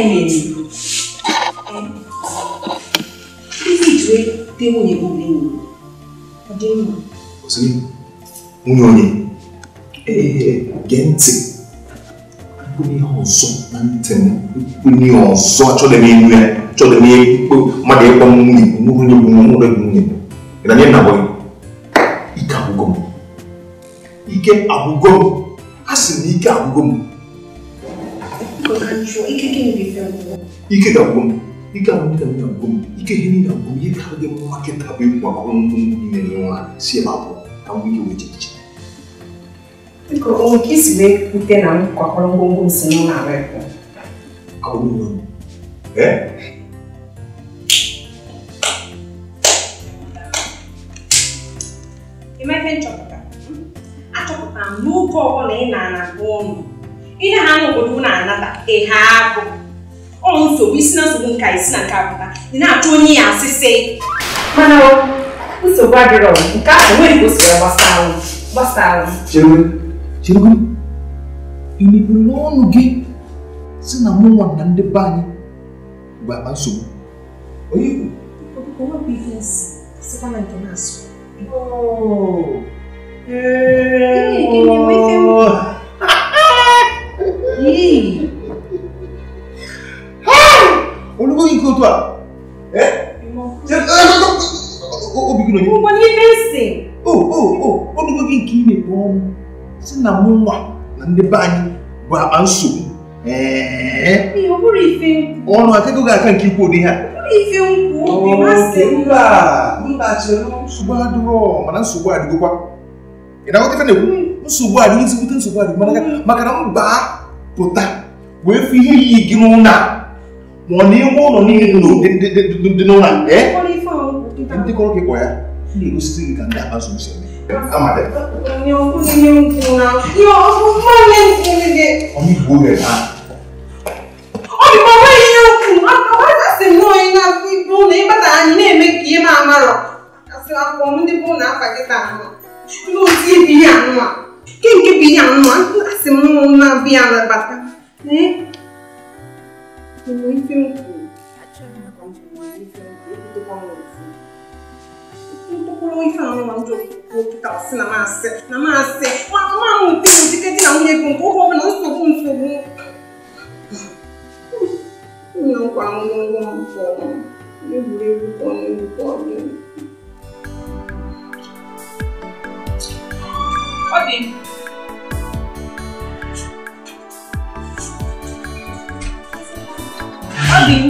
timing visit wey dey wey go be me i dey know osiri nwunye onye ee gee ntị onye ọzọ na ntị m onye ọzọ achọghị m elu ya achọghị m ekpo mmadụ ịkpọ m nwunye bụ nwunye bụ nwunye bụ nwunye bụ na nye nna bụghị ike agwụgo m ike agwụgo m a sị na ike agwụgo m ike ga-agwụ ike ahụ ka m na-agwụ ike ihe niile agwụ m ihe ka dị mma kịta bụ ịkwụ akwụkwọ ngwụ ime na nwaanyị si ebe abụọ ka m ihe weche iche biko na ihe ha n'obodo na-anata ihe agụ ọ nsogbu isi na nsogbu nka isi na nke apụta ị na-achọ onye ya asịsị mana nsogbu adịrọ nke ahụ nwere ka o siri gbasara gbasara cherugo imepere n'ọnụ gị si na mụ nwa na ndị be anyị bụ akpa nsogbu onye ikwu Oh. Hey, hey, hey, hey, hey, hey yìí. olùkọ́ yìí kò tó a ẹ ṣe ẹ ẹ obi kìlọ̀ yìí. mo ní fèsì. o o o olùkọ́ yìí kì í lè bọ́ ọ́n sí na mú wa na ndị be anyị bụ akpa nsogbu. ọ bụrụ ife nkwụ. ọnụ akụkọ ga-aka nke ikwu ụdị ha. ọ bụrụ ife nkwụ obi masị mba mba chere. nsogbu adịrọ mana nsogbu adịgokwa. ị na-aghọta ife na-ekwu nsogbu adịghị ezigbote nsogbu adịgị maka na mba pụta wee fụ ihe iyi gị n'ụlọ ma ọ na iwe ụlọ niile dị n'ụlọ nke ndị kọrọ gị kwa ya na-egosisi gị ka ndị akpazu uche Ndị bụ na afa gị taa nụ, ndị otu ibi ya nụ a. Quem che pigliamo? Ma se una piana batta. Eh? Noi siamo qui. Tutto quello che fanno mangio portarsi la massa, la massa. Ma ma non ti dici che ti hanno un po' non sto con su. Non qua non lo so. Io volevo con il cuore. Ó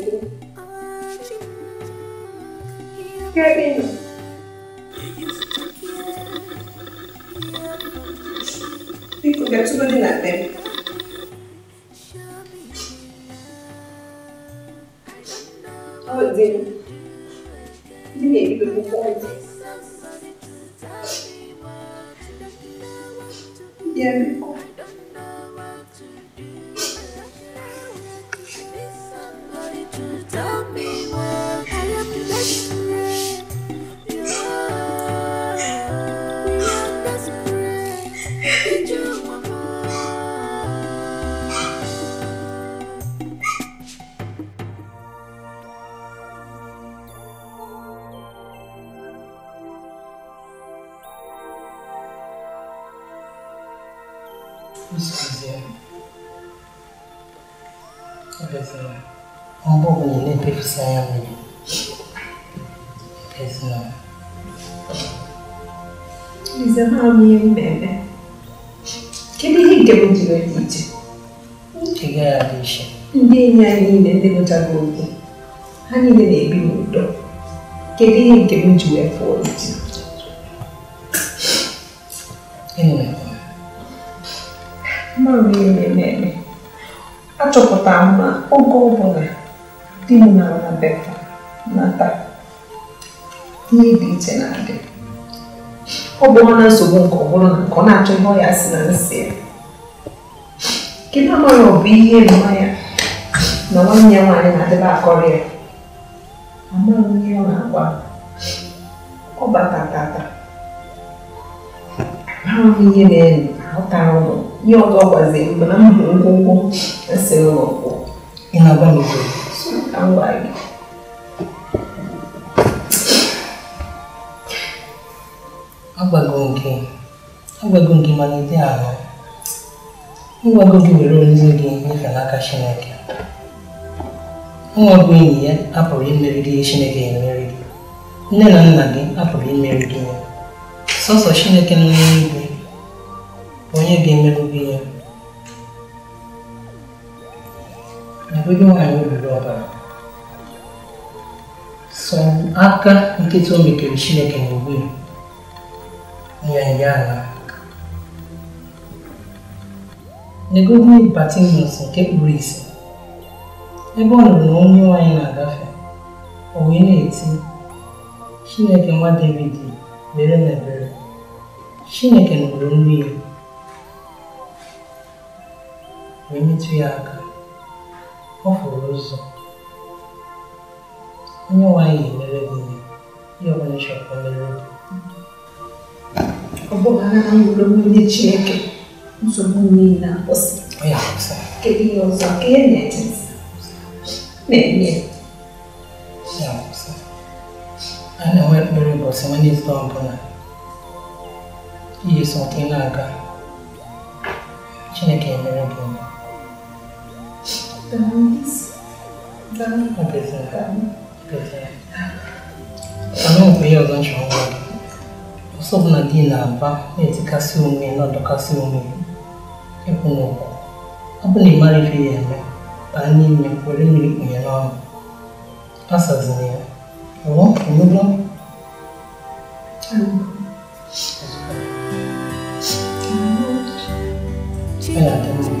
නියම බෑ. කෙනෙක් දෙමු ජීවිතේ. ti gradisce. Indegnarine denutanute, anime del minuto, che viene che mi giù è fuori. E non è buono. Ma viene bene. A ciò cioccotamma, o copone, di una beffa, nata. Ti dice nate. ọ bụrụ na nsogbu nke ọ bụrụ na nke ọ na-achọ ihe ọ ya si na nsị ya kedu amaghị ọ bụ ihe mmanya na nwanne ya nwaanyị na-adịba akọrọ ya amaghị ihe ọ na agba ọ bata amaghị ihe na-enye ahụtara ụlọ ihe ọzọ gwaziri mgbe na m hụrụ ụlọ kwụ e ị na n'obodo agwago nke agwago nke malite ahụ ngwago gị were ozi gị nyefe n'aka Chineke nwa bụ enyi ya apụrụ imeri gị Chineke emeri gị nne na nna gị apụrụ imeri gị ya sọsọ Chineke nọ n'eluigwe onye ga-emerụ gị ya ebụghị nwaanyị obiri ọbara sọ aka nkịta o mekere Chineke n'ogbe ya Nyanyala legodi Batinus nke kpuru isi ebe ọ nụrụ na onye nwanyị na-agafe o wee na-eti Chineke nwa David mere mere ebere Chineke nụrụ nri ya wee metụ ya aka ọ fụrụ ụzọ onye nwanyị mere gị ihe ọbụla mere ọ bụrụ na onye Chineke nsogbu niile akwụsị kedu ihe ọzọ ka ihe na-eche na-enye a na-enwe ekpere ụbọchị Wenezdee ọbụla ihe so ị na-aga Chineke emere gị ọ bụ ihe ọzọ ụzọ ọbụla di na-aba na-etikasị onwe ya na-adọkasị onwe ya ịkwụ n'ụkwụ ọ bụ na ị mara ife ya eme baa n'ime were mmiri kpunye n'ọnụ asazina ya ọwọ emego ya na mma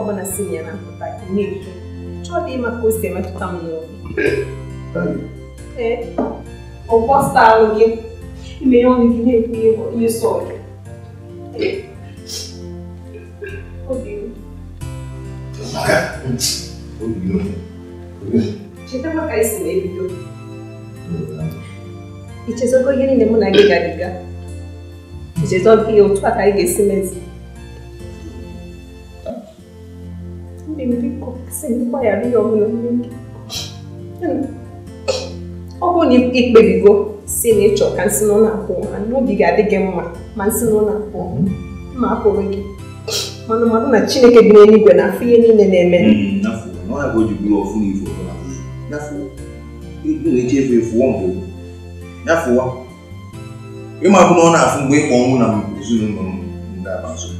slobodna si jedna na takvim nigdje. Čovjek ima kusti, ima tu tamo E, ovo stalogi, imaju oni gdje pivo i soke. Odbilo. Odbilo. kaj se ne vidio. I će zog ne mu nagiga giga. I će biko ya ọ bụrụ na ikpebigo si na ịchọ ka nsị nọ na-akwụ n'obi ga-adị gị mma ma nsinụlọ nọ na-akwụ ma apụrụ gị mana mmadụ na chineke dị na-afụ ihe niile hmm, na na afụ mgbe ịkpọ na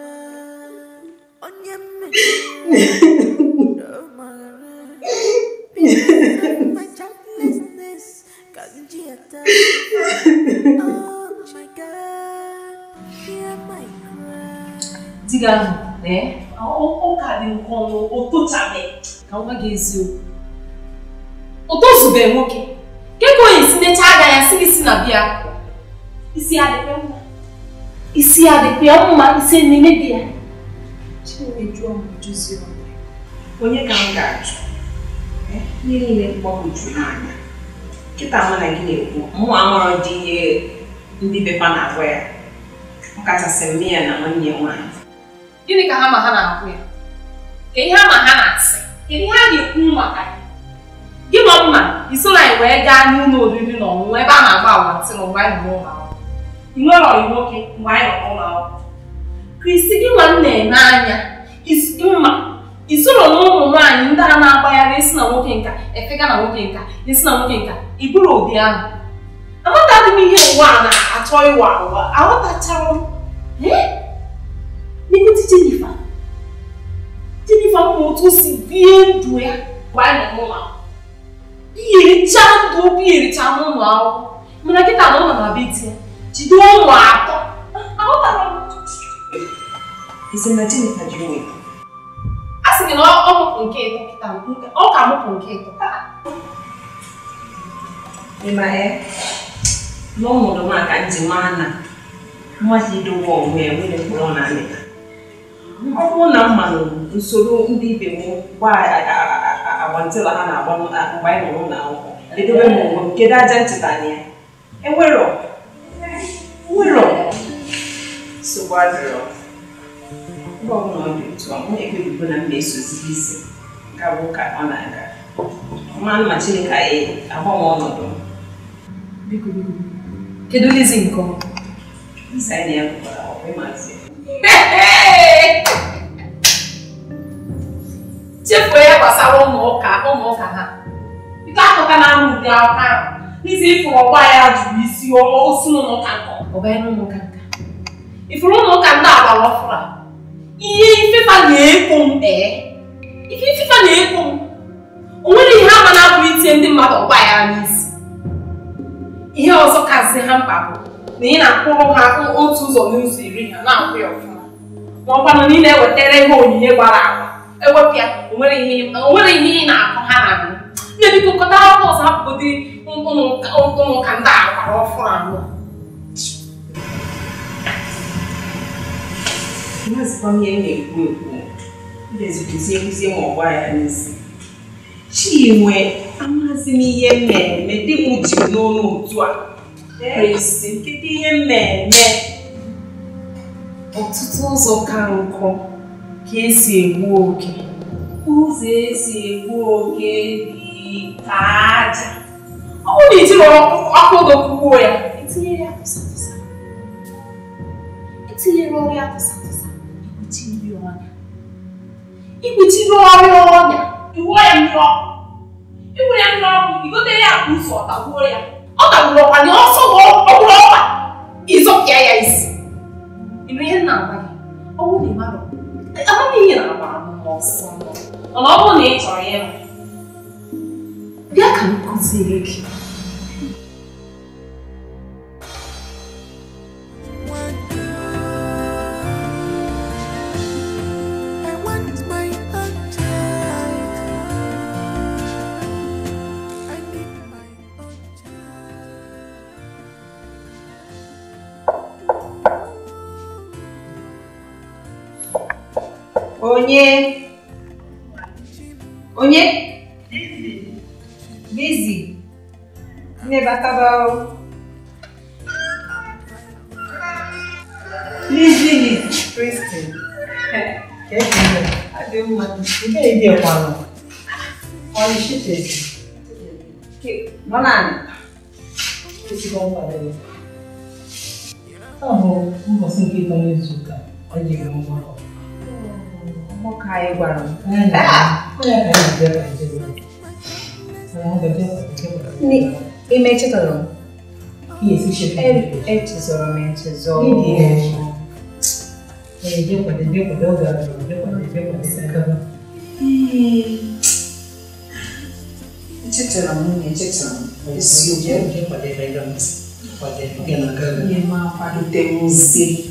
dịga ahụ ee ụka dị nke ọnụ ụtụchabe ka nwa gị eziokwu ụtụzube nwoke nke ka onye si necha aga ya si isi na bịa isi adịkwa mma isi adịkwa mma isi na-emebi onye ka m ga ajụ ihe niile mgbagwojuru n'anya nkịta mụ na gị na-ekwu mụnwa amụrụ dị ihe ndị bepa na-agwa ya ọkachasị mme ya na nwanne ya nwaanyị gịnị ka ha ma ha na-agwa ya ka ihe ha ha na-asị kedu ihe ha na-ekwu maka ya gị nọ mma isoro anyị wee gaa n'ụlọ oriri na ọṅụṅụ ebe a na-agba agwa ntị na ụwa anyị nọ n'ụlọ akwụkwọ ị nwere ọyị nwoke mgbe anyị nọ n'ụlọ akwụkwọ ka isi gị nwanne n'anya isi mma isoro na ụmụ nwaanyị ndị a na-agbagharị isi na nwoke nka efega na nwoke nka isi na nwoke nka iburu ụdị ahụ aghọtaghị m ihe ụwa na-achọ ịwa ụwa aghọtachara n'ikuti jenifa jenifa mma otu si bie ndụ ya mgbe anyị mụma biricha ndụ biricha n'ụlọ akwụkwọ mana kịta na ụlọ na ya, jide ụmụ atọ aghọtara ise na ji a sị na ọ nke ịtọ ọ ka mụpụ nke ịtọ ịma na ọ mụrụ nwa ka nji nwa na mmadụ onwe ya nwere mkpụrụ na amịta ọ bụrụ na usoro ndị ibe m gba agbantịla ha na-agba mgbe anyị edobe m onwe m kedu aja nchetanya enwero gwazerụ mba ọbụla eu dị otu a ọ tá então. na-ekpebigo é. tá na mma esozighị isi gawa ụka ọ na não mmanụ ma chineke anyị agbanwe ọnọdụ biko biko kedu lizi nke ọ nsa anyị ya bụkwara ọkwa ịmazi chefuo ya gbasara ụmụụka ụmụụka ha ike akụka na ama ụdị aka ahụ n'isi ịfụrụ ọgba ya jụrụ isi osinụ não nkọ ọgba ya n'ụmụụka nka ifuru na ụka ndị agbara ọfụra ihe ifefa na-ekwo m ee ife ifefa na-ekwo m o nwere ihe ama na-abụ itinye ndị mmadụ ọgba ya n'isi ihe ọzọ kazi ha mkpa bụ na ị na-akwụrụ ha otu ụzọ n'ụzọ iri ha na-akwụ ya ọfụma ma ọ kwanụ na ị na-ewetara ihe onyinye gbara agba ewepụ ya o nwere ihe ị na-akọ ha na nne bikọkọta akwụkwọ ọzọ hapụgodị ụmụụka ndị agbara ọfụrụ anọ azikwa m ihe m na-ekwu ekwu na-ezukwuzie nkuzi ma ọgba ya n'isi e chinwe amazi m ihe m na-eme dị m ji n'ọnụ otu a esi kedu ihe m na-eme ọtụtụ ụzọ ka nkụ ka esi egbu oge ụzọ esi egbu oge dị ka aja ọ bụrụ na ijiri ọkụ oge kwuo ya etinyere ya tụsa tụsa etinyere ọrụ ya tụsa ikpuchiri ọrụ ọnya iwụọ ya mmiri ọkụ ya mmiri ọkụ igote ya akpa ụzọ ọtagbuo ya ọ tagburu ọkwa na ọsọ ọgbụrụ ọkwa ịzọpịa ya isi ịnụ ihe nna agwa gị ọnwụ na mmadụ amamihe na agbara mma ọsọ mana ọ bụrụ na ị chọrọ ịhụ bịa ka m kụziere gị onye onye bizi nne batabao lizili kristin adị mma nke edekwanụ ọnịchitezi nọ naanị ezigbo nkwado ọ bụ mbọsị nke ịtọ n'izu ụka ọ jiri ngwa ọrụ Mokai Guarani. Ime tesoron. É. E tesoron men tesoron. E deu para deu para deu para deu para deu deu sacava. Hum. deu men deu Esse o que deu para deu para deu para deu deu Ema deu ter um zelo.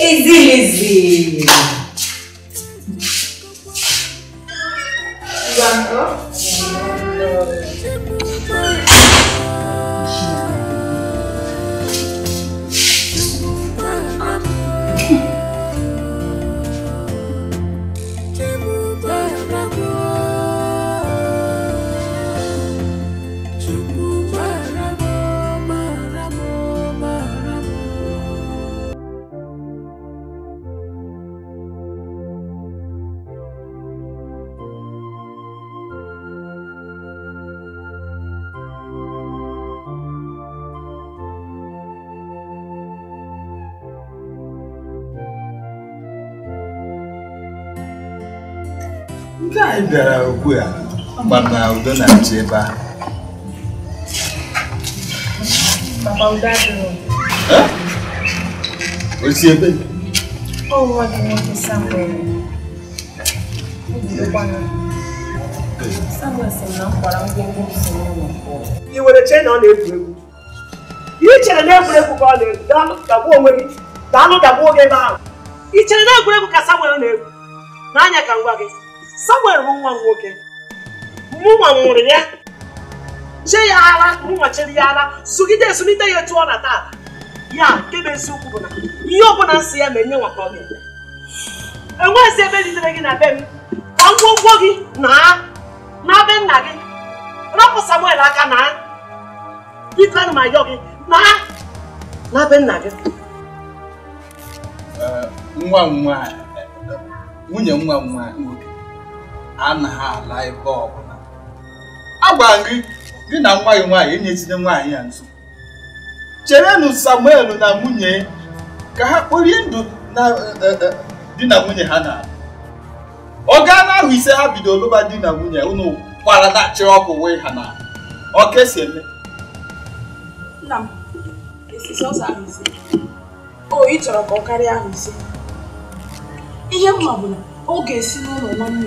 easy, easy. You want to? anyị bịara okwu a mana udo na-achị ebe a osi ebe ị n'oge che na ọ na-egwu egwu ị chere na egwuregwu ka ọ na-egwu onwe gị daalụ dagbuo gị ebe ahụ chere na egwuregwu ka Samuel na-egwu n'anya ka ngwa gị Samuel bụ nwa m nwoke mụnwa mụrụ ya je ya ara mụnwa chere ya ara sugide esunite ya etu ọ na taa ya nke bụ eziokwu bụ na ihe ọbụla nsị ya na-enye nwata ọ ga-eme enweghịzi ebe lidere gị na be m ka ngwongwo gị naa na be nna gị rapụ Samuel aka naa biko ana m gị naa na be nna gị nwa nwa nwunye nwa nwa nwoke anaghị ala ebe ọbụla agwara gị gị na nwa gị nwaanyị enyezile nwaanyị ya nso cherenụ samuel na nwunye ka ha kporie ndụ na e, e, di na nwunye ha na oge anụ ahụ ise ha bido lụba di na nwunye ụnụ kwara na dachịrị ọkụ wee ha na ọka esi eme o ị chọrọ ka ọ karịa ahụ ise ihe mma bụ na ọ ga-esi n'ụlọ nwanne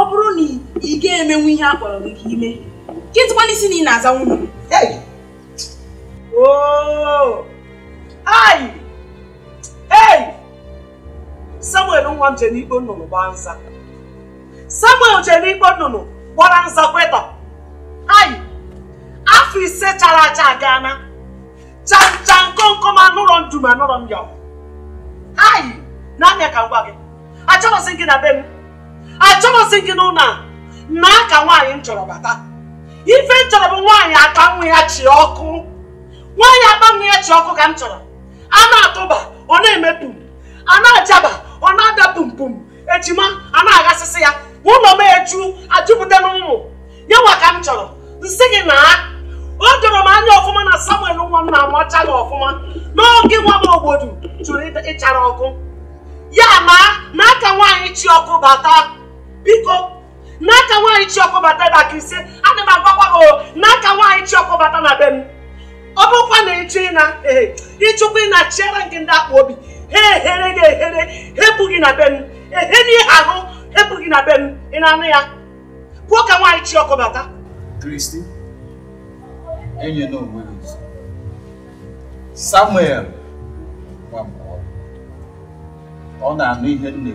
ọ bụrụ na ị ga-emenwu ihe a kpọrọ gị ka ime kịtụkwana isi na ị na-aza nwunye oh! ai ei samuel nwa m jere ikpo nnụnụ gbaa nza samuel jere ikpo nnụnụ gbara nza kweta ai afọ ise chara acha aga na chanja nkomkom anụrọ ndum anụrọ m ya ai na anya ka m gị achọghịzi gị na be m achọghịsị gị n'ụlọ a na aka nwaanyị m chọrọ bata ife m chọrọ bụ nwaanyị aka nwa ya chi ọkụ nwaanyị akpa nwa ya chi ọkụ ka m chọrọ a na-atụba ọ na-eme pum a na-ajaba ọ na-ada pum pum ejima a na-aghasịsị ya ụlọ m eju ajụpụta n'ụmụ ya nwa ka m chọrọ nsị gị na o doro m anya ọfụma na samuel nwa m na ọfụma n'oge nwa m obodo jụrụ ịchara ọkụ ya na n'aka nwaanyị chi ọkụ bata biko n'aka nwaanyị Chiọkụ bata na aka ise ana m agwakwa gị oh, n'aka nwaanyị Chiọkụ bata na be m ọ bụkwa na ịchụ ịna ịchụkwa ịna chịara gị ndị akpa obi ha ehere gị ehere hepụ gị na be m ehe na ihe ahụ hepụ gị na be m ị na-anụ ya pụọ ka nwaanyị Chiọkụ bata Kristi enye onwe gị Samuel ọ na-anụ ihe m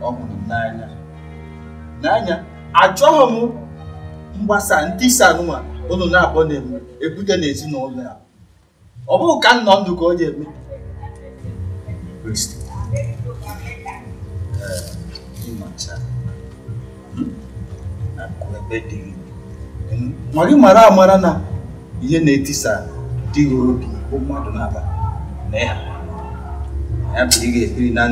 ọ hụrụ n'anya n'anya achọghị m mgbasa isi anụnwa unu na-akpọ na-eme ebute n'ezinụlọ ya ọ bụghị ka nnọ ndụ ka ọ ji eme mara amara na ihe na-etisa dịghị obi mmadụ na ya ya bụ ị ga na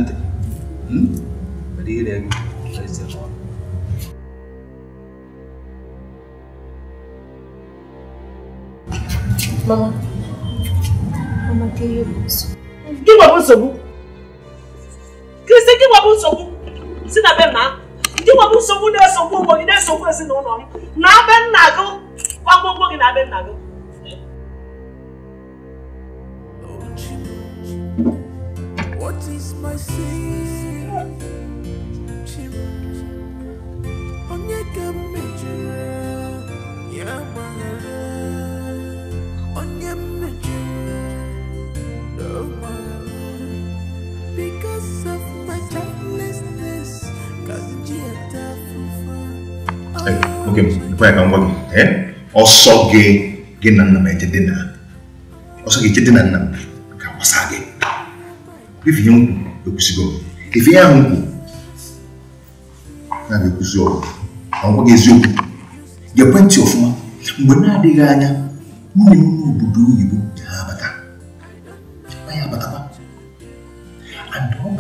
Mama, Mama, kí wọ́n bó sọ̀bù? Kìrìsì kí wọ́n bó sọ̀bù? Sí na bẹ́ẹ̀ náà. Kí wọ́n bó sọ̀bù náà sọ̀bù ọmọ yìí náà sọ̀bù ẹ̀sìn náà nọ̀rọ̀. Náà bẹ́ nàgó. Wọ́n gbogbo yìí náà bẹ́ nàgó. What is my sin? Onyeka me. ok, before I can ok, eh ọsọ gị gị na nna m ejide na ọsọ gị ejide na nna m ka gbasa gị ife ihe nkwu ekwusigo ife ihe ahụ nkwu na ga-ekwusi ọgwụ ma ọ gwaghị eziokwu ga-ekwe ntị ọfụma mgbe na-adịghị anya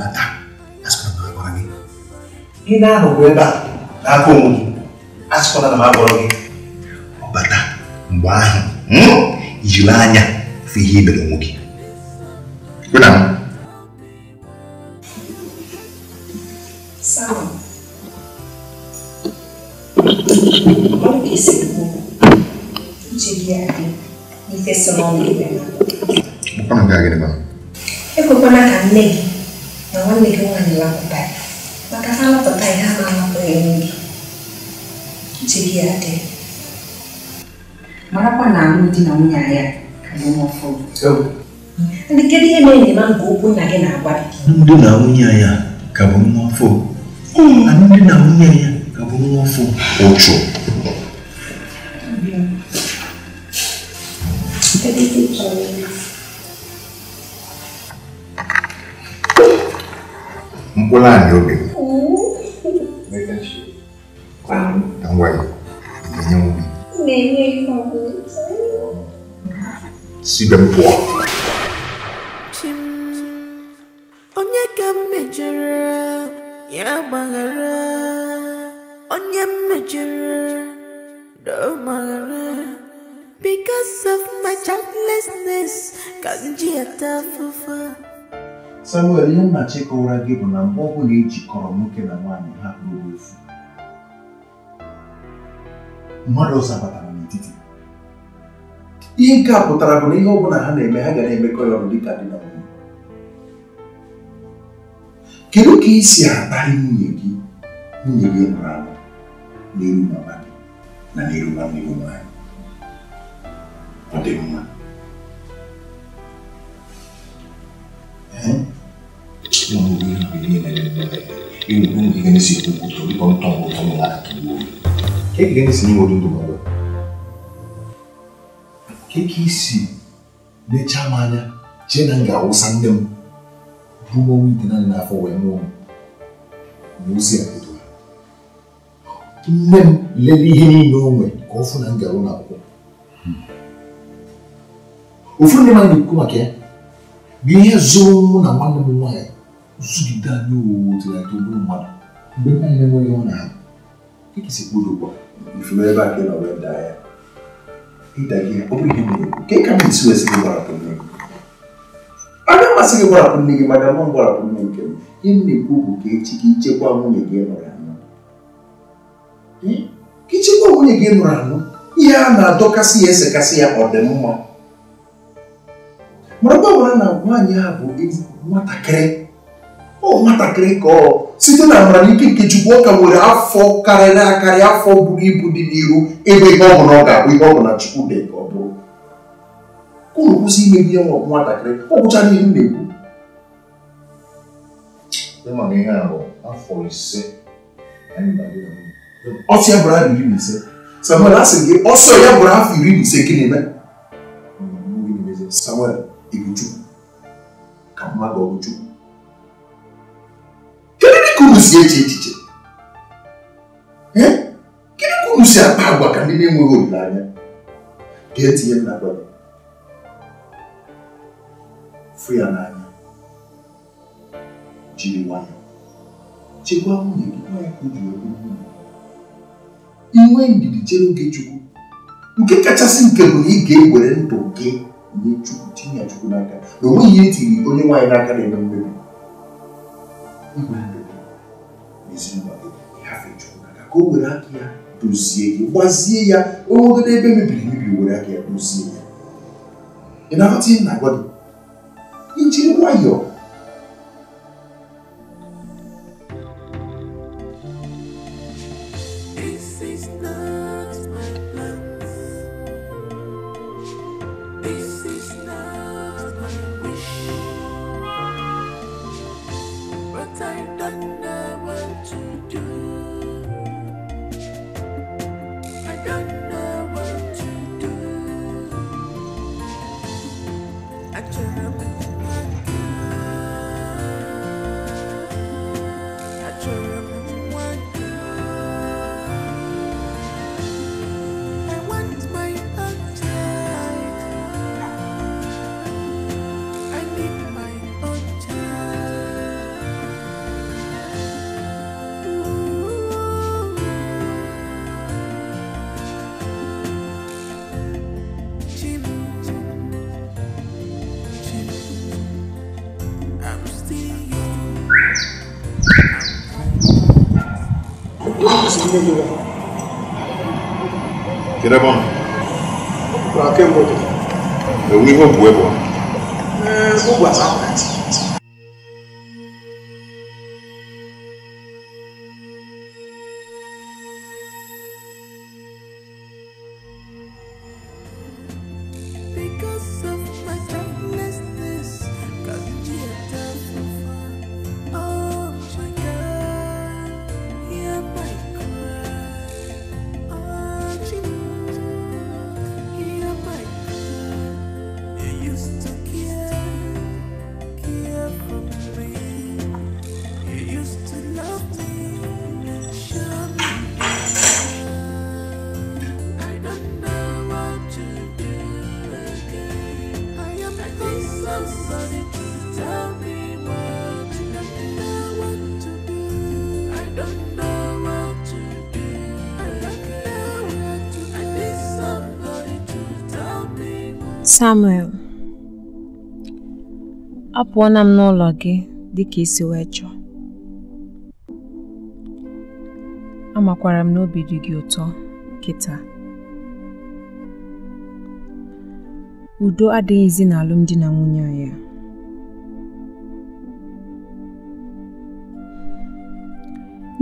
ibada asịkwana m agwara gị ihe ahụ bụ ebe a n'aka onwe gị asịkwana na m agwara gị ọbata mgbe ahụ jiri anya fụ ihe i mere onwe gị Ekwekwana ka nne gị මම නිගමනයක් ඔබයි. මකසාල පතයි හමම ප්‍රේමී. Chigiate. Mara kwa na mti na unyaya kalomo fo. So. Ndigedi ene ni mangu kuna gena abadi. Mdu na unyaya kalomo 꼬라 요비. 내다시. 꽝. 당과이. 인형. 내내 거고. 시간 보아. 침. 언제 감매져라. 야 방아라. 언제 매져라. 너 망아라. Because of my childlessness, 가진 지하 따 부부. Samuel ihe nna ụra gị bụ na mgbe ọbụla ejikọrọ nwoke na nwaanyị ha bụrụ efu mmadụ ọzọ batara n'etiti ihe nke a pụtara bụ na ihe ọbụla ha na-eme ha ga na-emekọ ya ọrụ dịka dị na nwunye kedu ka ị si akparị nwunye gị nwunye gị mụrụ amụ n'iru mama gị na n'iru nwanne gị nwaanyị ọ dị mma mundo ele primeiro também. E o mundo que ganha esse tubo, o tubo como tão bom como lá que o que que ganha esse mundo do mundo? Que que esse ne chamanya chenanga usandem ruo wite na na fo we mu muzi akutu nne m ihe niile o nwe ka ọ fụ na m na na-ekwu ihe mụ na zụgide anyị owuwu tụgharị ụlọ mmadụ mgbe nwaanyị na-enweghị ọ na-ahụ ekesi kpụrụ ifuru ebe a na nọrọ daa ya ịda gị ọ bụrụ ihe mere nke ị ka m esi wesị gị gbarapụ nne gị aga mmasị gị gbarapụ nne gị maka mụ gbarapụ nne nke m ihe m na-ekwu bụ ka echi gị chekwa nwunye gị nọrọ anọ ka ichekwa nwunye gị nọrọ anọ ihe a na-adọkasị ya esekasị ya ọ dị mma marakwa gwara na nwaanyị a bụ nwatakịrị ọ oh, nwatakịrị ka ọ site na amamike Chukwu ọ nwere afọ karịrị akarị afọ buru ibu dị n'iru ebe ihe ọ bụla ọ ga-abụ ihe ọ bụla Chukwu dee ka ọ bụrụ unu kwụsị ime ihe nwa nwatakịrị ọ gwụchara ihe m na-ekwu mana ihe a bụ afọ ise ọsọ ya bụrụ afọ iri na ise samuel a gị ọsọ ya bụrụ afọ iri na ise gịnị eme samuel ibu ka mmadụ ọ ka unu si eche echiche gịnị ka unu si akpa agwa ka ndị na-enweghị olileanya ga-etinye m na gwa gị fụ ya n'anya jiri nwayọ chekwa nwunye gị nwanyị ka o jiri oru nwunye inwe ndidi chere oge chukwu nke kachasị nke bụ na ị ga-ewere ndụ gị nye chukwu tinye chukwu n'aka na onweghị ihe etiri onye nwaanyị n'aka na-eme mmebi ezinụlọ gị hafechukwu n'aka ka o were aka ya dozie gị gbazie ya onwegoro ebe e mebiri emebi were aka ya dozie ya ị na-aghọta ihe na-agwa gị nwayọọ Kira bon. Kwa ken bote. E wi ho bwe Samuel, apụọna m n'ụlọ gị dịka isi wee chọọ. Amakwara m n'obi dị gị ụtọ kịta. Udo adịghịzi n'alụmdi na nwunye anyị a.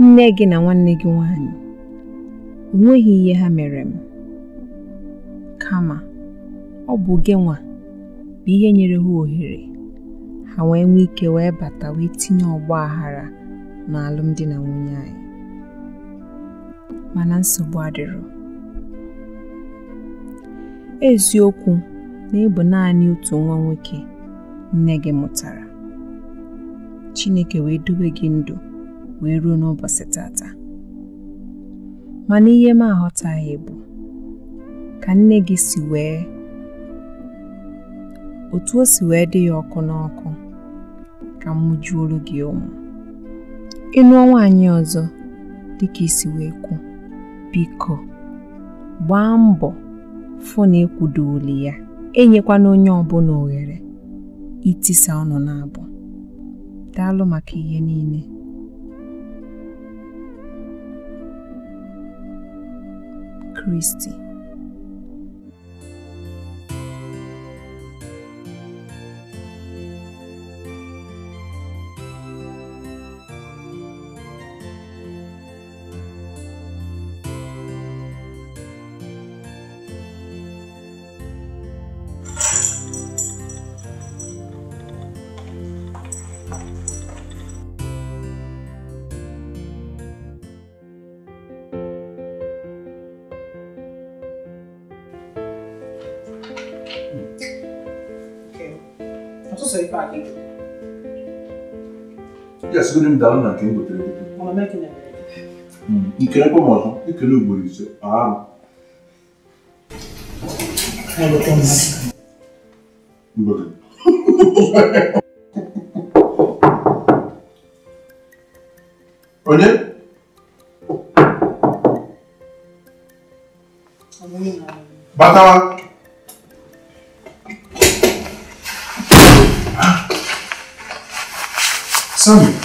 Nne gị na nwanne gị nwanyị, o ihe ha mere m, kama ọ bụ gịnwa bụ ihe nyere ha ohere ha wee nwee ike wee bata wee tinye ọgba aghara n'alụmdi na nwunye anyị mana nsogbu adịrọ eziokwu na ị naanị otu nwa nwoke nne gị mụtara Chineke wee dobe gị ndụ wee ruo n'ụbọchị tata mana ihe m aghọtaghị bụ ka nne gị si wee otu o si wee dị ya ọkụ n'ọkụ ka m mụjuo gị ụmụ ịnụọ nwaanyị ọzọ dịka isi wee kwu biko gbaa mbọ fụ na ekwudoli ya enyekwana onye ọbụla oghere itisa ọnụ na-abụ daalụ maka ihe niile Kristi esigodị m dara na nke m gotere gotere nke ekwe m ọzọ ekele ugboro ise arụ onye batawa Samuel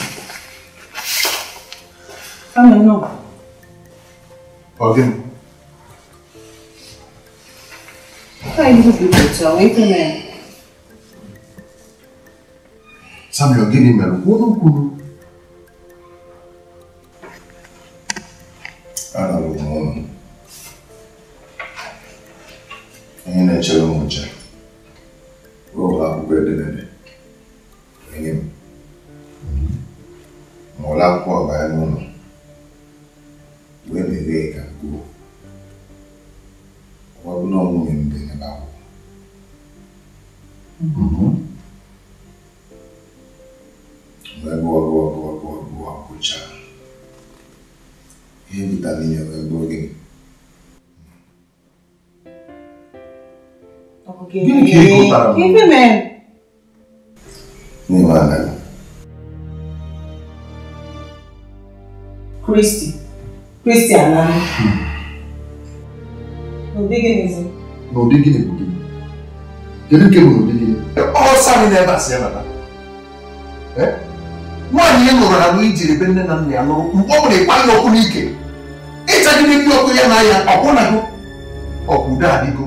Θεσσαλονίκη, ναι. Σαν μειοντίνη Give, give, give, give, give him in. Nimana. Christy. Christy Anani. Hmm. No digging is it? No digging is it? Kedu ke bụ ụdị gị? Ọsọ anyị n'ebe a si ebe Nwaanyị ị nụrụ na bụ ijiri ebe nne na nna ya nụrụ mgbe ọ bụla ịkpa ya ọkụ n'ike. Ịchagide ndị ọkụ ya na ya ọkwụ na gị ọkwụ udo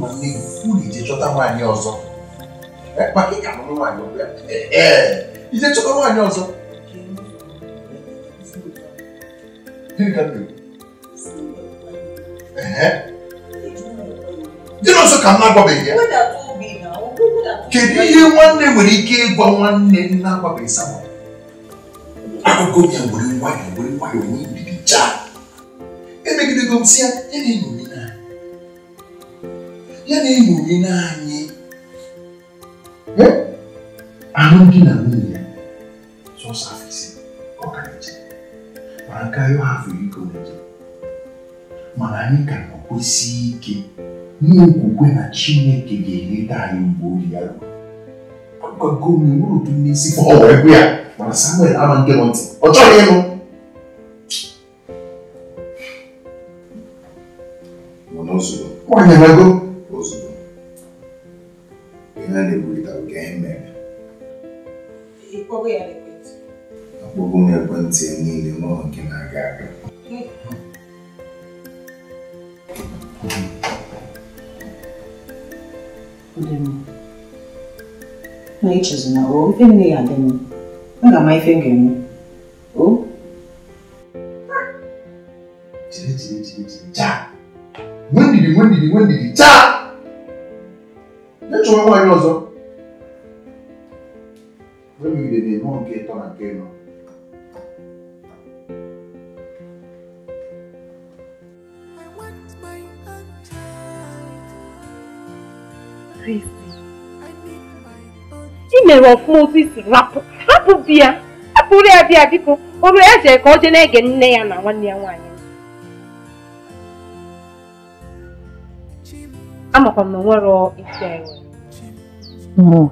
nọ n'ifu ijechọta nwaanyị ọzọ maka ịka mụrụ nwaanyị ọbịa ee ijechọta nwaanyị ọzọ gịnị ka m na-ekwu dị n'ọzọ ka m na-agwabeghị ya kedu ihe nwanne nwere ike ịgwa nwanne na-agwabeghị sama akụkọ ya nwere nwayọọ nwere nwayọọ nwee mbibi jaa emegidego m si ya ya na-enyo ya na igbo gị naanị alụmdi na nwunye sọsọ afọ ise ọkarachi mana karịa afọ iko nje mana anyị ka na-ekwesị ike n'okwukwe na chineke ga-eleta anyị mgbe oge ya ruo gọọmenti nwere otu n'isi ka ọ wee ya mana samuel ama nke nọ ntị ọ chọghị ịnụ nwaanyị na-ego na-egwurịta ka anyị mere akpọgo m ekwentị niile n'ụlọ nke na-aga aga na ichezina o ife nne ya adị mma aga m ife m ga-eme o Cha! When did you, when did you, when did you, cha! chọwa nwaanyị ọzọ egide na-enwe nke ịtọ na nke ịnọ i mere ọfụma otu isi rapụ hapụ di ya hapụrụ ya bịa biko olu ya jere ka ọ jee na-ege nne ya na nwanne ya nwaanyị amakwa m na o nwere isi enwe nwe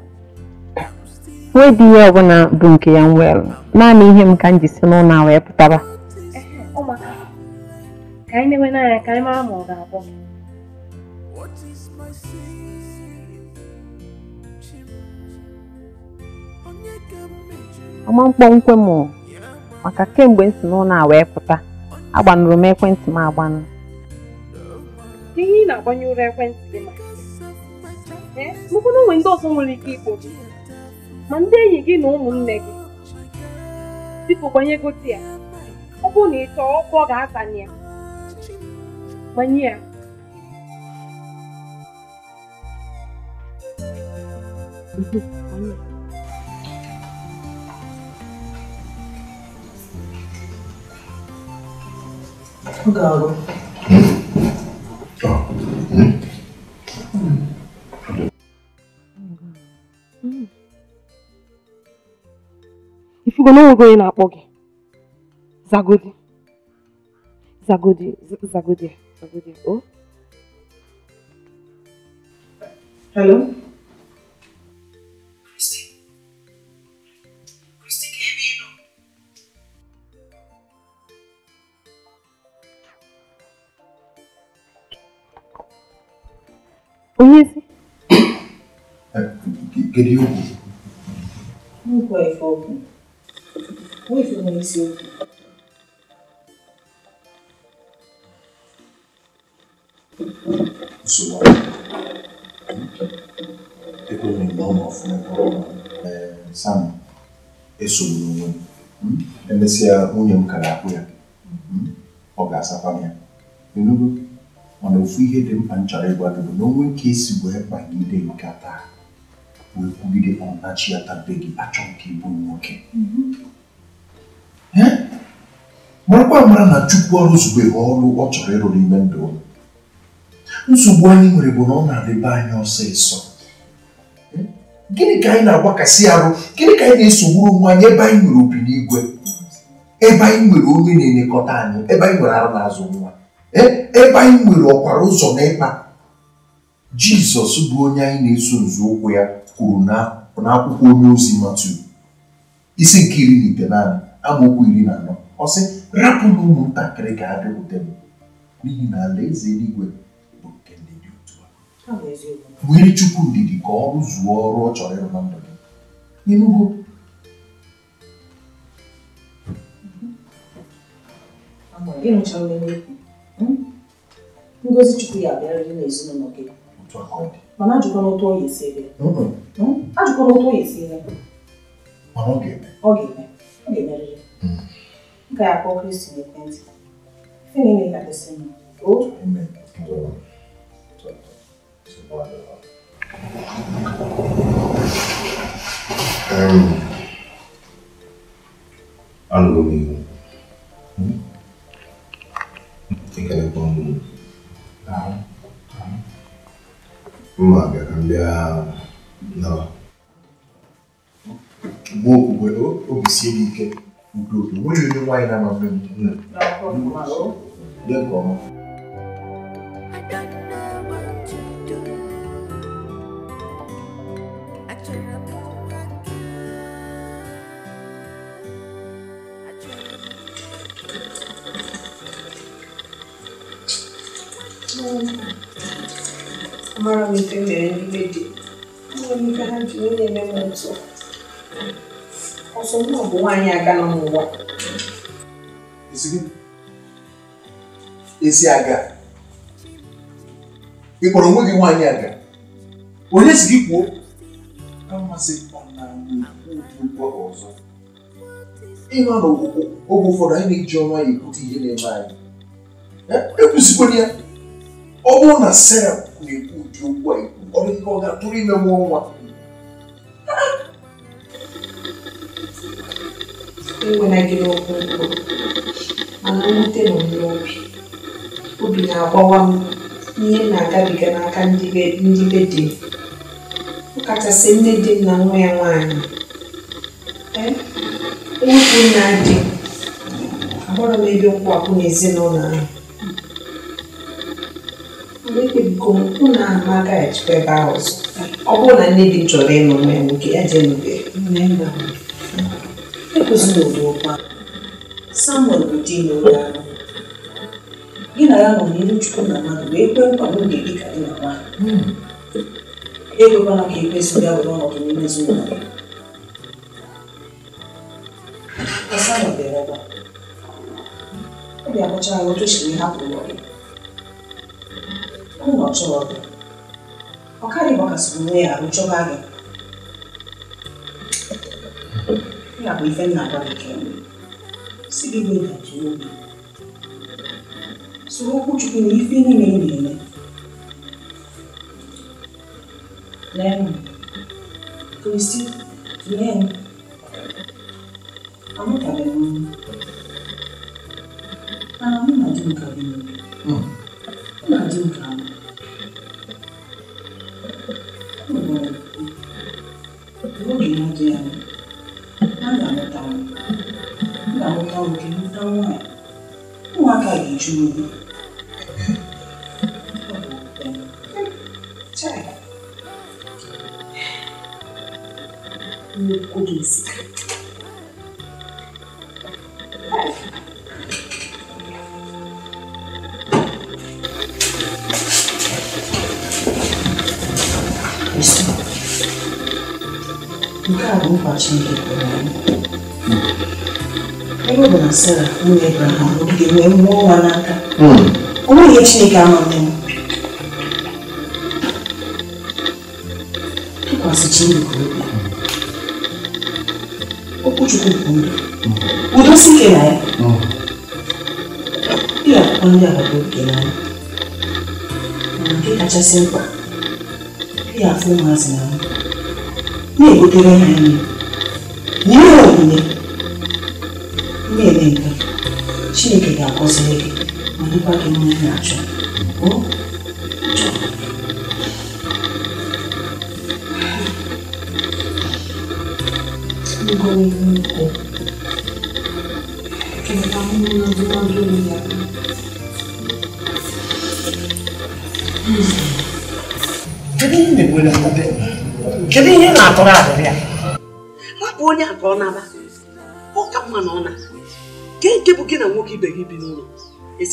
dị ihe ọbụla bụ nke ya nwere naanị ihe m ka m ji si n'ụlọ a wee pụtara ọma mkpọnkwe m maka kemgbe m si n'ụlọ a wee pụta agbanụrụ m ekwentị m agbanụ ihe ị na-agbanye ụra ekwentị gị maka mụkwụ na onwe ndị ọzọ nwere ike igbochi ma ndị enyi gị na ụmụnne gị biko gbanye ya ọ bụrụ na ị chọọ ga-atanye gbanye ya ọ ga-arụ hmm? Hmm. ifugo na onwego onye na-akpọ gị zagodi zagodi zagodi zagodi Oh hello onye ezi kedu ihe okwu okwu ruivo monzento. O sol é como um bom ofendido, sabe? É sobre um é nesse a união hum? é carapuia, o gás é é a família. Entendeu? Mana ofu ihe dị mkpa nchara ịgwa gị é na onwe nke esi wee o que wee kwugide ọnachi ya tabe gị achọ nke ịbụ nwoke marakwa mara na chukwu ọrụzubeghị ọrụ ọ chọrọ ịrụ n'ime ndụ ụlọ nsogbu anyị nwere bụ na ọ na-adịbe anyị ọsịsọ gịnị ka anyị na-agbakasị arụ gịnị ka anyị na-esogburu onwe anyị ebe anyị nwere obi n'igwe ebe anyị nwere onye na-elekọta anyị ebe anyị nwere arụ n'azụ nwa ebe anyị nwere ọkwara ụzọ na ịkpa jizọs bụ onye anyị na-eso ụkwụ ya kwuru na akwụkwọ onye ozi matu isi nke iri na ite naanị amaokwu iri na anọ ọ sị rapụnụ ụmụntakịrị ka ha bịakwute m n'ihi na alaeze eluigwe bụ nke ndị dị otu a were chukwu ndidi ka ọ rụzuo ọrụ ọ chọrọ ịrụ na ndụ gị ịnụgo ngozi chukwu ya abịarịrị n'ezinụlọ gị mana ajụkwana otu ọ ya esi ebe ajụkwana otu ọ ya esi ebe ọ ga-eme ga-emerịrị m ga-akpọ kristi n'ekwentị ife niile ga-adịsị m o anụrụ m iwu ịgalekwa ọmụmụ mgbe okwukwe obi sie m ike ukwuu nwere onye nwaanyị na-ama mbe dị nke ọma amara m ife mere n'ihe dị nwere m ha ji onye eme m ntụ ọsọ m ọ bụ nwaanyị aga nọ n'ụwa esi aga ị kpọrọ onwe gị nwaanyị aga onye si gị kwuo amasị na mgbe ọzọ ịnọ n'oge ụfọdụ anyị na-eji ọnwa ya ekwute ihe na-eme anyị ekwusikwana ya ọ bụrụ na Sera na-ekwu ụdị okwu a ekwu ọ dịghị ka ọ ga-atụrụ ime nwa ọnwa enwenagịla okwu mkpụrụ mana mwute nọ m n'obi obi na-agbawa m ihe m na-agabiga n'aka ndị be di m ọ kachasị nne di m na nwa ya nwaanyị ewepụ nna di ahụrụ m ebe nkwụwapụ n'ezinụlọ ahụ mgbe ekpebigo m ụlọ ahụ m agaghị ejikwa ebe ahụ ọzọ ọ bụrụ na nne di m chọrọ ịnụ nwa ya nwoke ya jee n'ube ekwesịrị samuel bụ di n'oge ahụ gị na ya nọ n'iru chukwu na mmadụ wee kwee nkwa n'oge dị ka dị na nwaanyị hmm. ekwekwala ka ekwesị ya were ọnọdụ n'ime ezinụlọ ya samuel bịara ọgba obi akpọcha ya otu siri hapụ ụlọ gị ụlọ chọrọ gị ọ karịghị gbakasịrị onwe ya arụ chọba gị ya kò fẹ́ nà bá jẹ síbi ní ìdájọ́ òbí sọ̀rọ̀ kúchukwu na ife niile ị na-eme lẹ́nu kristi lẹ́nu amụtabeghị m mana mụ na di m ka bi mụ na di m ka mụ n'oge na-adịghị anya Não, não, querida, não é. Não há carinho de novo. Meu cobiça. Isso. Nunca vou partir aqui por aí. ọ na Sara nwunye Abraham ga-enwe nwa ọnwa n'aka hmm. o nweghị ihe Chineke amaghị tụkwasị Chineke obi okwuchukwu bụ ndụ hmm. udosi ike na ya ihe hmm. ga-akwụkwọ ndị agbata obi gị n'anya mana nke kachasị mkpa ihe afọ afụ ụmụazị na na-egotere ha nri inaczej.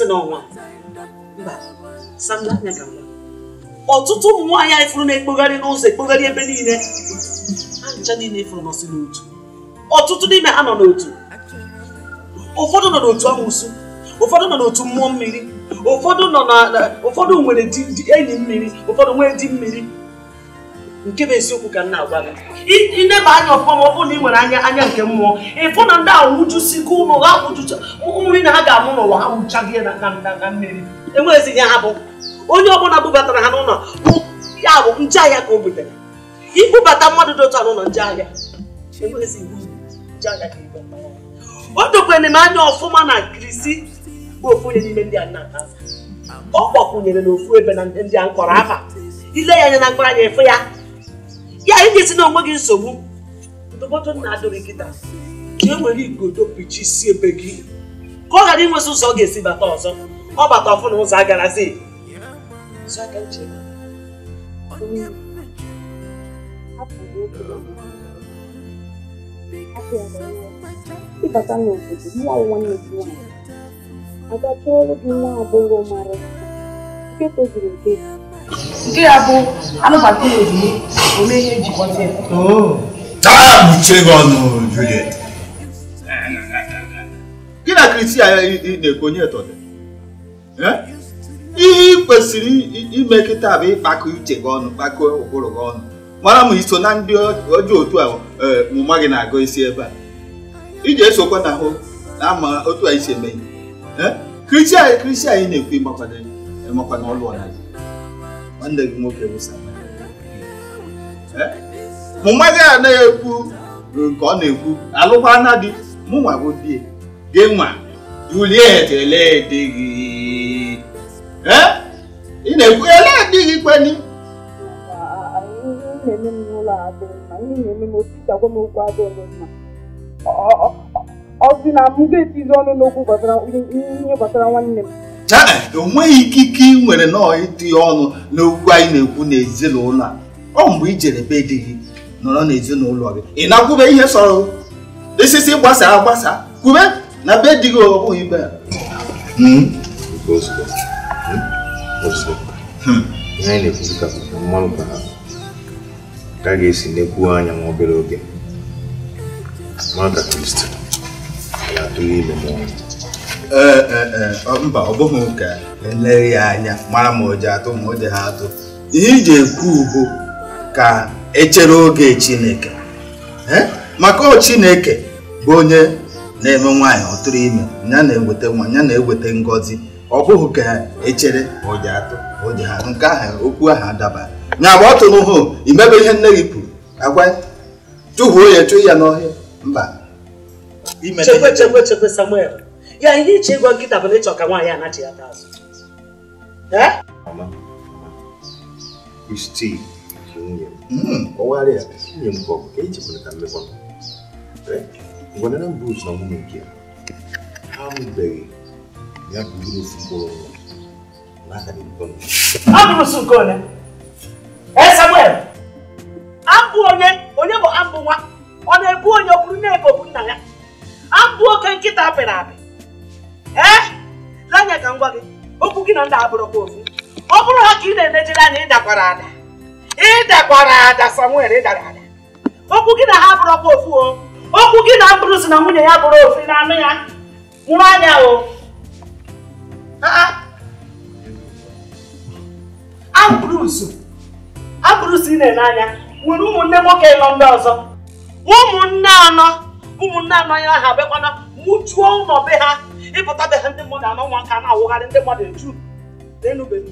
n'ọnwa ọtụtụ ụmụ nwaanyị anyị fụrụ na-ekpogharị n'ụzọ ekpogharị ebe niile ha ncha niile fụrụ nọsị n'otu ọtụtụ n'ime ha nọ n'otu ụfọdụ nọ n'otu amụsụ ụfọdụ nọ n'otu mmụọ mmiri ụfọdụ nọ na ụfọdụ nwere enyi mmiri ụfọdụ nwee di mmiri nke bụ esiokwu ka m na-agwa gị ineba anya ọfụma ma ọ bụrụ na ị nwere anya anya nke mmụọ ịfụ na ndị awụjusigo ụmụ ha nri na ha ga-amụ n'ụwa ha nwụchaghị na mmiri enweghịzi ya ha bụ onye ọbụla bubatara ha n'ụlọ bụ ya bụ nje ahịa ka o butere ibubata mmadụ dị otu a n'ụlọ nje ahịa o dokwere m anya ọfụma na krisi bụ ofu onye n'ime ndị a nna ọ gbakwunyere n'ofu ebe na ndị a nkọrọ afa ile ya anya na mkpọrọ anya efu ya ya enyezi na onwe gị nsogbu ndụmọdụ nna adịrị kịta ka e nwere igodo si ebe gị ka ọ ghara inwezi ụzọ ọ ga-esi bata ọzọ ọ bata ọfụ na ụzọ agarazi n'obodo nwa nwanne gị nke tozuru nke nkirabụ anụbatara ozugbo ome ihe jikọta ya taa buchie gị ọnụ Juliet gị na kriti a ị na-ekwu onye tọdị ihe ị kwesịrị ime kịta bụ ịkpakọ uche gị ọnụ kpakọ ụkpụrụ gị ọnụ mara ma iso na ndị ọjọọ otu a mụma gị na-agụ isi ebe a iji esokwa na ahụ na ama otu anyị si eme ihe kristi anyị kristi anyị na-ekwu ịmakwana ọlụ ọnazi nwanne gị nwoke bụ eh? mụ nwa gị na-ekwu nke ọ na-ekwu alụkwana di mụ bụ gị nwa Juliet gị eh? ị na-ekwu ele di gị kweni ọ sị na m ga-etizi ọnụ n'okwu gbasara ihe nwanne m enweghị ikike ị nwere nọọ ịdị ọnụ n'okwu anyị na-ekwu n'ezinụlọ a ọ mgbe ijere jere be di gị nọrọ n'ezinụlọ gị ị na-akwube ihe sọrọ isisi gbasa agbasa kwube na be di gị ọ bụghị ibe ya hmm? hmm. ihe anyị na-ekwuzi ka mmanụ ka ha ka a ga-esi n'ekwu anya nwa obere oge mara ka kristi ga-atụghị ime mmụọ Eh, eh, eh, mba ọ bụghị ka eleghị ya anya mara ma oji atụ ma oji ha atụ ihe iji ekwu bụ ka echere oge chineke maka ọ chineke bụ onye na-eme nwaanyị ọtụrụ ime ya na-eweta nwa ya na-eweta ngọzi ọ bụghị ka echere oji atụ oji ha nke ahụ okwu ahụ adabaghị nya agba ọ tụrụ hụ imebe ihe nne gị kwuru agwa chụhuo ya chụọ ya n'ọhịa mba chekwe chekwe chekwe Samuel ya ihe iche ịgwa nkịta bụ na ịchọ ka nwaanyị anachịghata azụ eh? hmm, ya ha mụbeghị onye e eh, eh, Samuel onye bụ abụ nwa ọ na-ebu onye ọ bụrụ bụ nna ya abụ oke nkịta apị ee eh? anya ka m gị okwu gị na ndị abụrụkwa ofu ọ bụrụ ha ka ị na-enejere anya ịdakwara ada ịdakwara ada Samuel ịdara ada okwu gị na ha abụrụkwa ofu o okwu gị na mkpụrụ si na nwunye ya bụrụ ofu na anụ ya nwụrụ anya o abụrụzu ah, ah. abụrụzu ị na-ene anya nwere ụmụnne nwoke ịnọ ndị ọzọ ụmụnne anọ ụmụnne anọ ya ha abịakwana mụchuo ụlọ be ha ịpụtabeghị ndị mmadụ anọ nwa nka na-awụgharị ndị mmadụ eju n'enube nna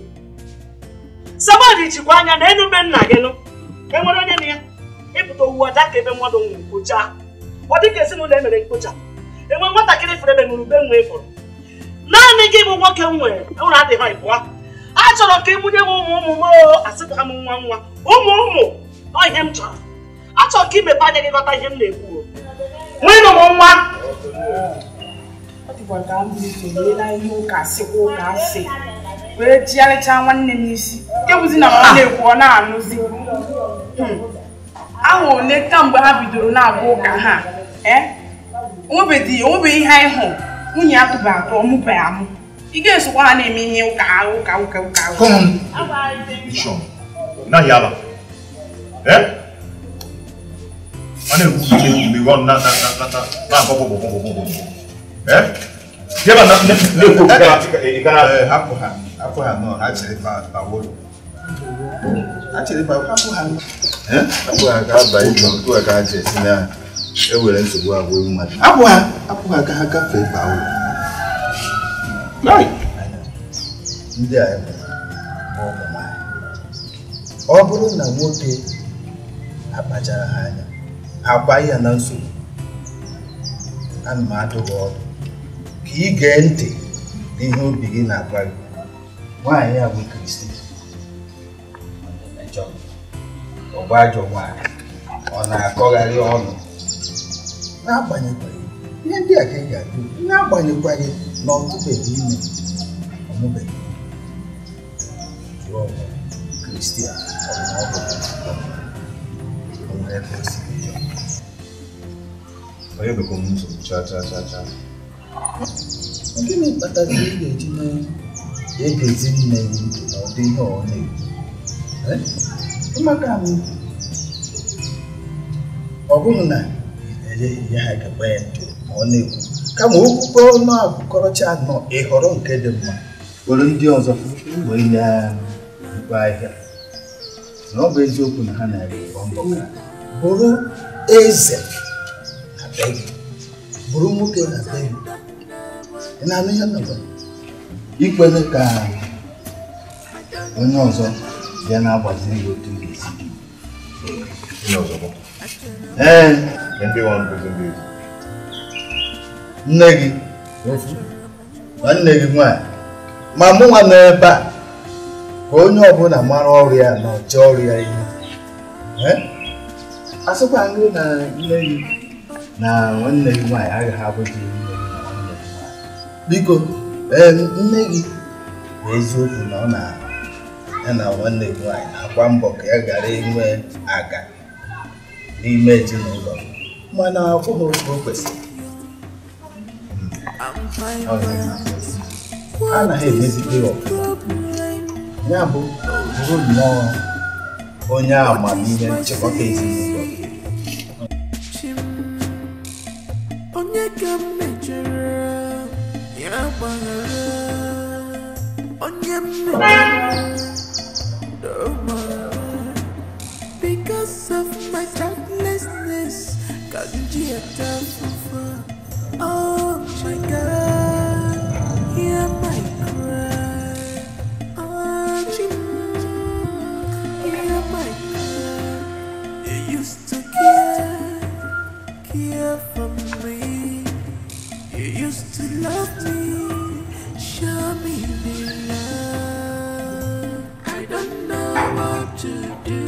jikwa anya na enube gị nụ enwere onye na ya ịpụta owu aja ka ebe mmadụ nwụrụ kpochaa ọ dịka ezinụlọ emere mkpocha enwe nwatakịrị fere ebe mụrụ ube ịfụrụ naanị gị bụ nwoke m nwere ụra adịghị ịpụa a chọrọ ka ị m ụmụ ụmụ m asịpụha m nwa nwa ụmụ ụmụ ọ ihe m chọrọ achọrọ ka imepe anya gị ghọta ihe m na-ekwu nwee ụmụ nwa ụbọchị ahụ na ihe ụka sịkwa ụka asị wee jigharịchaa nwanne m isi ewuzi na ọ na-ekwu ọ na-anụzi ahụ ole kamgbe ha bidoro na-agba ụka ha onwebeghị ihe anyị hụ nwunye ya tụba atọ ọmụbeghị amụ ị ga-esokwa ha na-eme ihe ụka ụka ụka ụka ụka Jeba na ne ko ka ka hapo ha. Hapo ha no actually ba ba wolo. Actually ba hapo ha. Eh? Hapo ha ka ba ibo ko ka je sina. E were nsogbu agwo ewu mmadụ. Hapo ha hapo ha ka ha ka fe ba wolo. Nai. Ndị a ọ bụrụ na nwoke akpachara ha anya ha gbaa ya na nsogbu ana m adụ gị ọdụ ka ị gee ntị n'ihe obi gị na-agwa gị nwaanyị a bụ Kristi ọgba ajọ nwaanyị ọ na-akọgharị ọnụ n'agbanyeghị ihe ndị a ka ị ga-adụ n'agbanyeghị na ọtụbeghị ime ọmụbeghị Kristi onye bekwa m nsogbu chaa chaa chaa chaa Gịnị kpatara ị ga-eji na-egezi nne gị ntị na ụdị ihe ọ na-ekwu maka m ọ bụghị na enye ya ha gaba ya ntị ma ọ na-ekwu kama okwukwe ọnụ abụkọrọcha anọ ịhọrọ nke dị mma were ndị ọzọ wee nye na-ekwe ahịa na ọ bụ eziokwu na ha na-ere ụgbọ mbọ bụrụ eze na be gị bụrụ nwoke na be nào nào giờ ịna-anụ ihe ọzọ ikwere ka onye ọzọ bịa na-agbaziri gị otu ga-esi ee nne gị nwanne gị nwanyị ma mụ nwa nọ ebe a ka nói ọbụla mara ọrụ ya na ọchị ọrụ ya ihu asịkwa nri na nne gị na nwanne gị nwaanyị agaghị abụghị ihu biko nne gị bụ eziokwu na ọ na ya na nwanne gị nwaanyị na-agba mbọ ka ya gara inwe aga n'ime ezinụlọ mana akwụghị oge o kwesịrị hmm. a naghị emezikpe ọfụma ya bụ bụrụ nnọọ onye amamihe nchịkọta ezinụlọ onye ka m mejọrọ Because of my thoughtlessness, can't get Oh my God. love me, show me the love. I don't know what to do.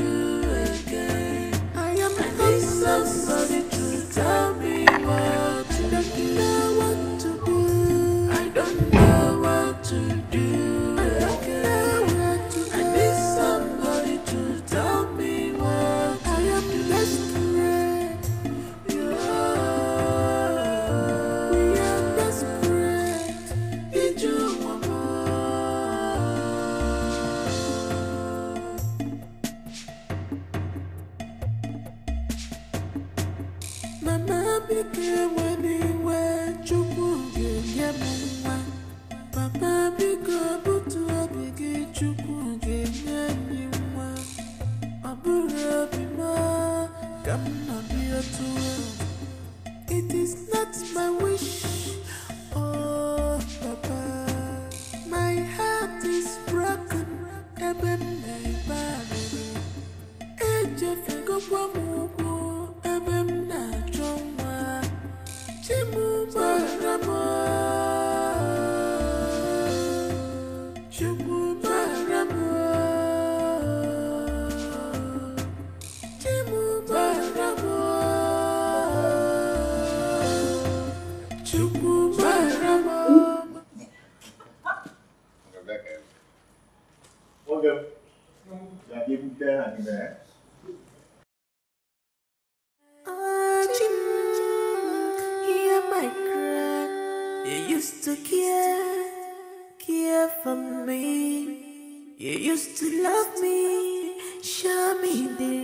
dele.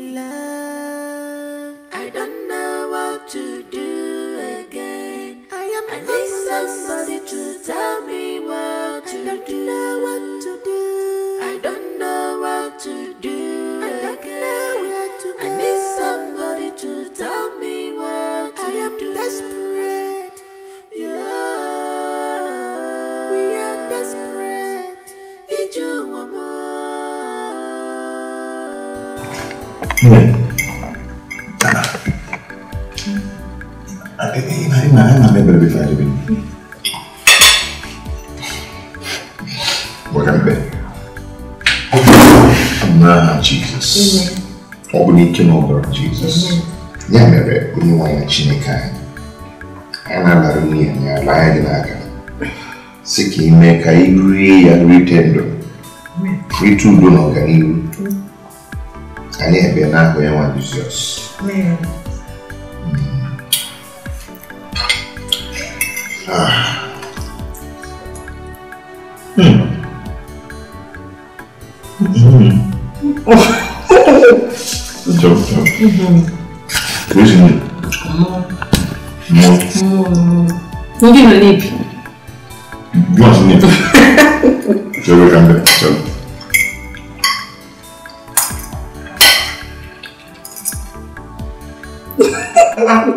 ya mere onye nwe ya chineke anyị anyị na-anara nwunye ya laa gị n'aka si ka ime ka ị rie ya rite ndụ rite udo na ọganihu Uhum. Pois é. Amor. Amor. Amor, amor. Não não, não. Não, Não Não, não. Não, não.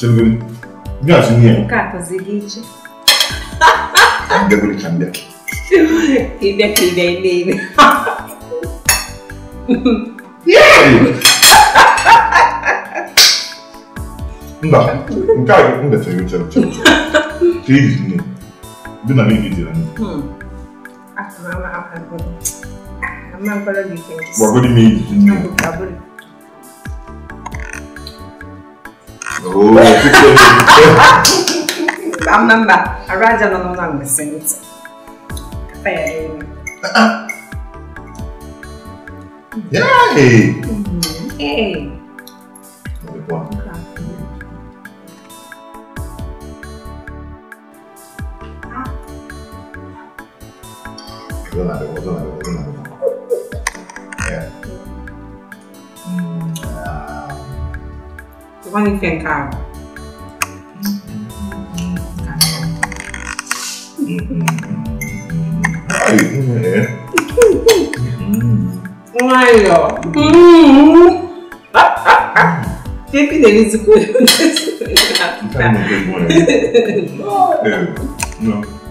Não, não. Não, Não Não, não. Não, não. Não, não. Não, não. Não Não, não cai, não desce, eu tiro, tiro, tiro. Que isso, não? Bem na minha vida, né? Hum. Ah, mas mas agora, mas agora de quem? Boa agora de mim. Não, agora. Oh, que que? Amanda, agora já não não não me sente. Tá aí. Yay! Uhum. Yay! Hum. Vamos embora. Vou nada, vou vou É. Vamos é. Моё. Pepe delícia. Tá muito bom. Não.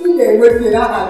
m ga-enwe mmiri aha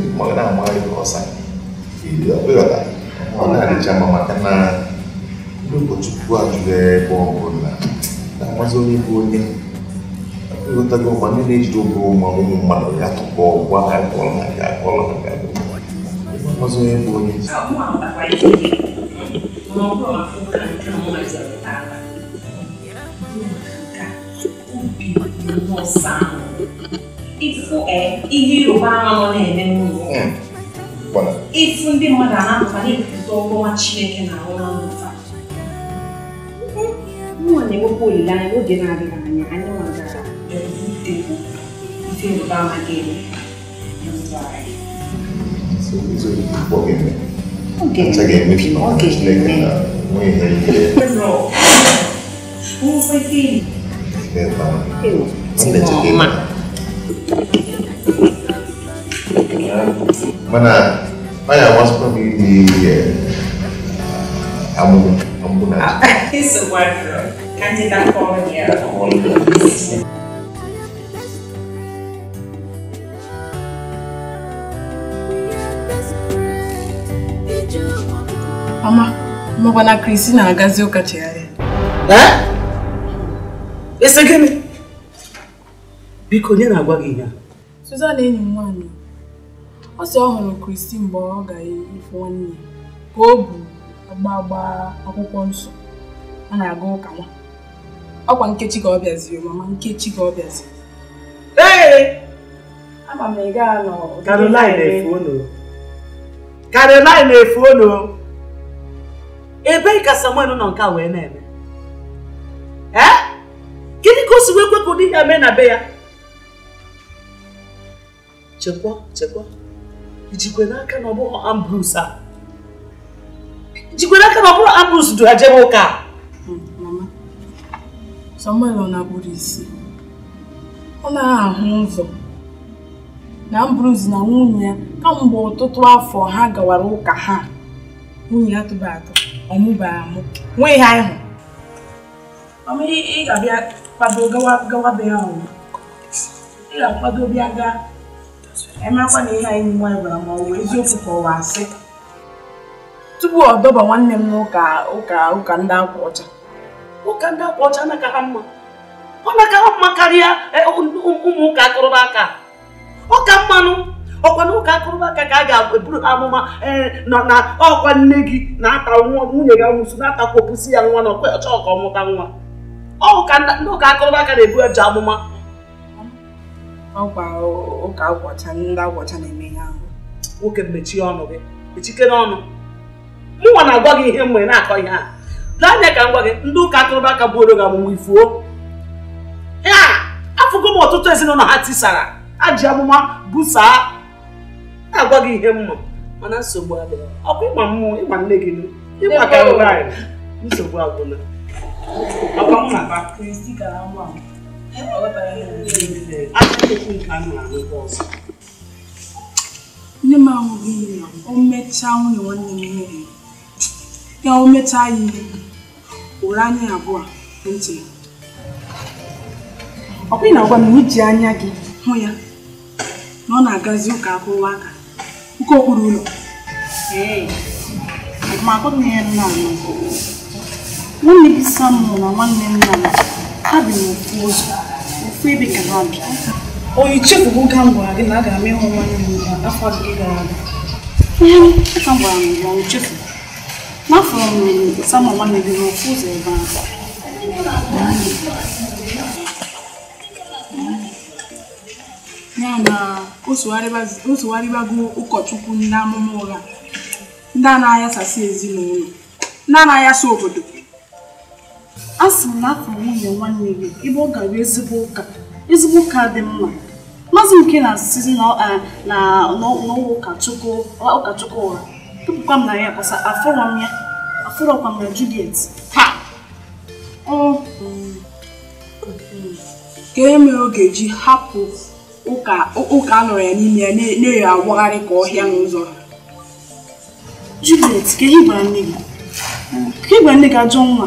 ndị mmadụ na-amagharị ọsa ọ na-adịcha mma maka na ndị ụkọchukwu ajụrụ ebe ọ bụla na-amazi onye bụ onye ịghọtago ma ndị na-ejide oge ụmụ ụmụ mmadụ ya tụpụ ọgwa ha akọrọ ha ga-akọrọ ha ga-akọrọ onye bụ onye ihe ịrụba ama na-eme n'ụlọ hmm. ịfụ ndị mmadụ a na-apụta na-ekwupụta ọgọma Chineke na-arụ na mmụta nwa na-ewepụ olileanya n'oge na-adịghị anya anyị nwagara ife ịrụba ama ga-eme Oge When I, when I was probably the uh, ambulance. ambulance. it's a wardrobe. Can't you not call me a Mama, mọkwa na Kristina na-agazi ụka chegharịa. Ee? Eh? Ese gịnị? Biko, onye na-agwa gị ihe a? enyi m Asị ọ hụrụ Kristi mgbe ọ ga-efe nwanne ya ka o bu agba agba akwụkwọ nsọ a na-aga ụka nwa ọkwa nkechi ka ọ bịaziri mama nkechi ka ọ bịaziri ee ama m ị gaa nọ Caroline na Caroline efuonu ebe ka Samuel nọ nke a wee na-eme ee gịnị ka o si wee kwepụ di ya mee na be ya chekwa chekwa ijikwe n'aka na ọ bụghị Ambrose a jikwe n'aka na ọ bụrụ Ambrose duru ajebe ụka hmm, Samuel ọ na-abụrụ isi ọ na-ahụ ụzọ na Ambrose na nwunye ya kamgbe ọtụtụ afọ ha gawara ụka ha nwunye ya tụba atọ ọmụba amụ nwee ihe anyị hụ ị ga-abịa kwado be ya ọnwụ ị ga-akwado bịa gaa emeekwa na ihe anyị nwa gwara ma ọ bụ asị tupu ọ dọba nwanne m n'ụka ụka ụka ndị akwa ọcha ụka ndị akwa ọcha anaka ha mma ọ naka ha mma karịa e, ụmụ ụka akụrụba aka ọka mmanụ ọkwa na ụka akụrụba aka ka a ga-eburu amụma e, na ọkwa nne gị na-ata nwa nwunye gị nwụsụ na-atakwa opusi ya nwa na ọkwa ọcha ọka ọmụta nwa ọụka ndị ụka akụrụba aka na-ebu eji amụma ọkwa ụka agwọcha ndị agwọcha na-eme ihe ahụ nwoke mechie ọnụ gị mechikere ọnụ mụnwa na-agwa gị ihe mgbe na-akọ ihe a lee anya ka m gwa gị ndị ụka akụrụba aka buoro gị amụmụ ifuo ya afụgo m ọtụtụ ezinụlọ ha tisara ha ji amụma busaa na-agwa gị ihe mma mana nsogbu adịghị ọ bụ ịgba mmụọ ịgba nne gị ịgba ka nsogbu agwụla nne m ahụghị ihe ya o mechaa nwunye nwanne m ihe ya o mechaa ya ihe ụra anya abụọ ntị ọ bụghị na agwa m na iji anya gị hụ ya na ọ na-agazi ụka akụwa aka nke okpuru ụlọ nwunye gị Samuel na nwanne nna m ha bi n'ofu ụzọ ibi ka ha onye chefuo oge m gwara gị na a ga-ama ịhụ nwanne m afọ gị gara aga ihe aka m gwara m gwa m chefu n'afọ m ruru sama nwanne gị n'ofu ụzọ ebe ahụ ya na o sogharịbago ụkọchukwu ndị amụma ụgha ndị a anaghị asasị ezinụlọ ndị a anaghị asa obodo a sị m na afọ nwunye nwanne gị ebe ọ gara ezigbo ụka ezigbo ụka dị mma maazị nke na-asịzi n'ụlọ e, ụkachukwu ụra tụpụkwa m na ya kpasa afọrọ m ya afọrọkwa m na Juliet ka mm, e oge ji hapụ ụka a nọrọ ya n'ime ya na eyo awagharị ka ọhịa n'ụzọ Juliet ka ihe gwara nne gị ajọ nwa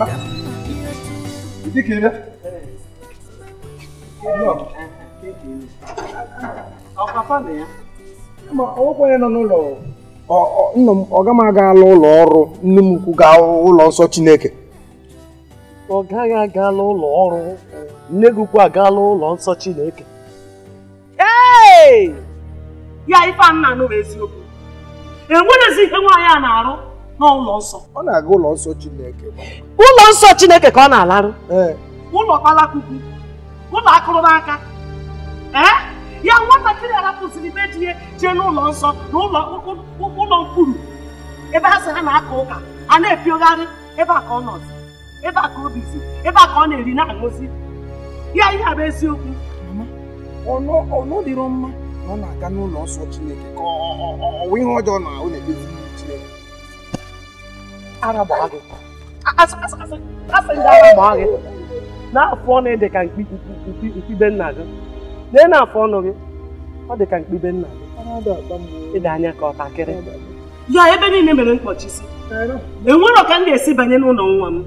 mama. Ikikere. ọkwa onye nọ n'ụlọ nna m ọ gama agaala ụlọ ọrụ nne m ukwu gaa ụlọ nsọ Chineke ọ gaghị aga agaala ụlọ ọrụ nne gị ukwu agaala ụlọ nsọ Chineke ee ya ife a nna anụ eziokwu enwerezi ihe nwaanyị a na-arụ n'ụlọ nsọ ọ na-aga ụlọ nsọ Chineke ụlọ nsọ Chineke ka ọ na-alarụ ụlọ kpalakwukwu ụlọ akụrụ n'aka ya nwatakịrị arapụsịrị imeji ihe jee n'ụlọ nsọ na ụlọ mkpuru ebe ha sị ha na-aka ụka a na-epiogharị ebe a ka ọ nọzi ebe a ka obi si ebe a ka ọ na-eri na-aṅụzi ya ihe a bụ eziokwu ọnụ dịrọ mma na ọ na-aga n'ụlọ nsọ Chineke ka ọ ihe ọjọọ na ọ na-emezi ara gbaa gị asị ndị ara gbaa n'afọ na ịdị ka mkpibe nna gị na na-afọ ọnụ gị ọ dị ka mkpibe nna gị ịdị anya ka ọtakịrị ya ebe niile mere mkpọchi enwere ka ndị esi banye n'ụlọ nwa m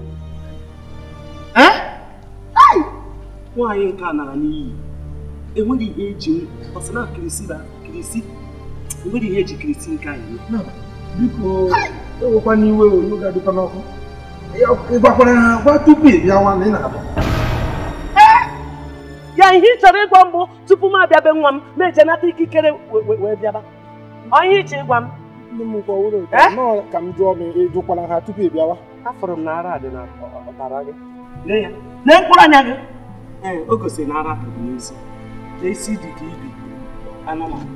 nwaanyị a nara n'iyi ihe eji kirisi kirisi eji kirisi ewekwa n'iwe onyonyo ga-adịkwa n'ọkụ ịgwakwara ha gwa tupu ị bịa nwa na ị na-abịa ya ihe ị chọrọ ịgwa mbụ tupu m abịabe nwa m na-ejenata ikikere wee bịaba onye iche ịgwa m ndị m gwa wuru ka m jụọ m ịjụkwara ha tupu ị bịawa afụrụ m na ara dị na ọtara gị lee mkpụrụ anya gị ee o gosiri na ara pụrụ n'isi isi dị ka ibi anụmanụ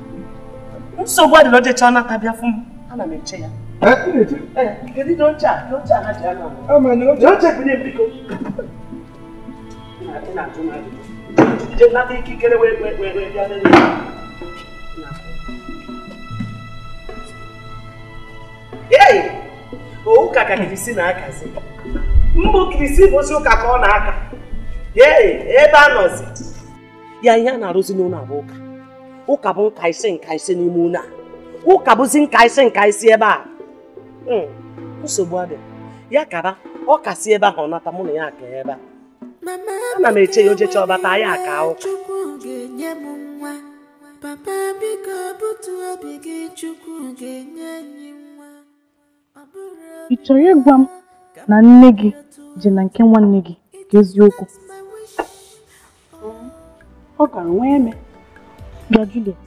nsogbu adịrọ jechaa nata bịa fụ m ana m eche ya Eh? Eh, Kedu na dọcha ah, a na na wee Ee! Ụka ka Kirisi na-akazi. Mbụ Kirisi bụzi ụka ka ọ na-aka. Ee! Ebe a nọzi. Ya ihe na-arụzi n'ụlọ abụ ụka. Ụka bụ nka ise n'ime ụlọ Ụka bụzi nka ise ebe a. Mm. nsogbu adị ya kaba ọ kasị ebe ahụ nata mụ na ya aka ebe a ana m eche ya ojecha ọbata ya aka ahụ ị chọrọ ịgwa m na nne gị ji na nke nwanne gị ka eziokwu ọ gara nwa eme bịa Juliet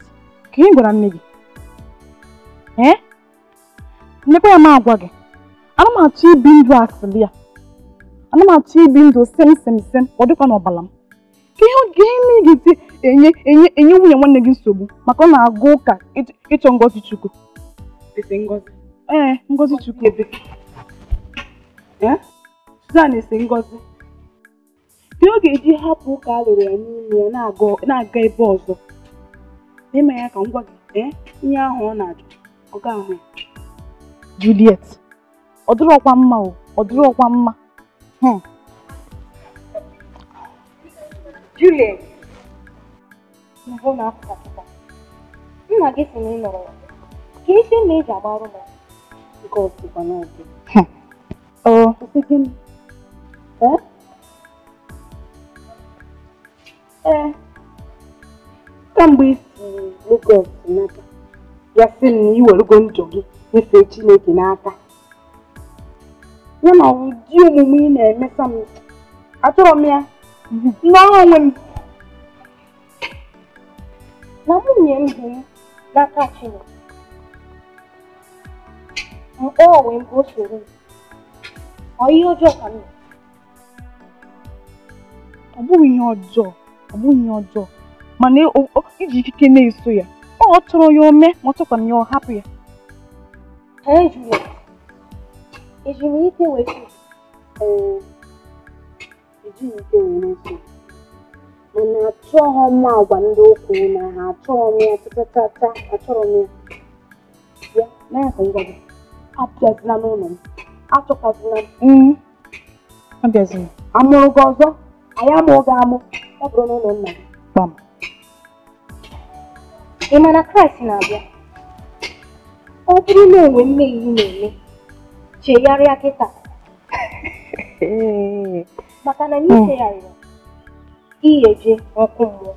ka ị gwara nne gị ee mmepe ya m agwa gị ana m achọ ibi ndụ asịrị ya ana m achọ ibi ndụ sem sem sem ọ dịkwa n'ọbala m ka ihe oge ime ị enye enye enye nwunye nwanne gị nsogbu maka ọ na-agụ ụka ịchọ ngọzi chukwu ee ngọzi chukwu ebe Suzan esi ngọzi dị ọ ga-eji hapụ ụka alụrụ ya n'ime ya na-aga ebe ọzọ n'ime ya ka ngwa gị ee ihe ahụ ọ na-ajụ ọ ga ahụ ya Juliet ọ dịrọkwa mma o ọ dịrọkwa mma hmm. Juliet nna gị sị na ị nọrọ ya ka esi ma eji agbarụ ya nke ọsịkwa n'ọdị ọ sị gịnị ee ee kamgbe i isi Lagos nata ya sị m na iwerego ndụ gị nyefee Chineke n'aka ya na ụdị omume ị na-emesa m achọrọ m ya n'ọrụ onwe m na nwunye m dị m n'aka Chineke mkpọọ onwe m ka o soro m ọ ihe ọjọọ ka m ọ bụghị ihe ọjọọ ọ bụghị ihe ọjọọ mana iji ikike na-eso ya ọ chọrọ ya ome ma ọ chọkwa ya ọ hapụ ya Ee Juliet, eji m ike weta ee na-eso mana achọghọ m agwa ndị okwu na ha achọghọ m ya tatata achọrọ m ya ya ngwa gị abịazila n'ụlọ m achọkwazila m abịazila amụrụ gị ọzọ anyị amụrụ gị amụ ọ bụrụ n'ụlọ nna gị ị Kraịst na-abịa ọdịna enwe mmehie na-eme chegharịa kịta maka na n'ichegharịa iyeje ọkụ mmụọ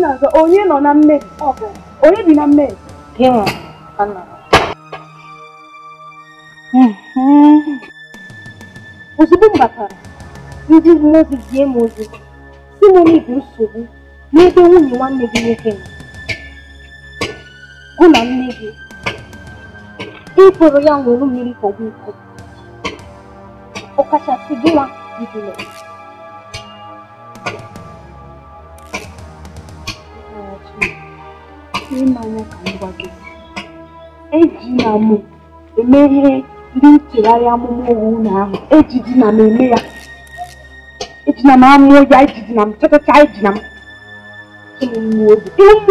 na-azọ onye nọ na mmehie ọbụla onye bi na mmehie gị nwa ana ozugbo m batara ndị mmụọ ozi zie m ozi si m n'ibi nsogbu n'ebe nwunye nwanne gị nwoke nọ Gulen Negi. Il provvediamo volumi di pubblico. O caccia seguima di quello. Ịmanya ka ngwa gị. Ejila m eme ihe ndị nchegharị amụma owu ụlọ ya. Ejina m amụọ ya, ejidina m chọchacha, ejina m. Ịmụ mmụọ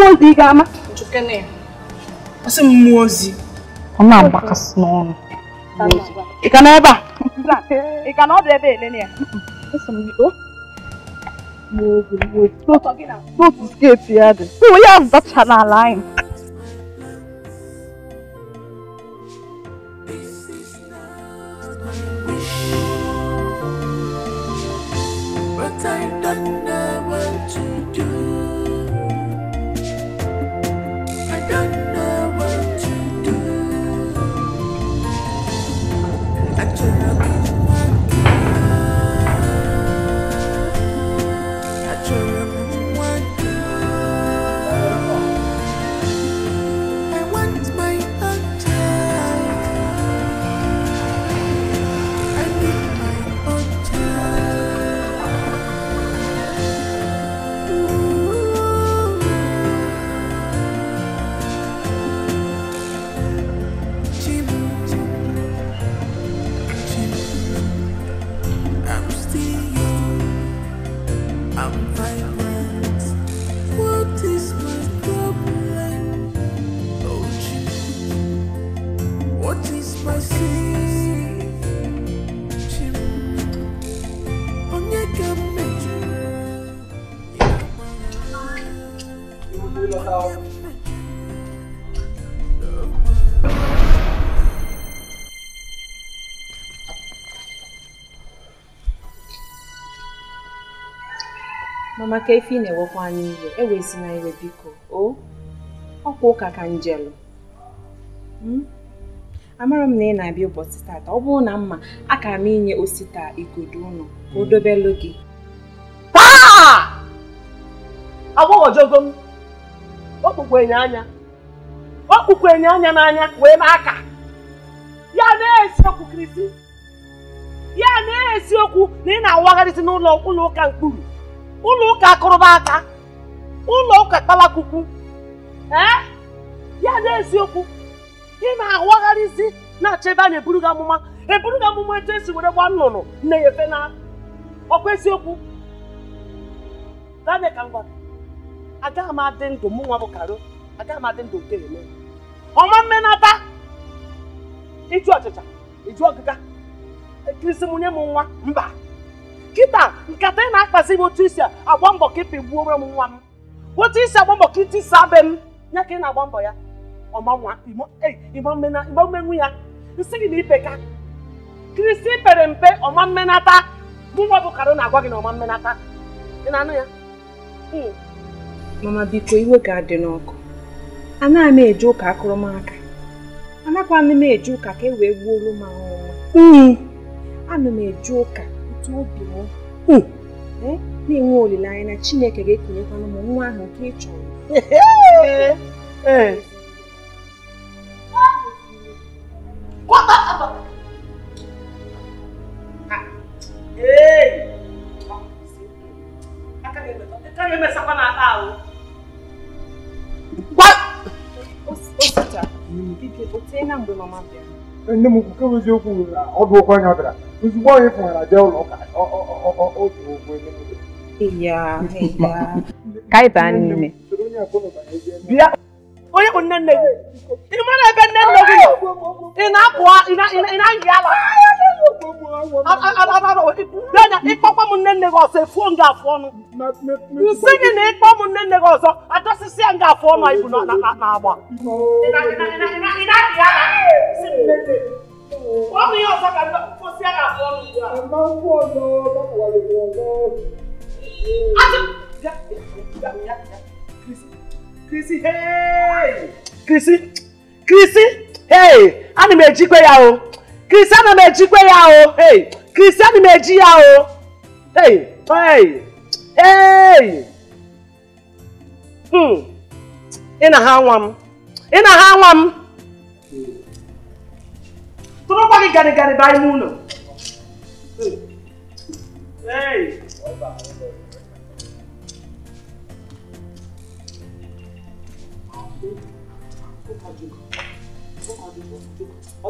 ozi ị ga-ama. Njukene ya. ọ sị m mmụọ ozi ọ na-agbakasị n'ọnụ ị ka na ebe a ị ka na ọ bụ ebe elele ya n'otu sketi ya dị ụmụ ya zachala ala anyị maka efe ị na-ewekwa anyị iwe ewezi na iwe biko o ọkwa ụka ka njelụ hmm? amara m na ị na-abịa ụbọchị tata ọ bụrụ na mma a ka m inye osita igodo ụnụ ka o hmm. dobelụ gị agbọghọjogo m okpukwenye anya okpukwenye anya n'anya wee n'aka ya na-esi okwu krisi ya na-esi okwu na ị na-awagharịsị n'ụlọ ụlọ ụka mkpụrụ ụlọ ụka akụrụba aka ụlọ ụka kpalakwukwu ee ya n'eziokwu ị na-awagharịzi na-achọ ebe a na-eburu gị amụma eburu gị amụma etu esi were gba nnụnụ nne ya na ọkwa eziokwu gane ka ngwa agaghị m adị ndụ mụ nwa bụ karo agaghị m adị ndụ nke ọma mmenata ịjụ ọchịcha ịjụ ọgịga ekirisi m nye nwa mba kịta nkata ị na-akpazi m otu isi agba mbọ ka m nwa m otu isi agba mbọ ka iti m ya ka ị na-agba mbọ ya ọmanwa igbammenu ya nsị gị na ipeka kristi pere mpe ọma mmenata mụnwa bụ karo na-agwa gị na ọma mmenata ị na-anụ ya hmm. mama biko iwe ga-adị n'ọkụ anaghị m eje ụka ka e wee hmm. ana m eje ụka Eh? na-enwe olileanya na Chineke ga-etinyekwa ụmụ nwa ahụ nke ị chọrọ o site na mgbe mama bịara nne m nke bụ eziokwu ọdụ okwu anya bịara ozugbo onye pụnara jee ụlọ ụka otu okwu ya ka anyị baa n'ime bịa onye bụ nne nne gị ị mara ebe nne nne gị nọ ị na-apụ ị na-ayị ala ịkpọkwa m nne nne gị ọzọ efuo m afụ ọnụ nsị gị na ịkpọ m nne nne gị ọzọ adọsịsị ya afụ ọnụ ibu na-agba ọ bụ ihe ọzọ ka mkposi a ga-afụ ọnụ ugbu a. Akwụkwọ ọzọ, akwụkwọ ọzọ. Chrissy hey Chrissy Chrissy hey ana m eji kwe ya o Chrissy ana m eji kwe ya o hey Chrissy ana m eji ya o hey hey hey hmm ị na ha nwa m ị na ha nwa m tụrụkwa gị garịgarị baa ime ụlọ hey.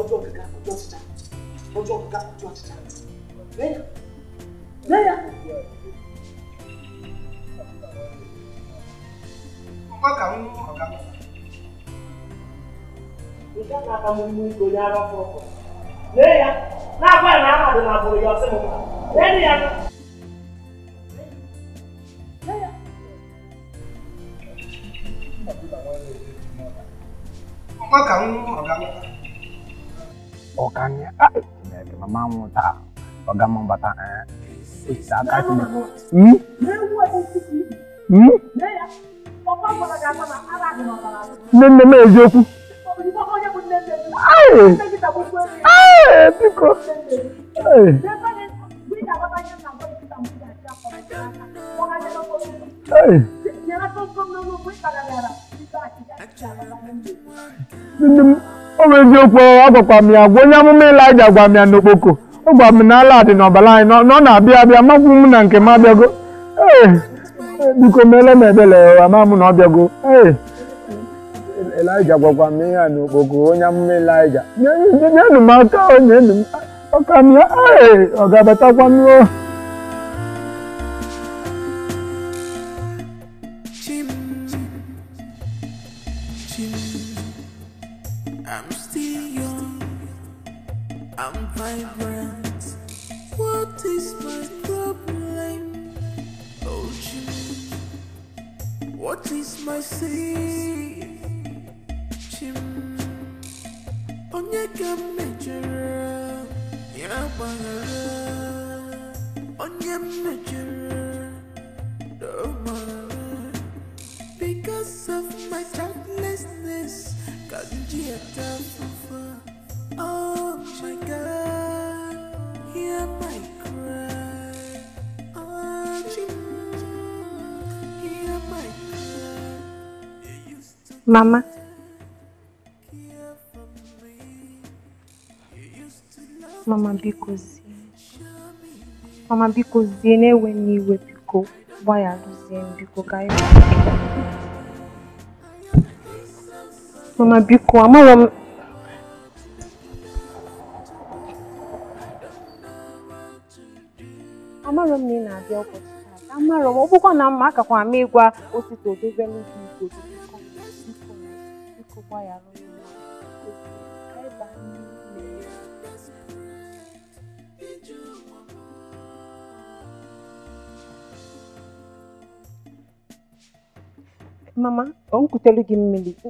ọjọ́ gíga ọjọ́ títa ọjọ́ gíga ọjọ́ títa lẹ́yà lẹ́yà. ọgbà kàwọn ọgá bàbá. ìjà náà kà mú mú ìgbòlì ara fún ọkọ lẹ́yà náà bá ìrìn àmàdé náà bọ̀rọ̀ yọ sí mi lẹ́yìn yẹn. lẹ́yà. ọgbà kàwọn ọgá bàbá ɔkanyɛ a ɛbɛbi mama ho ta ɔga mo bata ɛɛ ɛsa aka ti mi mi ne ne ma eziokwu ayi ayi biko ayi. Hey. o bụ eziokwu ọ m ya gwa onye amụma Ịlaịja gwa m ya n'okpoko ọ gwa m na ala dị n'ọbara anyị na ọ na-abịa abịa makwụ m na nke m abịago ee biko meele m ebele ama m na ọ bịago ee Ịlaịja gwakwa m ihe n'okpoko onye amụma Ịlaịja nyenụ m aka nyenụ m aka m ya ee ọ ga-abatakwa m What is my safe? Chim Onyeka mejere Ya bagara Onye mejere Doma Because of my selflessness Kanji atafufa Oh my God Hear yeah, my Mamá. Mama biko Mama na-ewe n'iwe biko gba ya biko ka anyị Mama biko amarọ m na ị na-abịa ụbọchị taa amarọ m ọ na mma ka kwa ịgwa osisi odozie n'ubi bụkwa ya mama o nkwutere gị mmiri ka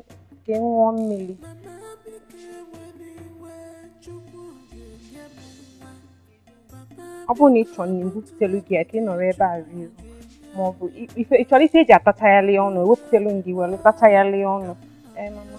ị ṅụọ mmiri ọ bụrụ na ị chọrọ nri butere gị ya ka ị nọrọ ebe a rie maọbụ ị chọrọ isi eji atachagharị ọnụ ewepụtara gị were tachagharị ọnụ ee mama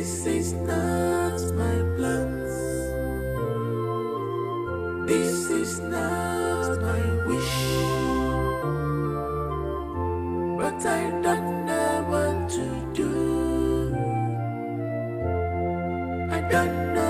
This is not my plans. This is not my wish. But I don't know what to do. I don't know.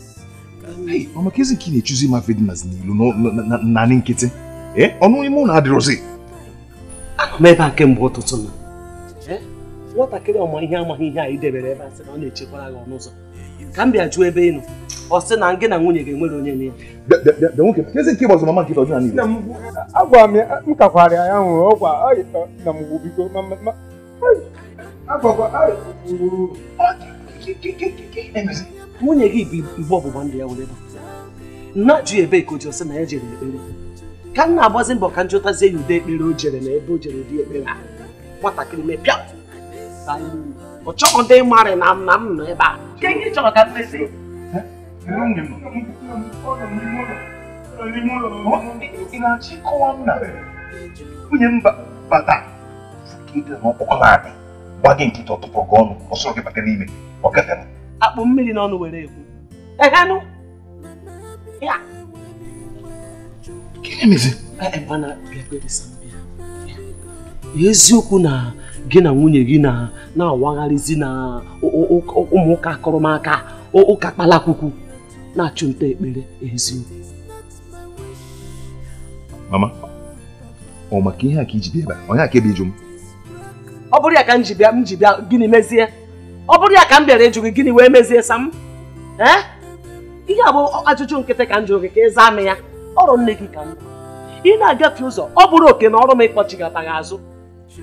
ọ makaezi nke ị na-echuzi ịmafe dị na n'ilu naanị nkịtị ọnụ ime ụlọ adịrọzi anọ m ebe a kemgbe ụtụtụ na nwatakịrị ọma ihe amaghị ihe a ị debere ebe a sị na ọ na-echekwara gị ọnụ ụzọ ka m bịa jụọ ebe ị nọ ọ sị na gị na nwunye ga-enwere onye na ya agwara m ya m kakwara ya nwụrụ ọgwa na mgbu biko agwakwa nwunye gị bụ igbe ọgbụgba ndụ ya were najụ ebe ka o ji ọsị na ya jere ekpere ka nna na-agbazi mbọ ka m jụtazie ya ụdị ekpere o jere na ebe o jere dị ekpere a nwatakịrị mepịa ọ chọghị ndị marị na m na m nọ ebe a chọrọ ka mmesi nwunye m bata gị nkịta ọtụpụ gị ọnụ ọsọ gị bata n'ime ọ gafere akpụ mmiri n'ọnụ were ekwu ehenụ ya gịnị ebe mana eziokwu na gị na nwunye gị na na-awagharịzi na ụmụụka akụrụmaka ụka kpalakwukwu na-achụ nta ekpere eziokwu mama ọ maka ihe a ka iji bịa ebe a onye aka ebe iju m ọ bụrụ ya ka m ji bịa m ji bịa gịnị mezie ọ bụrụ ya ka m bịara ịjụ gị gịnị wee mezie sam eh? ihe a bụ ajụjụ nkịtị ka m jụrụ gị ka ịza amị m ya ọrụ nne gị ka m ị na-agafe ụzọ ọ bụrụ oke na ọrụ m ịkpọchigata gị azụ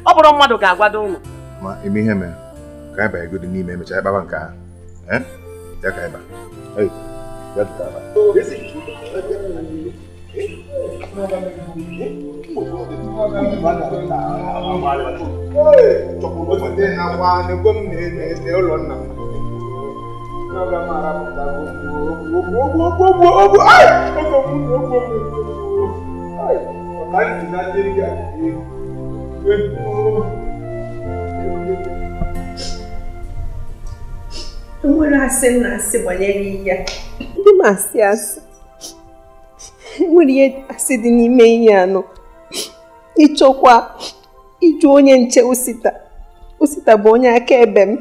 ọ bụrụ mmadụ ga-agwado ụlọ ma eme ihe mere ka anyị banyegodi n'ime emechaa ịbaba nke ahụ eh? ya ka anyị ee ya aba. na kwani komnene lelo na nakamara kutakuogogogogogo enwere asị na asị banyere ihe ndị ma asị asị nwere ihe asị dị n'ime ihe anọ ịchọkwa ịjụ onye nche osita osita bụ onye akaebe m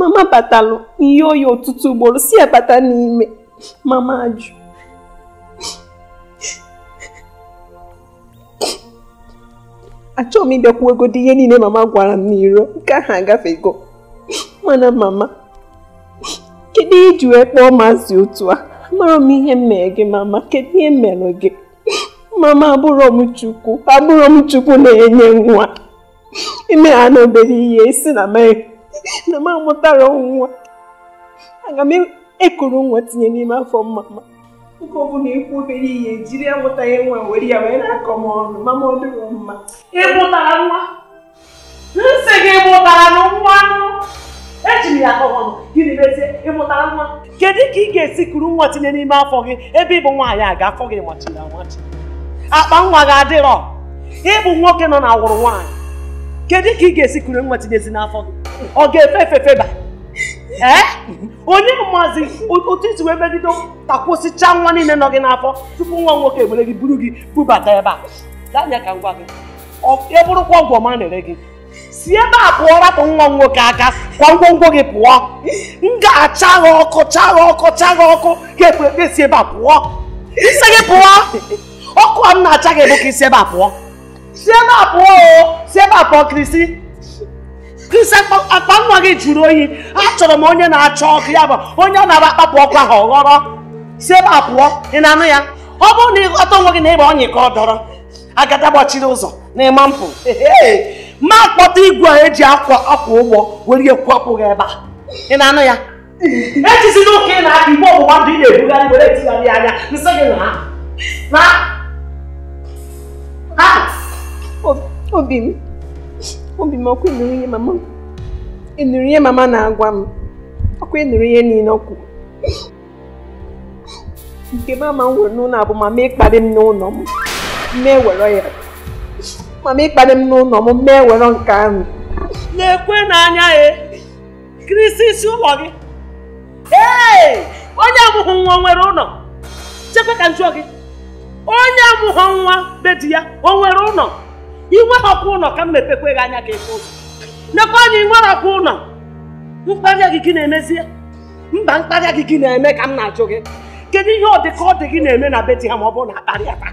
mama batalụ n'ihe oyi ọtụtụ ugboro si ya bata n'ime mama ajụ achọghị m ịbịakwu egodi ihe niile mama gwara m n'iro nke ahụ agafego mana mama kedu ihe iji wee kpọọ maazị otu a Amụrụ m ihe m mere gị mama kedu ihe mere gị mama abụrụ m chukwu abụrụ m chukwu na-enye nwa ime ha na obere ihe isi na na m amụtara nwa aga m ekuru nwa tinye n'ime afọ mama nke ọbụla ekwu obere ihe jiri amụtaghị nwa were ya wee na-akọ m ọnụ mama ọ dịrọ mma ịmụtara nwa nsị gị mụtara nwa eji ya ka m gịnị mezie ịmụtara nwa kedu ka ị ga-esi kuru nwa tinye n'ime afọ gị ebe ịbụ nwaanyị a ga afọ gị machiri amachi akpa nwa gị adịrọ ịbụ nwoke nọ na awụrụ nwaanyị kedu ka ị ga-esi kuru nwa tinyezi n'afọ gị ọ ga-efe efefe ba onye maazị otu isi wee megide takwụsịcha nwa niile nọ gị n'afọ tupu nwa nwoke ebere gị buru gị bubata ebe a danya ka ngwa gị ọ e bụrụkwa ọgwụ ọma na-ere gị si ebe a pụọ rapụ nwa nwoke aka kwa ngwongwo gị pụọ m ga-acha ha ọkụ chaa ọkụ chaa ọkụ ka ekpe si ebe a pụọ isi gị pụọ ọkụ a m na-acha gị bụ ka isi ebe a pụọ si ebe a pụọ o si ebe a pụọ krisi krisi akpa nwa gị jụrụ oyi achọrọ m onye na-acha ọkụ ya bụ onye ọ na-aba akpapụ ọkụ ahụ ọghọrọ si ebe a pụọ ị na-anụ ya ọ bụrụ na ịghọta onwe gị na ịgba ọnyị ka ọ dọrọ agada gbachiri ụzọ na ịma mpụ na-akpọta igwe a eji akwa akwa ụgbọ were ekwapụ gị ebe a ị na-anụ ya ejizina ụka ị na-aka igbe ọgbụgba ndụ ị na-ebugharị were etigharị anya nsị gị na na obi m obi m ọkụ ịnụrụ ihe mama ịnụrụ ihe mama na-agwa m ọkụ ịnụrụ ihe niile ọkụ kwuru nke mama m nwere n'ụlọ abụ ma mee kparị m n'ụlọ m mee were ya mama ịkparị m n'ụlọ m mee were nke ahụ na-ekwe n'anya ya e, kirisi isi ụlọ gị ee onye amụghị nwa nwere ụlọ chekwa ka njụọ gị onye amụghị nwa be di ya o nwere ụlọ inweghị ụlọ ka m mepekwe gị anya ka efe ụzọ nekwa anya inwere ọkwa ụlọ mkparịa gị gị na-emezie mba mkparịa gị gị na-eme ka m na-ajụ gị kedu ihe ọ dị ọ dị gị na-eme na be di ha ma ọ bụrụ na akparịa taa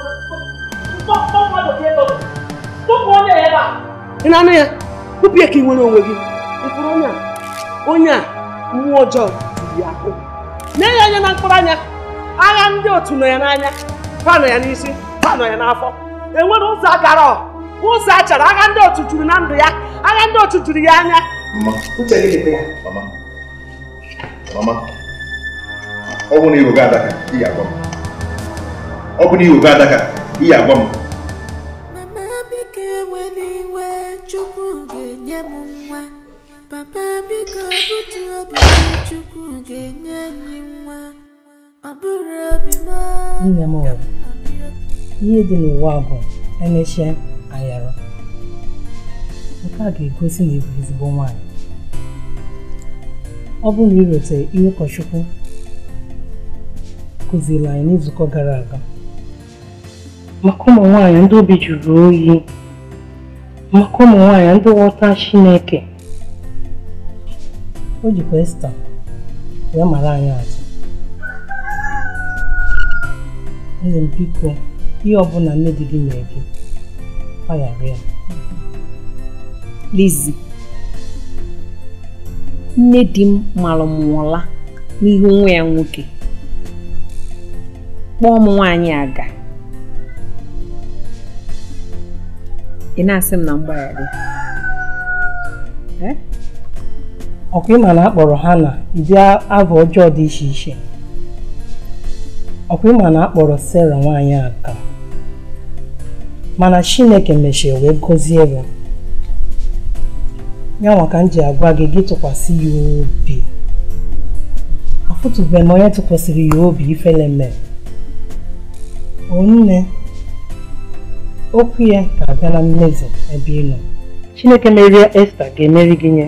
ị na-anụ ya kpụpụ ya ka ị nwere onwe gị ịfụrụ onye a onye a mmụọ ọjọọ ya akụ mee ya anya na mkpụrụ anya agha ndị otu nọ ya n'anya ha nọ ya n'isi ha nọ ya n'afọ enwere ụzọ agara ụzọ a chọrọ agha ndị otu juru na ndụ ya agha ndị otu juru ya anya ọ bụ na iwe adaka ihe agwa m ka biko butu obi chukwu ga-enye anyị nwa ọ bụrụ obi m nne m nwere ihe dị n'ụwa bụ emechie ayara. nke a ga-egosi na ịbụ ezigbo nwaanyị ọ bụrụ na irete ihe ụkọchukwu kụziri anyị n'izukọ gara aga maka ụmụ nwaanyị ndị obi juru oyi maka ụmụ nwaanyị ndị ghọta Chineke o jikwa esta wee mara anyị atụ eze m biko ihe ọbụla nne di gị mere gị gbaghara ya lizi nne di m mara n'ihu nwa ya nwoke kpọọ m nwaanyị aga ị na-asị m na mgbaghara ọkwa ịma na akpọrọ ha na ụdị abụ ọjọọ dị iche iche ọkwa ịma na akpọrọ sara nwaanyị aka mana Chineke mechie wee gọzie ya ya ka m ji agwa gị gị tụkwasị ya obi afụtụbeghị m onye tụkwasịrị ya obi ifele mere onne okwu ya ga-abịa na mmezu ebe ị nọ Chineke merie Esta ga-emeri gị nye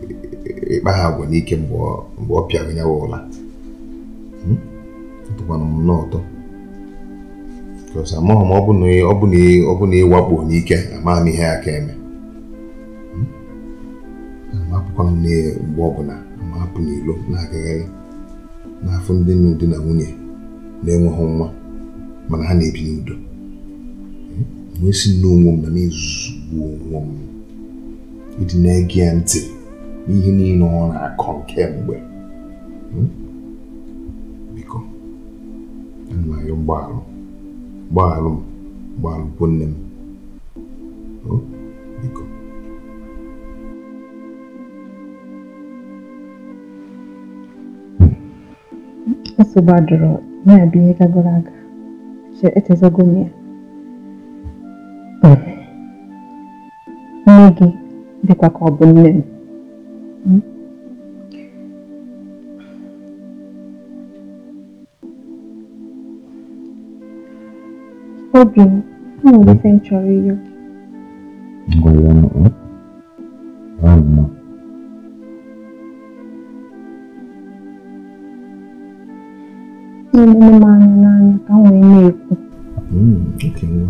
ịkpa ha agwa n'ike mgbe ọ pịara ya ụla hmm? tụkwana m nnọọ ụtọ amaghị m ọ bụ na ịwakpo n'ike amaa m ihe ya ka eme hmm? amapụkwa m mgbe ọbụla ma hapụ n'ilo na-agagharị n'afọ ndị nnu di na nwunye na-enweghị nwa mana ha na-ebi n'udo hmm? wee si n'onwe m na m ezugbu onwe m ịdị na-ege ya ntị n'ihe niile ọ na-akọ nke kemgbe hmm? biko ayọ mgbaalụ gbaalụ m gbaalụkwu nne m hmm? biko asụ gbadoro na-abụ ihe gagoro aga echezogo m ya hmm. nne gị dịkwa ka ọ bụ nne m Hmm? Obin, di mgbe ya n'ụlọ. Ọ mma. N'egbu m anya n'anya ka m wee na-ekwu. Okenwa,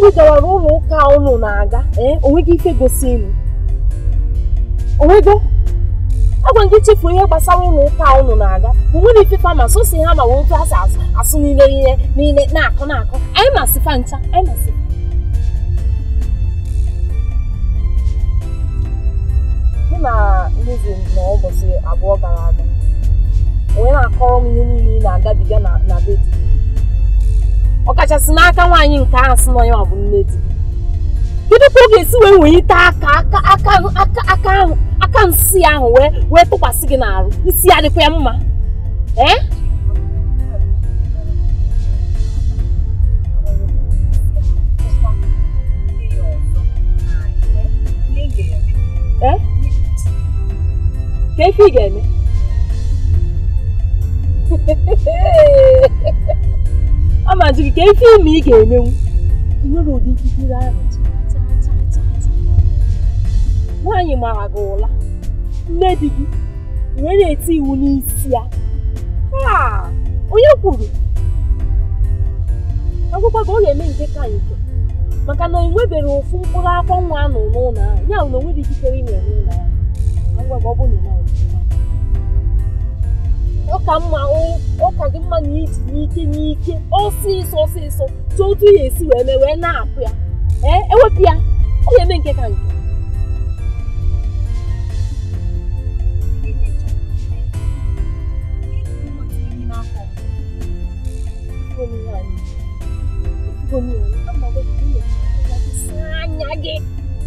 ndị gawara ụlọ ụka unu na-aga eh, onweghị ike gosi elu onwego agwa gị chefuo ihe gbasara ụlọ ụka unu na-aga onwere ife fama so ha ma wee asị asụ nile niile na-akụ na-akụ anyị masịfa ncha anyị abụọ gara aga onye na-akọrọ m ihe na-agabiga na ọkachasị n'aka nwaanyị nke ahụ sị na onye ọ bụ nne di kedu ka ọ ga-esi wee wenyite aka aka aka aka ahụ aka nsị ahụ wee wee tụkwasị gị n'arụ isi ya dịkwa ya mma ee eh? eh? ka ife ị ga-eme ọ gị ka ife ime ị ga-emenwu nwere ụdị ikikere ahụ nwaanyị mara gị ụla nne di gị wee na-eti iwu n'isi ya onye kwuru akwụkwọ ka ọ ga-eme nke ka nke maka na o nwebere ofu mkpụrụ akwọ nwa nọ n'ụlọ ahụ ya na o nwere ikikere ime n'ụlọ ahụ agwa ọ bụ na ọka mma ọka gị mma na iji n'ike n'ike ọsịsọ ọsịsọ tụ otu ya esi wee mee wee na-apụ ya ewepụ e ya ọ ga-eme nke ka nke anya gị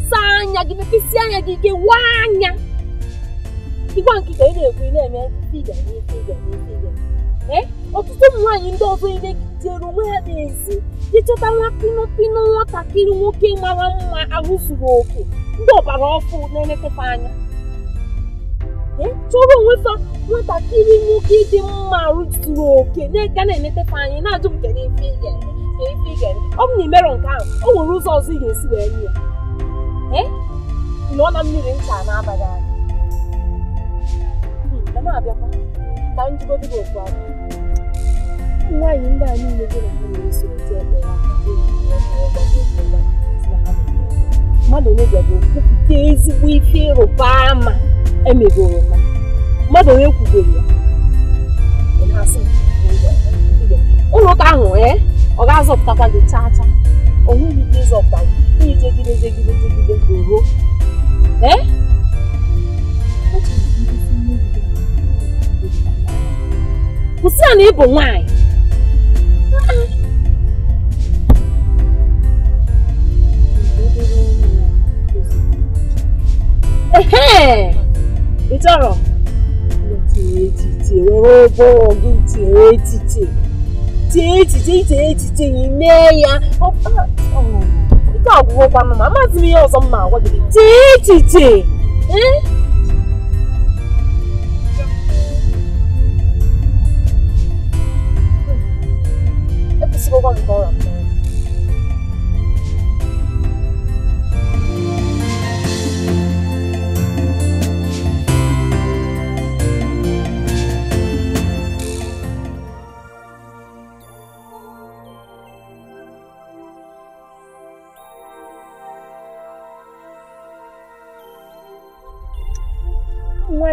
saa anya gị mepesịa anya gị ike waa anya ịgwa nkịta ị na-ekwu ị na-eme iga n'ife iga n'ife iga ee ọtụtụ ụmụ nwaanyị ndị ọzọ ị na-ejere onwe ha n'ezi ịchọta nwa pinopino nwatakịrị nwoke mara mma ahụ zuru oke ndị ọbara ọkụ na-elekọta anya Ee, chọrọ onwe fa nwatakịrị nwoke dị mma arụ zuru oke na-ega na-eletata anya na-ajụ nke n'ife iga n'ife iga ọ bụ na imerọ nke ahụ o nwere ụzọ ọzọ ị ga-esi wee nye ya ee nọ na mmiri ncha na-abaghị anya na m abịakwa ka m gị okwu aka nwaanyị ndị a niile gị na ha na mmadụ onye bịago kwupụta ezigbo ife ịrụba ama emegoro oroma mmadụ onye kwugoro ya ụlọ ahụ ọ ga-azọpụtakwa gị chaa chaa ọ nweghị ike ịzọpụta gị jegide kwụsị ya na ị bụ nwaanyị ehe ịtọrọ tie ya ike ọgwụgwọ kwanụ ma amaghịzi m ihe ọzọ m agwa gị tie ee 那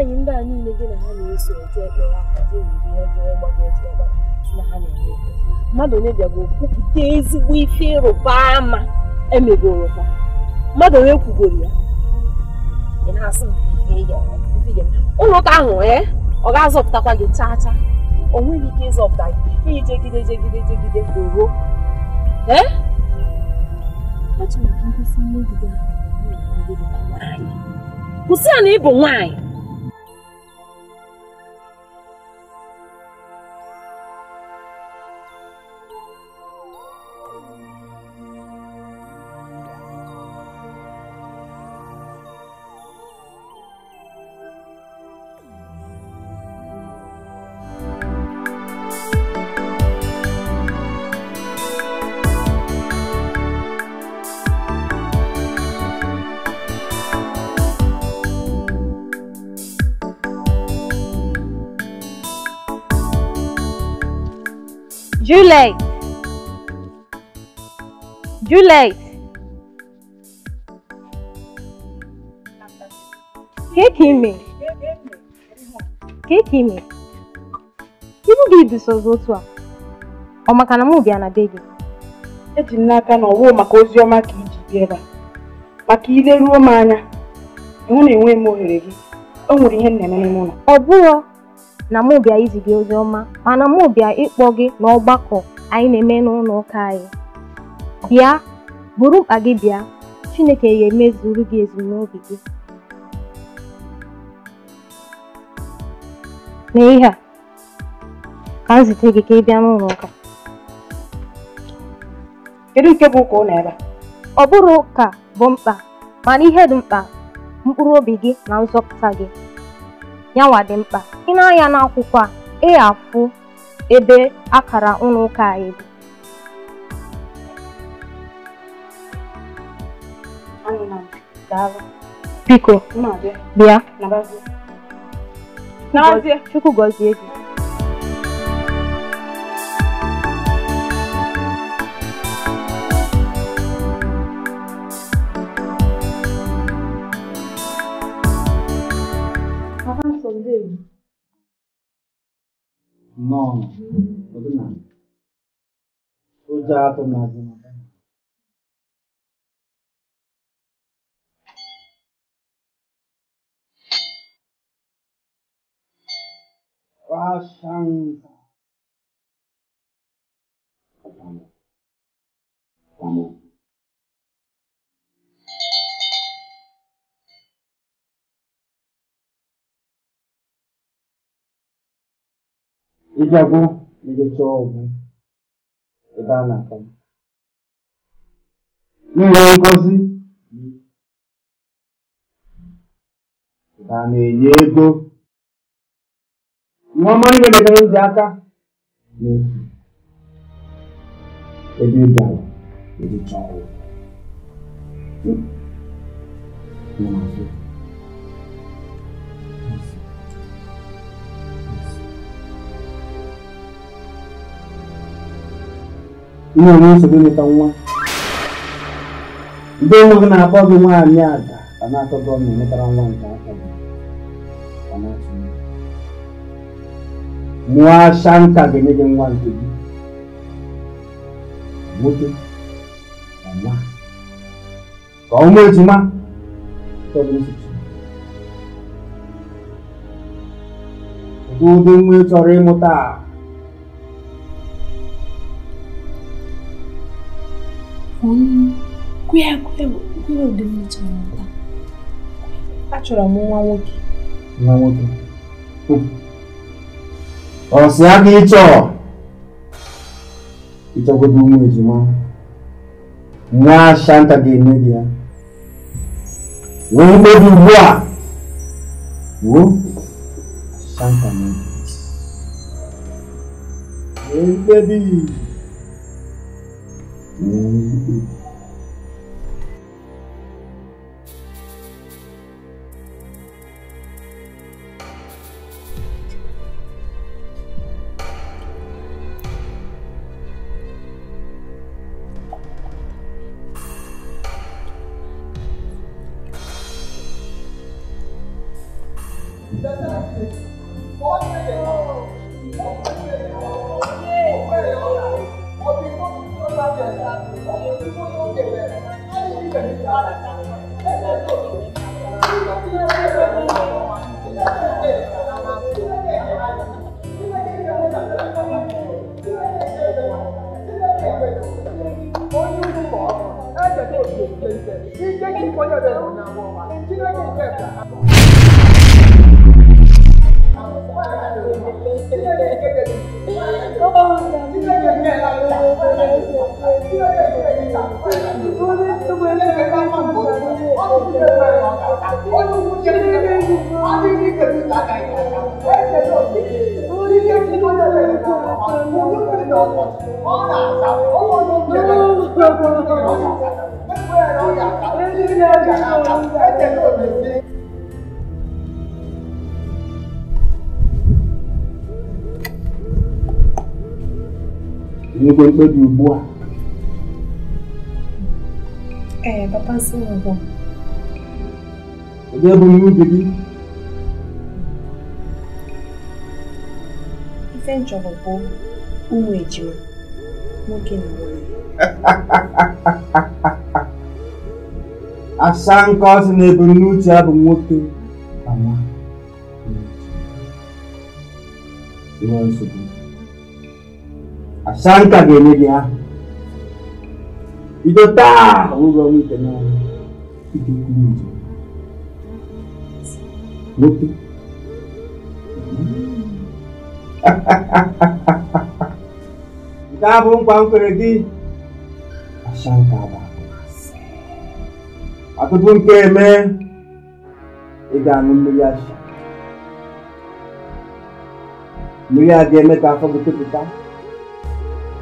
应该你那个那里水在，没有干净一点，因为没干净的过来，是哪里的？mmadụ onye bịago kwupụta ezigbo ife ịrụba ama emegoro ha mmadụ onye kwugoro ya ụlọ ụka ahụ ee eh, ọ ga-azọpụtakwa gị chaa chaa o nweghị ike ịzọpụta gị iyi jegide jegide jegide oro ee eh? kwụsị ya na ị bụ nwaanyị Juliet. Juliet. Kekime. Kekime. Ibu gị bisozi otu a. Ọ maka na mụ bịa na be gị? Eji m n'aka na ọwụ maka ozi ọma ka iji bịa ebe a. Maka ileruo m anya, ịhụ na enweghị m ohere gị. O nwere ihe m na-eme n'ime ụlọ. Ọ bụrụ na mụ bịa izi ozi ọma mana mụ bịa ịkpọ gị n'ọgbakọ anyị na-eme n'ụlọ ụka anyị bịa buru mkpa gị bịa Chineke ga-emezuru gị ezumnobi gị n'ihe a ka m zite gị ka ị bịa n'ụlọ ụka kedu nke bụ ụka ụlọ ebe ọ bụrụ ụka bụ mkpa mana ihe dị mkpa mkpụrụ obi gị na nzọpụta gị yanwa dị mkpa i nee anya n'akwụkwọ a ị afụ ebe akara ụlọ ụka anyị dị biko bịa chukwu gọzie gị Non. Odnan. Konja tan azman. Wa shanta. Panon. Panon. ị bịago ndị chọọ ọgwụ ebe a na-ata ihe ngosi a na-enye ego nneọma ihe metere ndị aka na-efu ebe ị bịara chọọ ọgwụ ihe onye nsogbu nweta nwa ndị nwa gị na-akpọ gị nwaanyị ada ka na-atọ gọọmenti nwetara nwa nke afọ gị mụọ ashanka ga-enye gị nwa nke gị nwoke na nwa ka ọ mụ ejima ụdị nwa ị chọrọ ịmụta achọrọ m nwa nwoke nwa nwoke si aga ịchọ ịchọgodo ụmụ ejima nwa shanta ga-eme gị ya wee mkpebi ugbu a wuo shanta na wee mkpebi um, mkpebi ugbu a ee papa nsị mbụ onye bụ ihe ubi gị ife nchọrọ bụ ụmụ ejima nwoke na nwaanyị asa nke ọsị na ebumnuche ya bụ nwoke ma nsogbu Santa Genelia. Idota, uga wite na iti kunjo. Muti. Kita pong pangkeregi. Asyang kaba. Ako pong keme. Iganong niya siya. Niya geme ka pagkutupitan.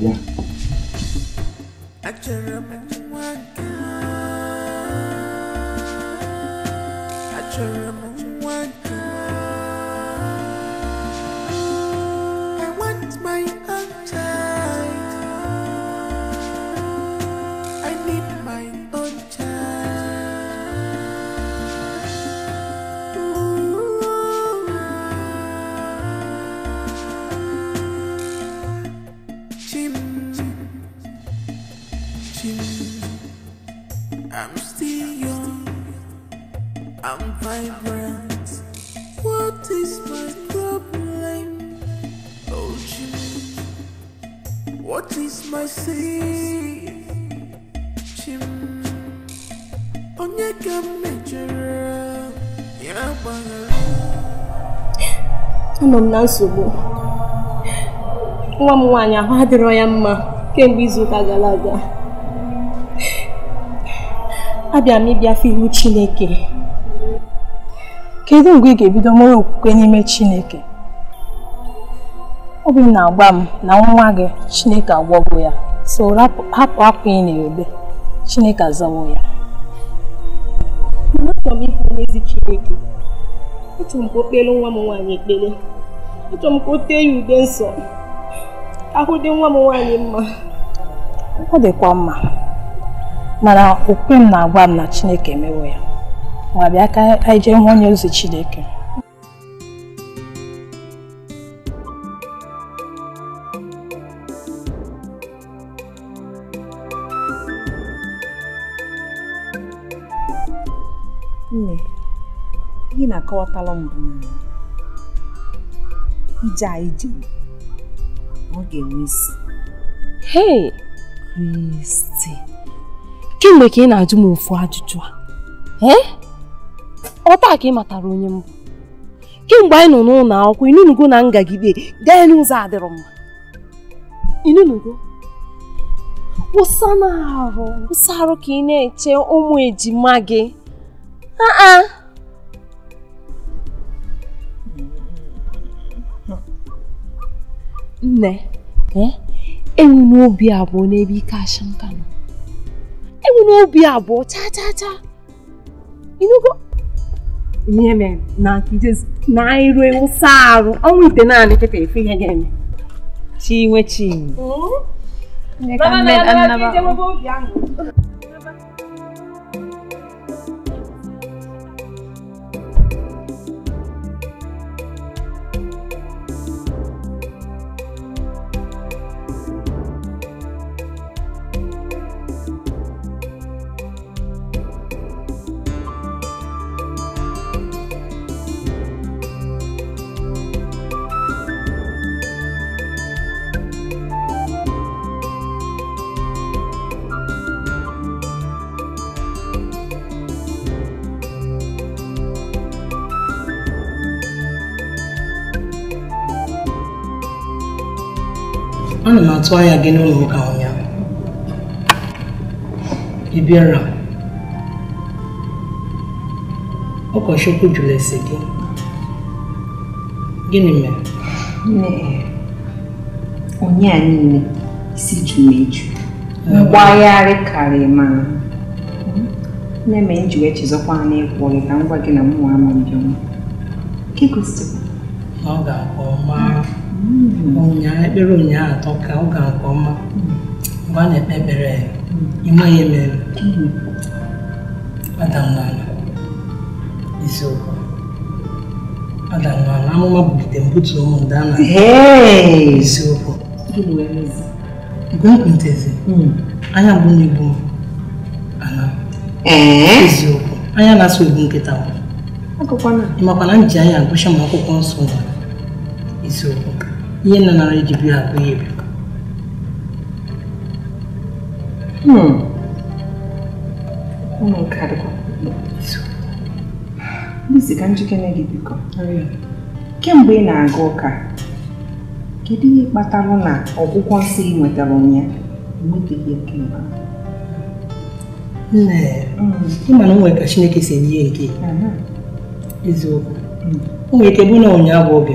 banget ya acara memuatkan anọ m na nsogbu nwa m nwaanyị ahụ adịrọ ya mma kemgbe izuụka gara aga abịa m ịbịafe iwu Chineke kedu mgbe ị ga-ebido nwere okwukwe n'ime Chineke obi m na-agba m na nwa gị Chineke agwọgo ya so hapụ akwa ị na-ebe Chineke azawo ya achọrọ m ịbụ n'ezi Chineke otu mgbe okpere nwa m nwaanyị ekpere achọrọ m ka o tee ya ude nsọ ahụ dị nwa m nwaanyị mma ọ dịkwa mma mana okpukpe m na-agwa m na Chineke emewo ya ma bịa ka anyị jee hụ onye ozi Chineke nne ị na-akọwatala mbụ ije anyị jere ọ ga-enwe isi hei kristi kemgbe ka ị na-ajụ m ofu ajụjụ a eh? ọ taa ka ị matara onye mbụ kemgbe anyị nọ n'ụlọ akwụkwọ inunugo na ngagide gaa n'ụzọ adịrọ mma inunugo kwụsa na arụ kwụsa arụ ka ị na-eche ụmụ ejima gị aa nne eh? enwe obi abụọ n'ebe ike asha nka nọ enwe obi abụọ chaa chaa inugo ihe mere na nkijezi na anyị ruo arụ ọnwa ite naanị kịta efe ihe ga-eme chinwe chinwe hmm? atụ anya gị n'ụlọ ụka ụnyaahụ ị bịara ụkọchukwu jụrụ ese gị gịnị mere onye a niile isi ju na-eju mgbagharị ah. karịrị ma na-eme nji wee chezọkwa n'ịkwụ ọrụ ka m gwa gị na mụnwa ama mbịọma ọ ga-akpọ maa ụnyaahụ ekpere ụnyaahụ atọ ka ọ ga nke ọma mgbe a na-ekpe ekpere ime ya emere adam n'ala isiokwu adam n'ala amụma bulite mbutu ụmụ ndị a hmm. na isiokwu mgbe m kwuntezi anya mgbu eh? na-egbu m ana eziokwu anya na-asụ egbu nkịta ịmakwa na m ji anya agụcha m akwụkwọ nsọ na isiokwu ihe nna nara eji bi ha bụ bi ụmụ nke adịkwa bisi ka njikere gị biko kemgbe ị na-aga ụka kedu ihe kpatara na ọgwụgwọ nsị ị nwetara ụnyaahụ enwebeghị kemgbe nne hmm. ịma na onwe ka chineke si enye ya nke eziokwu hmm. o nwere ike bụ na ụnyaahụ hmm. obi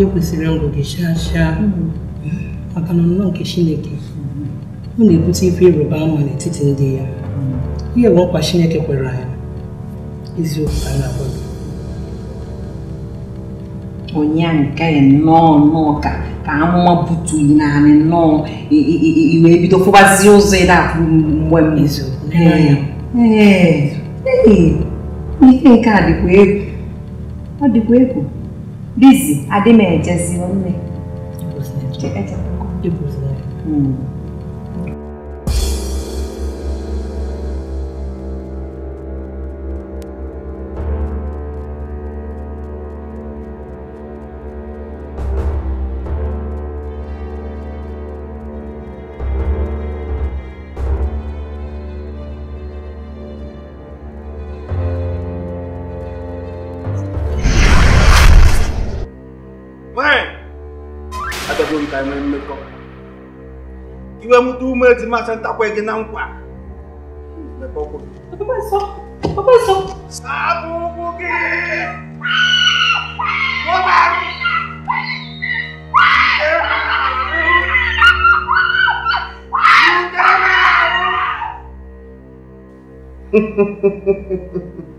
nke kwesịrị ngụ gị chaa chaa maka na nke Chineke ọ na-ebute ife ịrụba ama n'etiti ndị ya ihe bụ nkwa Chineke kwere anyị eziokwu ka na-akwado onye nnọọ nnọọ ka ka amụma butu naanị nnọọ iwe bido ụzọ ị na-apụ mgbe ihe nke a dịkwa egwu ọ dịkwa egwu bizi adị m ejezi ti máa san tako ẹgẹ náà ń pa. Bàbá sọ, bàbá sọ. Sábùkù kí wọ́n bá rí. Ha ha ha ha ha.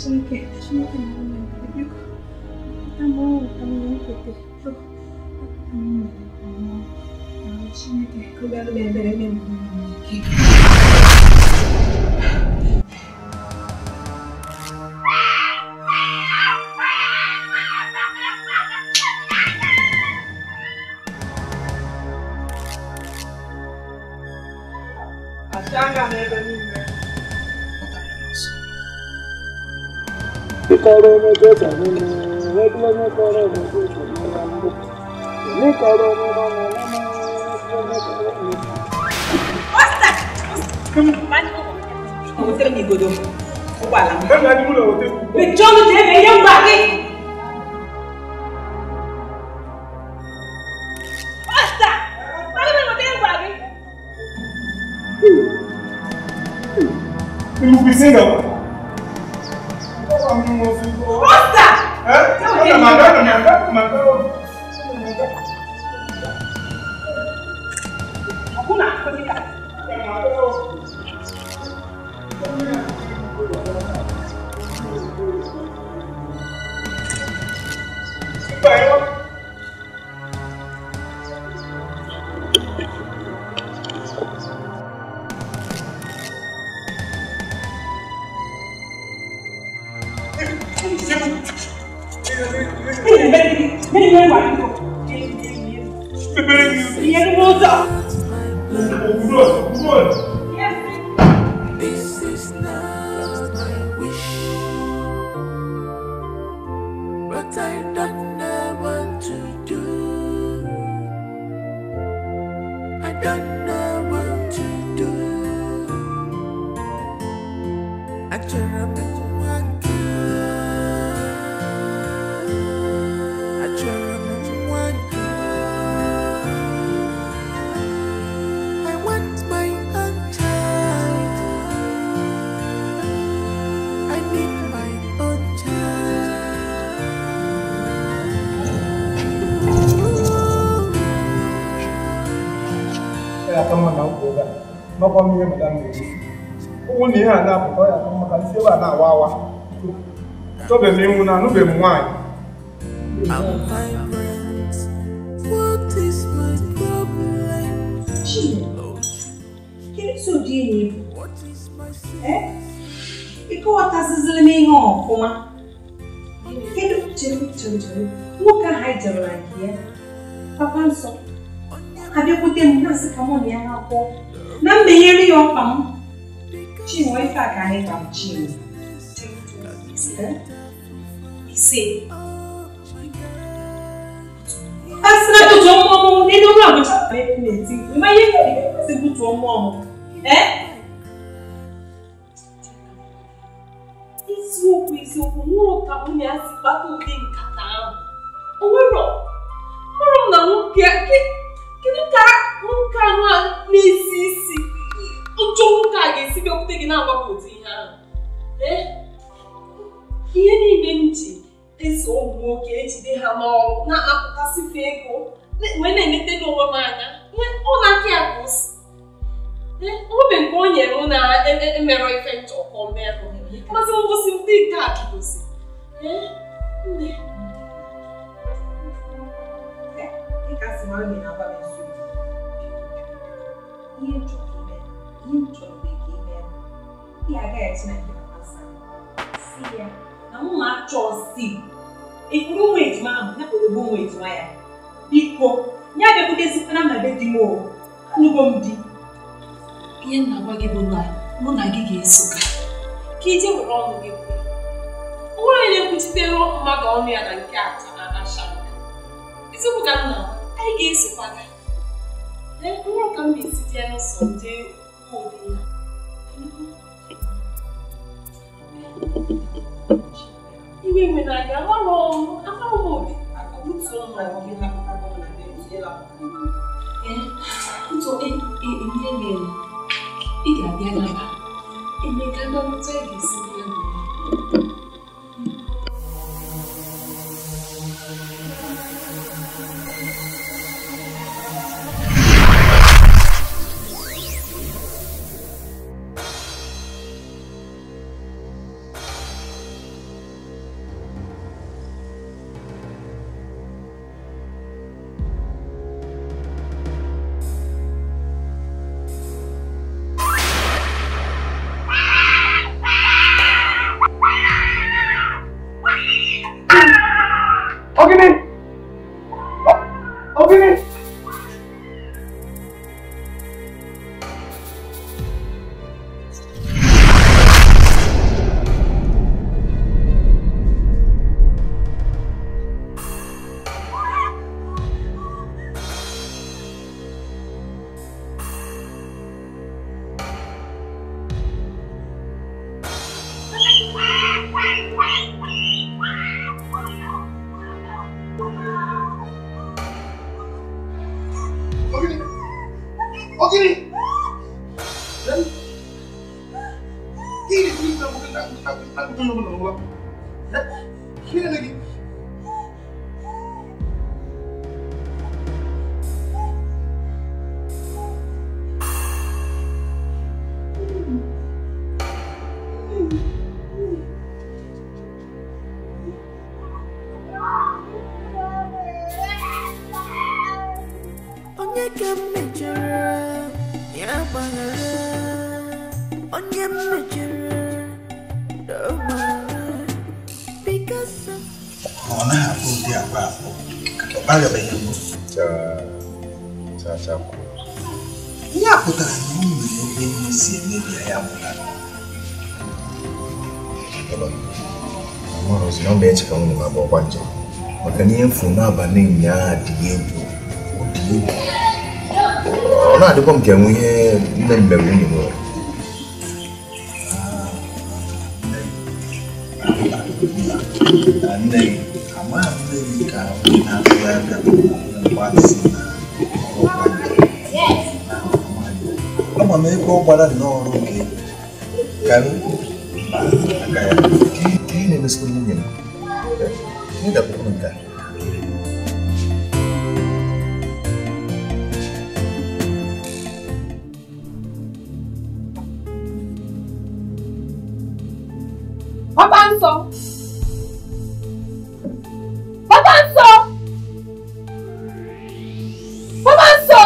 sabe o que? Deixa eu ter um momento. Tá bom, tá bom, Peter. Tá bom, tá bom. Deixa eu ter cuidado bem, bem, bem. kọrọ ọmọ nínú ẹgbẹmọ kọrọ ọmọ jọta nínú ọmọ ní kọrọ ọmọ ọmọ ọmọ ẹgbẹmọ kọrọ ọmọ. ọ̀sà ọ̀hún tẹ́lẹ̀ mi ìgbòdo ó wà bẹ́ẹ̀ ni a ti múlò ọ̀hún tẹ́lẹ̀. bẹ̀jọ́ ló dé ẹ̀yẹ́ ń gbà dé. não precisa não. kɔmi ye madame de ye que é nin é n'a é y'a é ka é b'a é wa é dɔ é min é na é bɛ é a é Quem é Dini? É? E é que é de é como? é tiro, é tiro. é raio é aqui, é? Papai é Havia é nascer é a é avó. carne partiva. Está? Sim. Asinato tó mú ọmọ nínú ọmọ àwọn ìṣàpẹ́ ìpínlẹ̀ tí ìgbìmọ̀ ayé kẹ̀lé kẹ́kẹ́ sí bùtù ọmọ ọmọ. Ẹ́ isiokwu isiokwu nwụrụ ka nwunye ya si gbata ụdị nkata ahụ. O nwero nwero na nwoke kedu ka nwoke anụ na-esi isi njọ nwoke a ga-esi bịakwute gị na-agbapụ ụdị ihe ahụ ihe niile m ji eso ụmụ nwoke ejide ha n'ọrụ na-apụtasịfe ego wee na n'onwe m anya ọ na-akị ya nke o nyere m na-emerọ e, e ife nchọkọ merụ masị ngosi ndị nke a ihe m chọrọ bụ ka ị mee ị agaghị Chineke na mmasị si ya na mma chọsi ịkpụrụ nwa ejima ahụ ya kpụrụ bụ nwa ejima ya biko ya bịakwutezitara na be di m anụgo m di ihe m na-agwa gị bụ na mụ na gị ga-eso ka ije were ọnụ gị onwere onye na-ekwuchitere mmadụ ọnụ ya na nke atọ na asha eziokwu ka nna anyị ga-esokwa gị na mkpụrụ ka m na-esite n'ụzọ ndị iwe nwe na gị agbara agbara m obi ọnụ m na gị napụta gị na gị ee ntụ ihe mere ị ga-abịa naba emeka ndọrọta ị ga-esi ọkwa maka na ihe mfu n'abalị ụnyaahụ adịghị egwu ụdị egwu ọ na-adịkwa m ka enwe ihe nne m mere nwunye nwere nne na ama m ebe ọ gbara nnọọ ọrụ gị ka América. Bàbá ń sọ. Bàbá ń sọ. Bàbá ń sọ.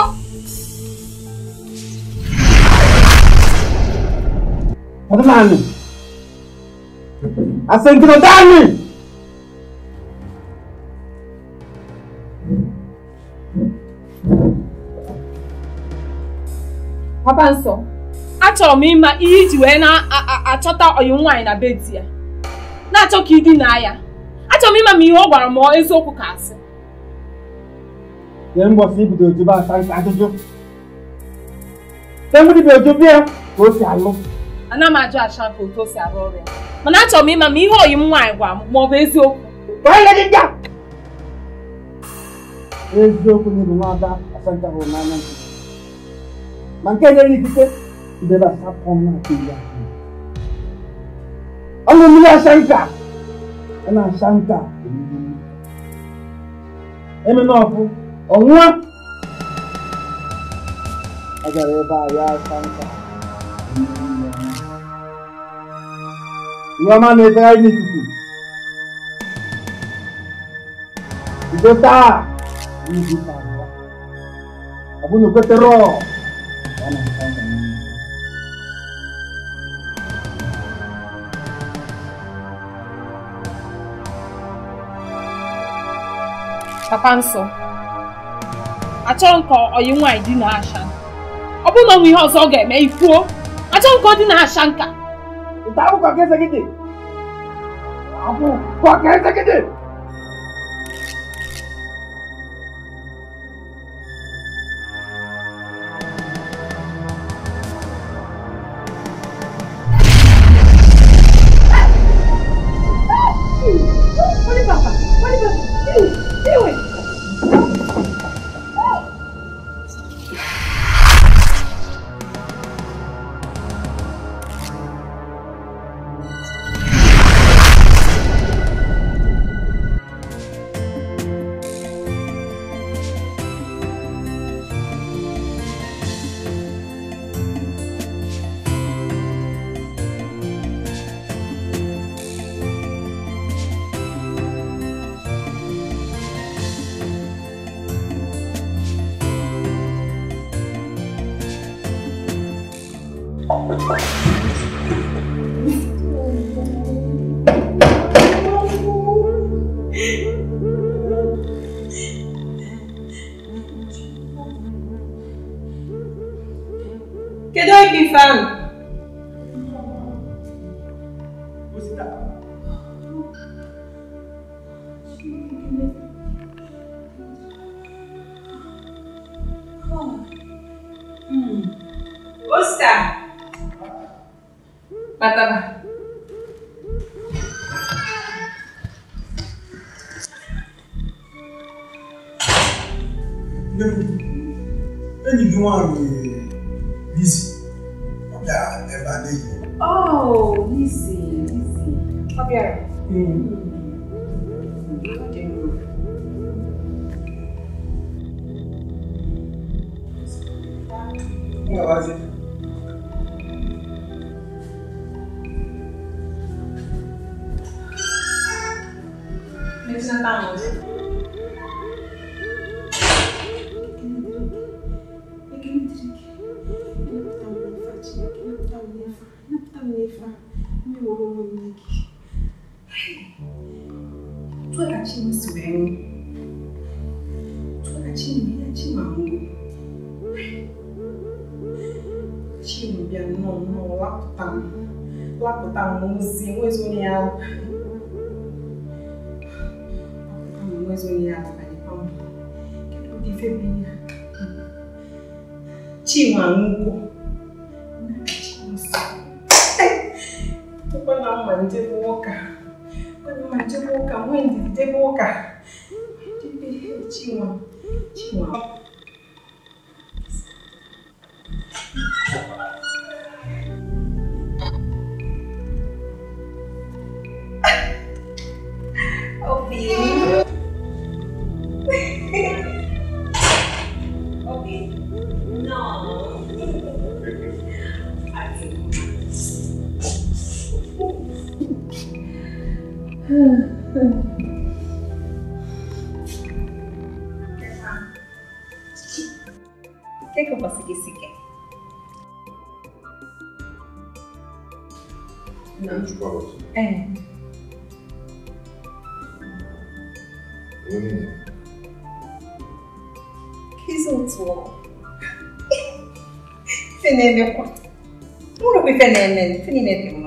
Bàbá máa papa nsọ achọrọ m ịma ihe iji wee na-achọta ọyị nwaanyị na bedi ya na-achọ ka na ya achọrọ m ịma ma ihe ọ gwara m eziokwu ka asị mbọsị ibido ojube asa nke ajụjụ temgbudi bụ ojube ya ka o si alụ ana m ajụ acha ka otu o si arụ ọrụ ya mana achọrọ m ịma ma ihe ọyị nwaanyị gwara m ma ọ bụ eziokwu ndị a! eziokwu na ịbụ nwada asanta hụrụ n'anya nke. mankenyere n'ikike ndebe asatọ m na-atụ iri ahụ ọnụ mmiri asa nka a na-asa nka emena ọkụ ọnwụa ọ gara ebe a ya asa nka ihe ọma na-efegharị n'ikuku bido taa ọ bụ na okwetere ọ papa nsọ achọ nkọ ọyị dị na asha ọ bụrụ na ọ ihe ọzọ ọ ga-eme ifuo achọ nkọ ọ dị na asha nka nwụkwọ ụkwa na mmalite bụ ụka mmalite bụ ụka nwee ndidide bụ ụka ねんねん、つにねって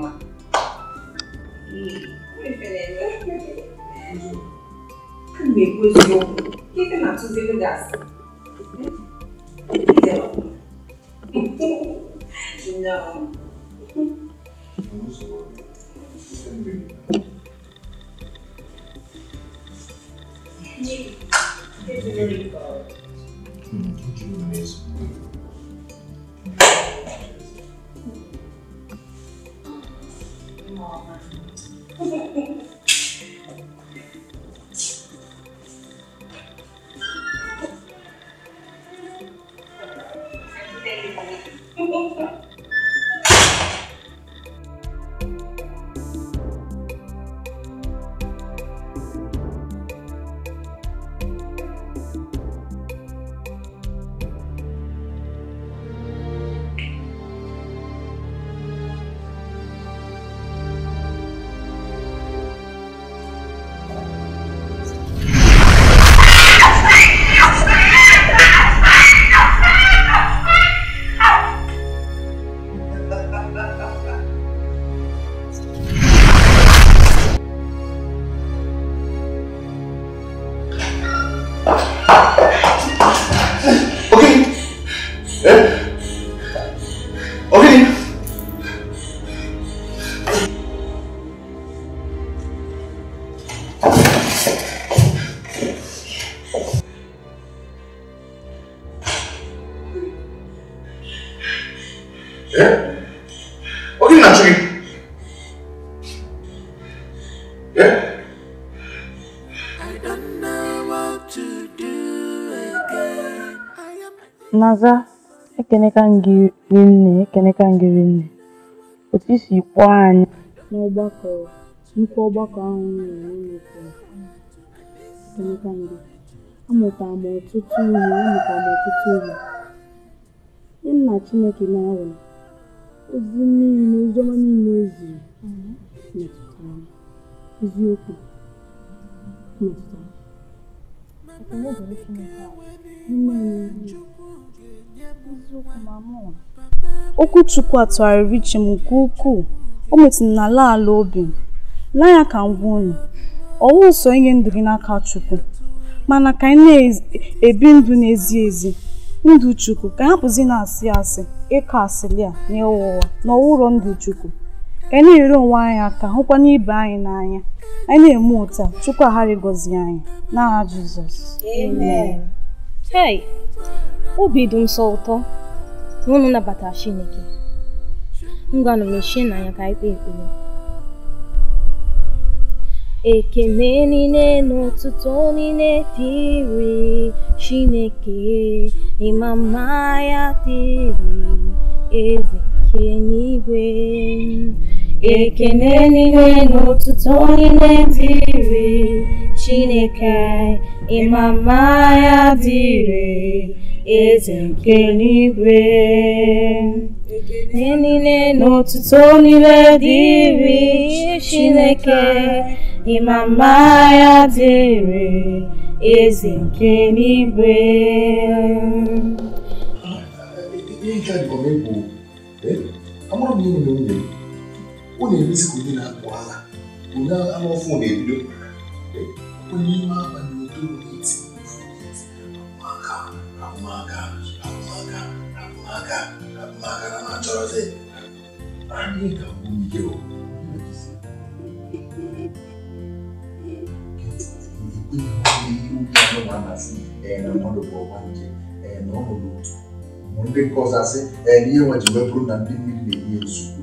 N'aza, ekeneka gị nne ekeneka gị nne otu i si kpọọ anyị n'ọgbakọ nnukwu ọgbakọ ahụ m nọ na Europe ekeneka ngị amụtara m ọtụtụ ihe amụtara m ọtụtụ ihe ihe nna Chineke na-awụrụ ozi mmiri ozi ọma niile o e ziri metụtara m eziokwu metụtara m Okwu Chukwu a tụgharịrị m nke ukwuu, o metụrụ n'ala ala obi m. N'anya ka m gwa unu, ọ wụghị inye ndụ gị n'aka Chukwu, mana ka ị na-ebi ndụ na-ezi ezi ndụ Chukwu ka ị hapụzi na-asị asị, ịkọ asịlị a na ịgha na ndụ Chukwu. Ka anyị na ere onwe anyị aka hụkwana ibe anyị n'anya. Anyị na-eme otu Chukwu aghara ịgọzi anyị. N'aha Jizọs. Amen. Hey, obi dị nsọ ụtọ unu nabatara Chineke ngwanụ shi na anya ka anyị kpee ekpere ekele niile na otuto niile dịrị Chineke ịma mma ya tiri eze nke n'igwe ekene niile n'otutu otuto niile dị chineke ịma mma ya dị eze nke n'igwe ekene niile n'otutu otuto niile dị chineke ịma mma ya dị eze nke n'igwe amụrụ m ihe nwunye ọ na-emesi ka onye na-akpụ agha onye anụ ọfụ na-ebido onye ime abalị otoro n'iti maka ahụmaka ahụmaka ahụmaka ahụmaka na na-achọrọzi anyị ga-abụ ike o ndị nke ọzọ asị na ihe nwa ji wee bụrụ na ndị mmiri na-enye nsogbu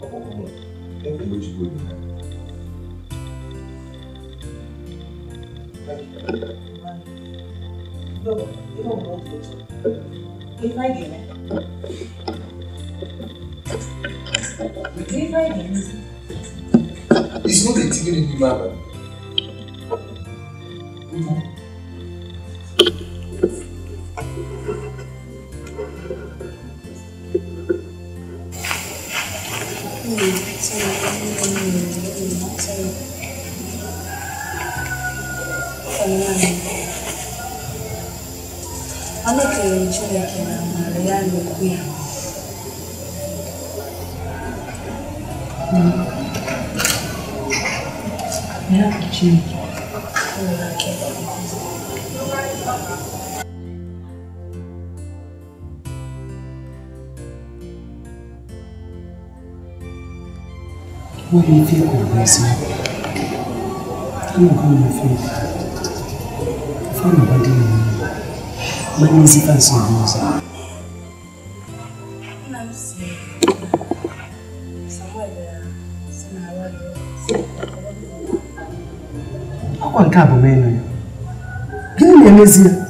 Como, muito, muito doido, né? Ele vai vir, né? Ele vai vir. It's not a thing anymore. Mm-hmm. mình sau đó What do you think of myself? I'm not going to feel that. I found nobody in me. My name is Ivan Sonos. Ọkwa nke a bụ m ịnụ ya. Gịnị na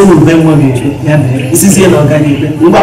si n'ube nwa m ya mere isizie na ọganibe mgba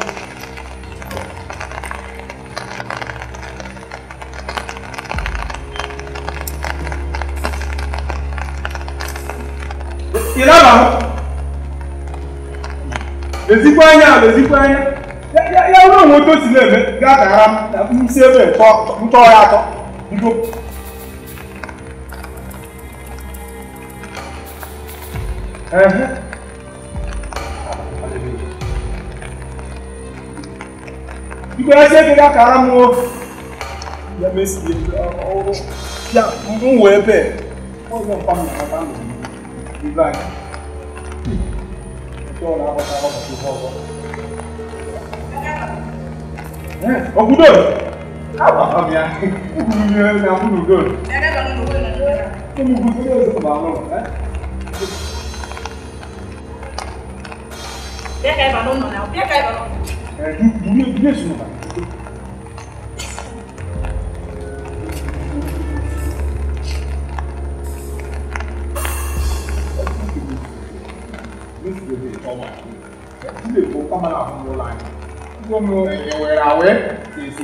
ezigbo anya ala ezigbo anya ya ruo onwe otu o si na-eme gaa gara m si ebe ntọ ya atọ bido biko ya si ebe gaa kara m o ya mesie ọrụ ya m wee bee ọzọ mkpa m na-akpata ndụ m ibe anya ọkùdó àbàmì àti ìgbìyànjú ẹni àbúrúdó tó mú gbogbo ẹgbẹ́ ìsọ̀bà náà ẹ́ Dẹ́ka ìbànú nọ̀ náà, dẹ́ka ìbànú. Ẹ̀ẹ́dú, dúró, dúró, dúró, dúró. ụkọ mana n'ụlọ anyị nwere esi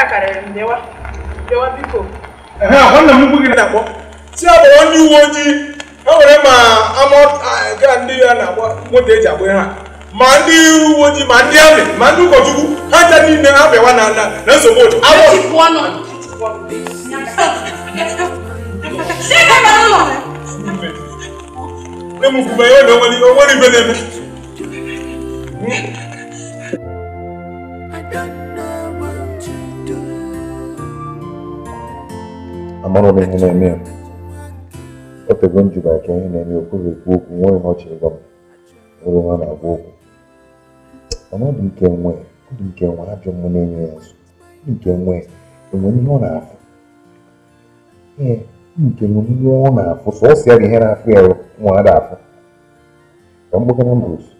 a karịrị ndewa ndewa biko nwanne m gị na-akpọ si ya kpọrọ ndị uwe ojii e nwere ma ama ndị ya na-agba nwoke eji agba ha ma ndị uwe ojii ma ndị amị ma ndị ụkọchukwu ha ncha niile ha na na nsogbu otu awọ onwere ibe na-eme amarụghị ihe na-eme ya otego njikwa nke ihe na-eme ya okwuru ekwu okwu nweghị ihe ọ chịrị gwa m nwere ihe na-agwa okwu mana ọ dị nke nwe ọ dị nke nwe ajọ mmụ na-enye ya nso dị nke nwe enwere ihe ọ na-afụ ee nke nwere ihe ọ na-afụ sọsọ ya ihe na-afụ ya nwa ada afụ ka mgbụgara mbụ otu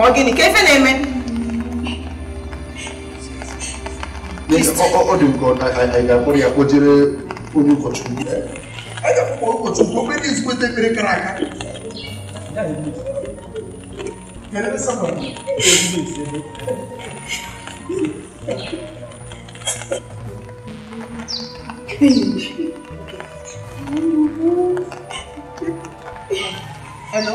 Ọ gịnị ka ife na-eme? Ọ dị nke anyị ga-akpọrọ ya kpojere onye ụkọchukwu. Anyị ga-akpọrọ ụkọchukwu obere ezigbo ndị mere kara aka. Hello?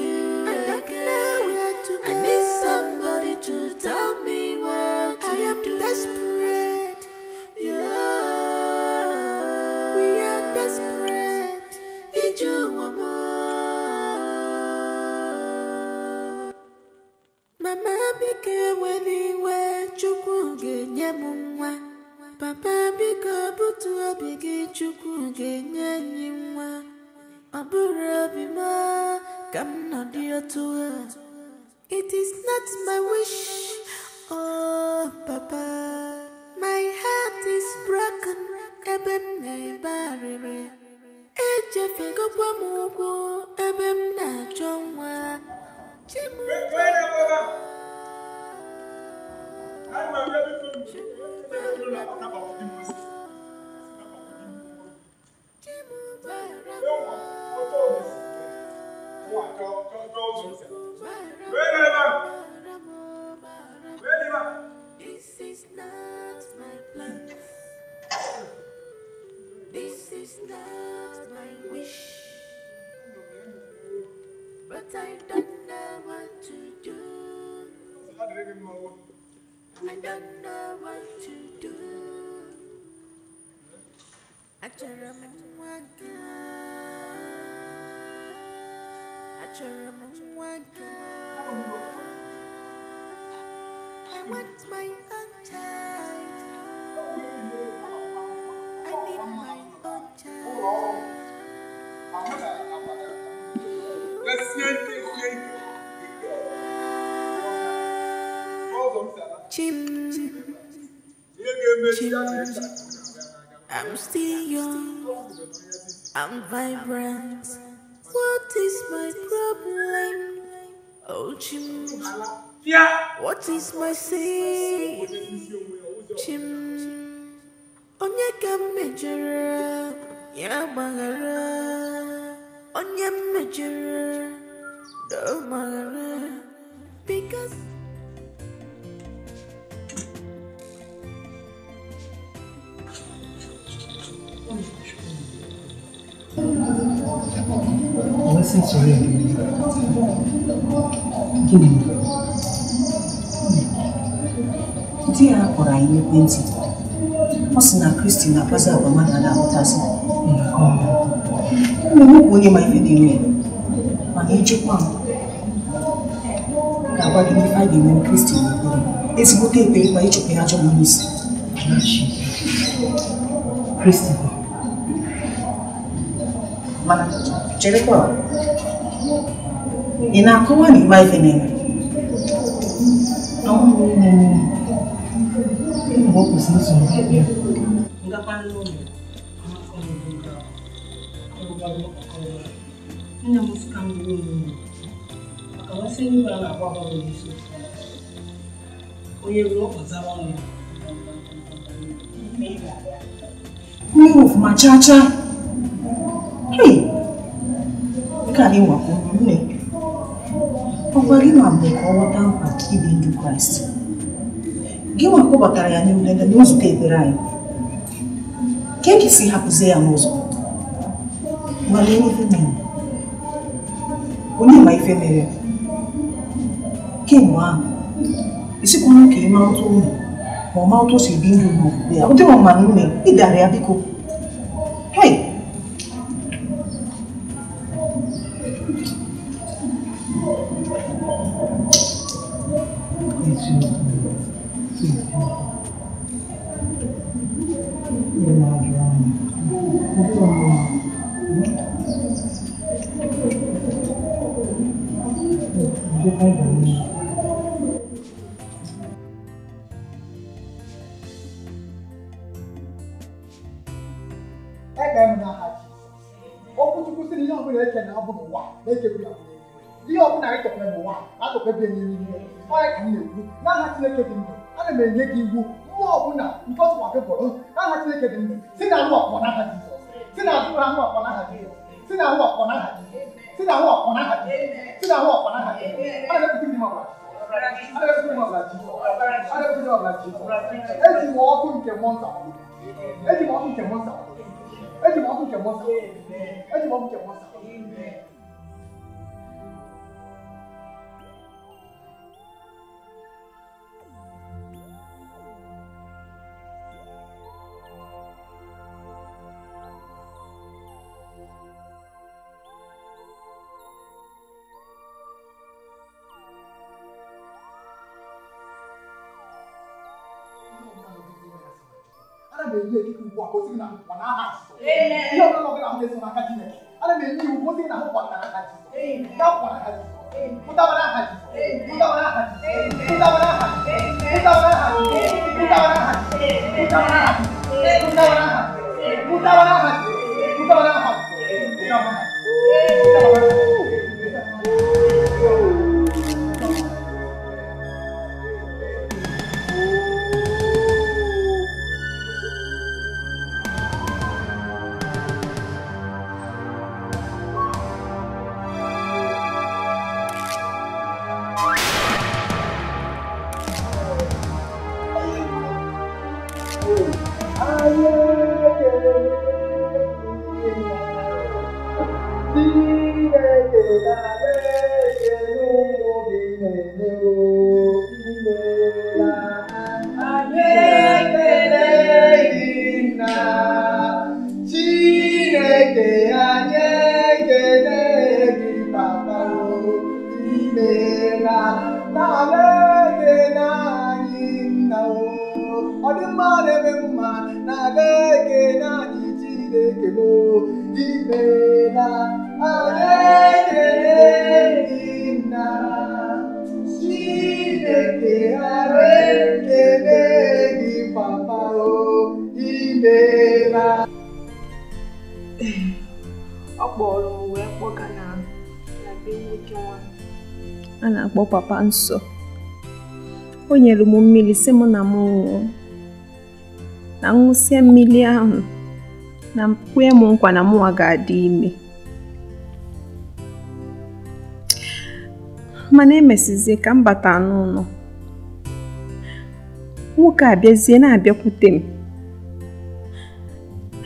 Tell me what I am do. desperate. Yeah, we are desperate. Need you want more. Mama became when he went to Kungenyamwa. Papa became to a big Chukungenyamwa. Aburabima, come not dear to her. It is not my wish. Oh, Papa, my heart is broken. Ebe m na-ebarịrị. Echefegokwa m ụkwụ ebe m na-achọ nwa. Chimubara. Chimubara. This is not my plan. This is not my wish. But I don't know what to do. I don't know what to do. I don't know what to do. I want my own child. I need my own child. Let's see it. Chim, chim. I'm still young, I'm vibrant. What is my problem? Oh, Jim. Yeah. What is my sin? Chim. Onye ka ya gbaghara. Onye mejere do maghara. Because Listen to him. Give di ya kpọrọ anyị n'ekwentị ọ sị na kristi na-akpazi agwa mmadụ a na-ahụtasị ụmụ m bụ onye ma ife dị ime mana echekwa m ga-agwa gị n'ife a ga-eme kristi n'okpuru ezigbote ekpe ịkpa ịchụpụ ya ajọm n'isi kristi mana cherekwa ị na-akọwa na ịma ife na-eme mgbe ọ kwụsịrị iso m bịa nne m sịka m bụrụ ụmụ maka nwasị ndị a na-agba agbagọ n'isi onye ruo ọzara ọnụ mmiri ọfụma chaa chaa na gị ma ka ọ ghọta mkpa ibi kraịst gịnwa kpọbatara ya n'ime na steeti anyị ka e si hapụzie ya n'ụzọ nwale ife onye ma ife mere kemgbe ahụ isikwa ka ịma ụtụ ụmụ ma ọma ụtụ si ụdị ọma na ị ọ̀làjì eji m ọkụ nke mọnta eji m ọkụ nke mọnta eji m ọkụ nke mọnta eji m ọkụ nke mọnta ihe ọbụla ọbụla ahụ na-eso n'aka Chineke ana m enye iwu kwụsị na ahụ kwatara aka Jizọs ya kwara aka Jizọs pụtabara aha Jizọs pụtabara aha Jizọs pụtabara aha Jizọs pụtabara aha Jizọs pụtabara aha Jizọs pụtabara aha Jizọs pụtabara aha Jizọs pụtabara aha Jizọs pụtabara aha Jizọs pụtabara aha Jizọs pụtabara aha na-akpọ papa nso o nyere m mmiri si m na m na ṅụsịa mmiri ahụ na kwe m nkwa na mụnwa ga-adị ime mana emesizie ka m bata n'ụlọ nwoke abịazie na-abịakwute m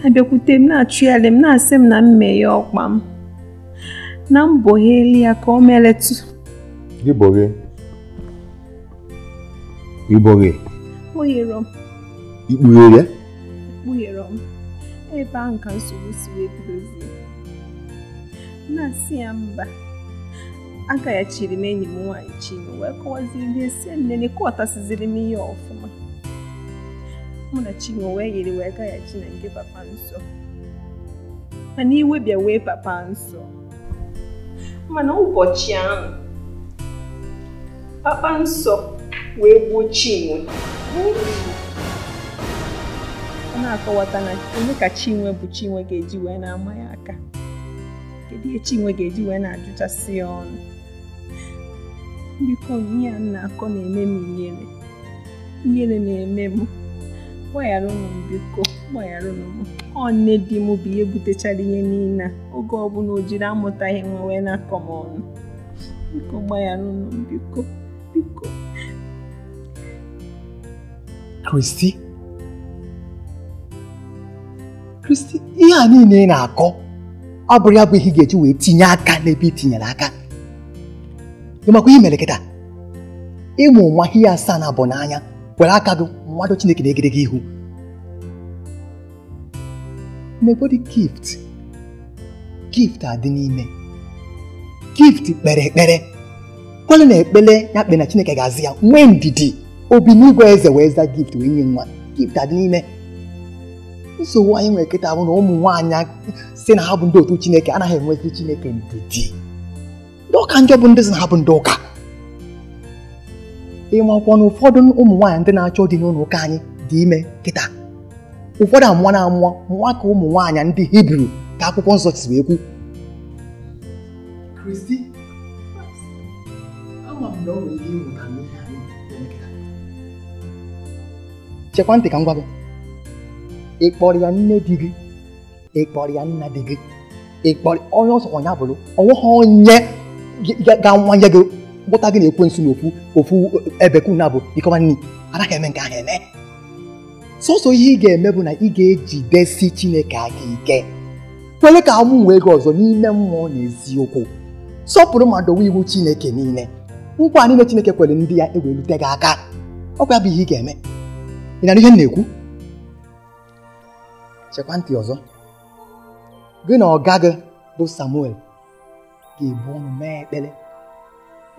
abịakwute m na-achụgharị m na-asị m na mmeghe ọkpa m na mbọ ya ka ọ meletụ Diboghe. Iboghe. Kpughere m. Ị Kpughere m. Ebe ahụ ka nsogbu si wee bidozie. Na-asị ya mba. Agaghachiri m enyi m nwaanyị Chinwe wee kọwaziri ndị esi nlele kọwatasiziri m ihe ọfụma. Mụ na Chinwe wee yiri wee gaghachi na nke papa nsọ. Mana iwe bịa wee papa nsọ. Mana ụbọchị ahụ kpakpansọ wee gbuo Chinwe ọ na-akọwata na onye ka Chinwe bụ Chinwe ga-eji wee na-ama ya aka kedu ihe Chinwe ga-eji wee na-ajụchasị ya ọnụ biko ihe ya na-akọ na-eme m ihere ihere na-eme m gbaghara ụnụ m biko gbaghara ụnụ m ọ nne di m bụ ihe butechara ihe niile oge ọbụla o jiri amụtaghị m wee na-akọ m ọnụ biko gbaghara m biko biko Kristi Kristi ihe a niile ị na-akọ ọ bụrụ ya bụ ihe ị ga-eji wee tinye aka n'ebe ị tinyere aka ịmakwa ihe mere kịta ịmụ nwa ihe asaa na abụ n'anya were aka gị mmadụ Chineke na-egide gị ihu n'ebodi gift gift dị n'ime gift kpere ekpere kwale na ekpele ya kpe na chineke ga azi ya nwee ndidi obi n'igwe eze wee za gift wee nye nwa gift adị n'ime nsogbu anyị nwere kịta bụ na ụmụ nwaanyị si na ha bụ ndị otu chineke anaghị enwezi chineke ndidi ndị ụka njọ bụ ndị si na ha bụ ndị ụka ịmakwụkwọ na ụfọdụ ụmụ nwaanyị ndị na-achọ dị n'ụlọ ụka anyị dị ime kịta ụfọdụ amụọ na amụọ nwa ka ụmụ nwaanyị ndị hibru ka akwụkwọ nsọ si wee kwu kristi m na o ka m gwa gị ya nne di gị ị ya nna di gị ị kpọrọ onye a ọnya bụrụ ọnweghị onye ga-awanye gị gụta gị na ekwensu na ofu ofu ebekwu na bụ ikọba nni anaghị eme nke ha eme sọsọ ihe ị ga-eme bụ na ị ga-ejidesi chineke ga ike kwere ka amụ gị ọzọ n'ime mmụọ na eziokwu sọpụrụ ma dowe iwu chineke niile nkwa niile Chineke kwere ndị ya ewelute gị aka ọkwa ya bụ ihe ị ga-eme ị nara ihe m na-ekwu chekwa ọzọ gị na ọga gị bụ Samuel ga-ebu ọnụ mee ekpere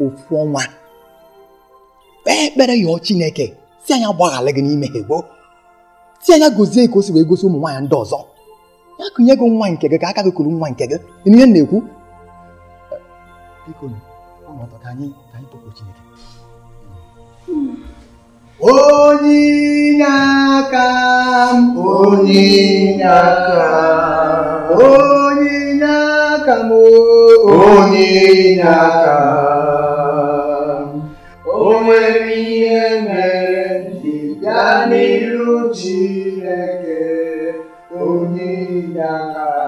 ofu ọnwa kpee ekpere yọọ Chineke si anya gbaghara gị n'ime ha gboo si anya gozie ka o si wee gosi ụmụ nwaanyị ndị ọzọ ya kụnye gị nwa nke gị ka aka gị kụrụ nwa nke gị ihe na-ekwu Chineke onye n'aka m onye n'aka m onye n'aka m onye n'aka m o nwere ihe mere ji gaa n'iru Chineke onye n'aka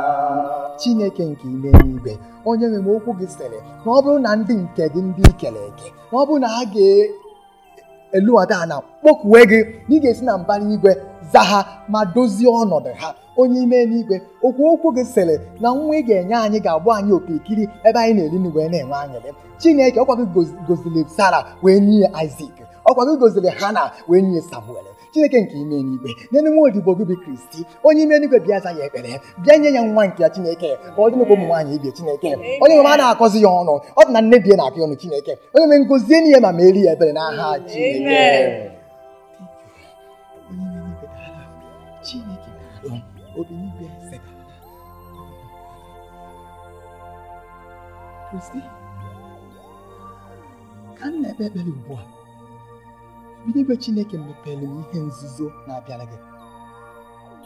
Chineke nke ime n'igwe onye nwere m okwu gị sịrị na ọ bụrụ na ndị nke gị ndị kere eke na ọ bụrụ na ha ga-elughata ha na kpọkuwe gị na ị ga-esi na mbara igwe za ha ma dozie ọnọdụ ha onye ime n'igwe okwu okwu gị sịrị na nwa ị ga-enye anyị ga-abụ anyị okirikiri ebe anyị na-eri nri wee na-enwe anyịrị chineke ọkwa gị goziri sara wee nye isak ọkwa gị goziri hana wee nye samuel chineke nke ime n'igwe n'elu nwa odibo gị bụ kristi onye ime n'igwe bịa za ya ekpere bịa nye ya nwa nke ya chineke ka ọ dị n'ụkwụ ụmụ nwaanyị ibie chineke onye nwere a na-akọzi ya ọnụ ọ dị na nne bie na-akọ ọnụ chineke onye me ngozie n'ihe ma merie ya ebere n'aha chineke chineke kristi ka m na-ekpe ekpere ugbu a ebe Chineke mepere m ihe nzuzo na-abịara gị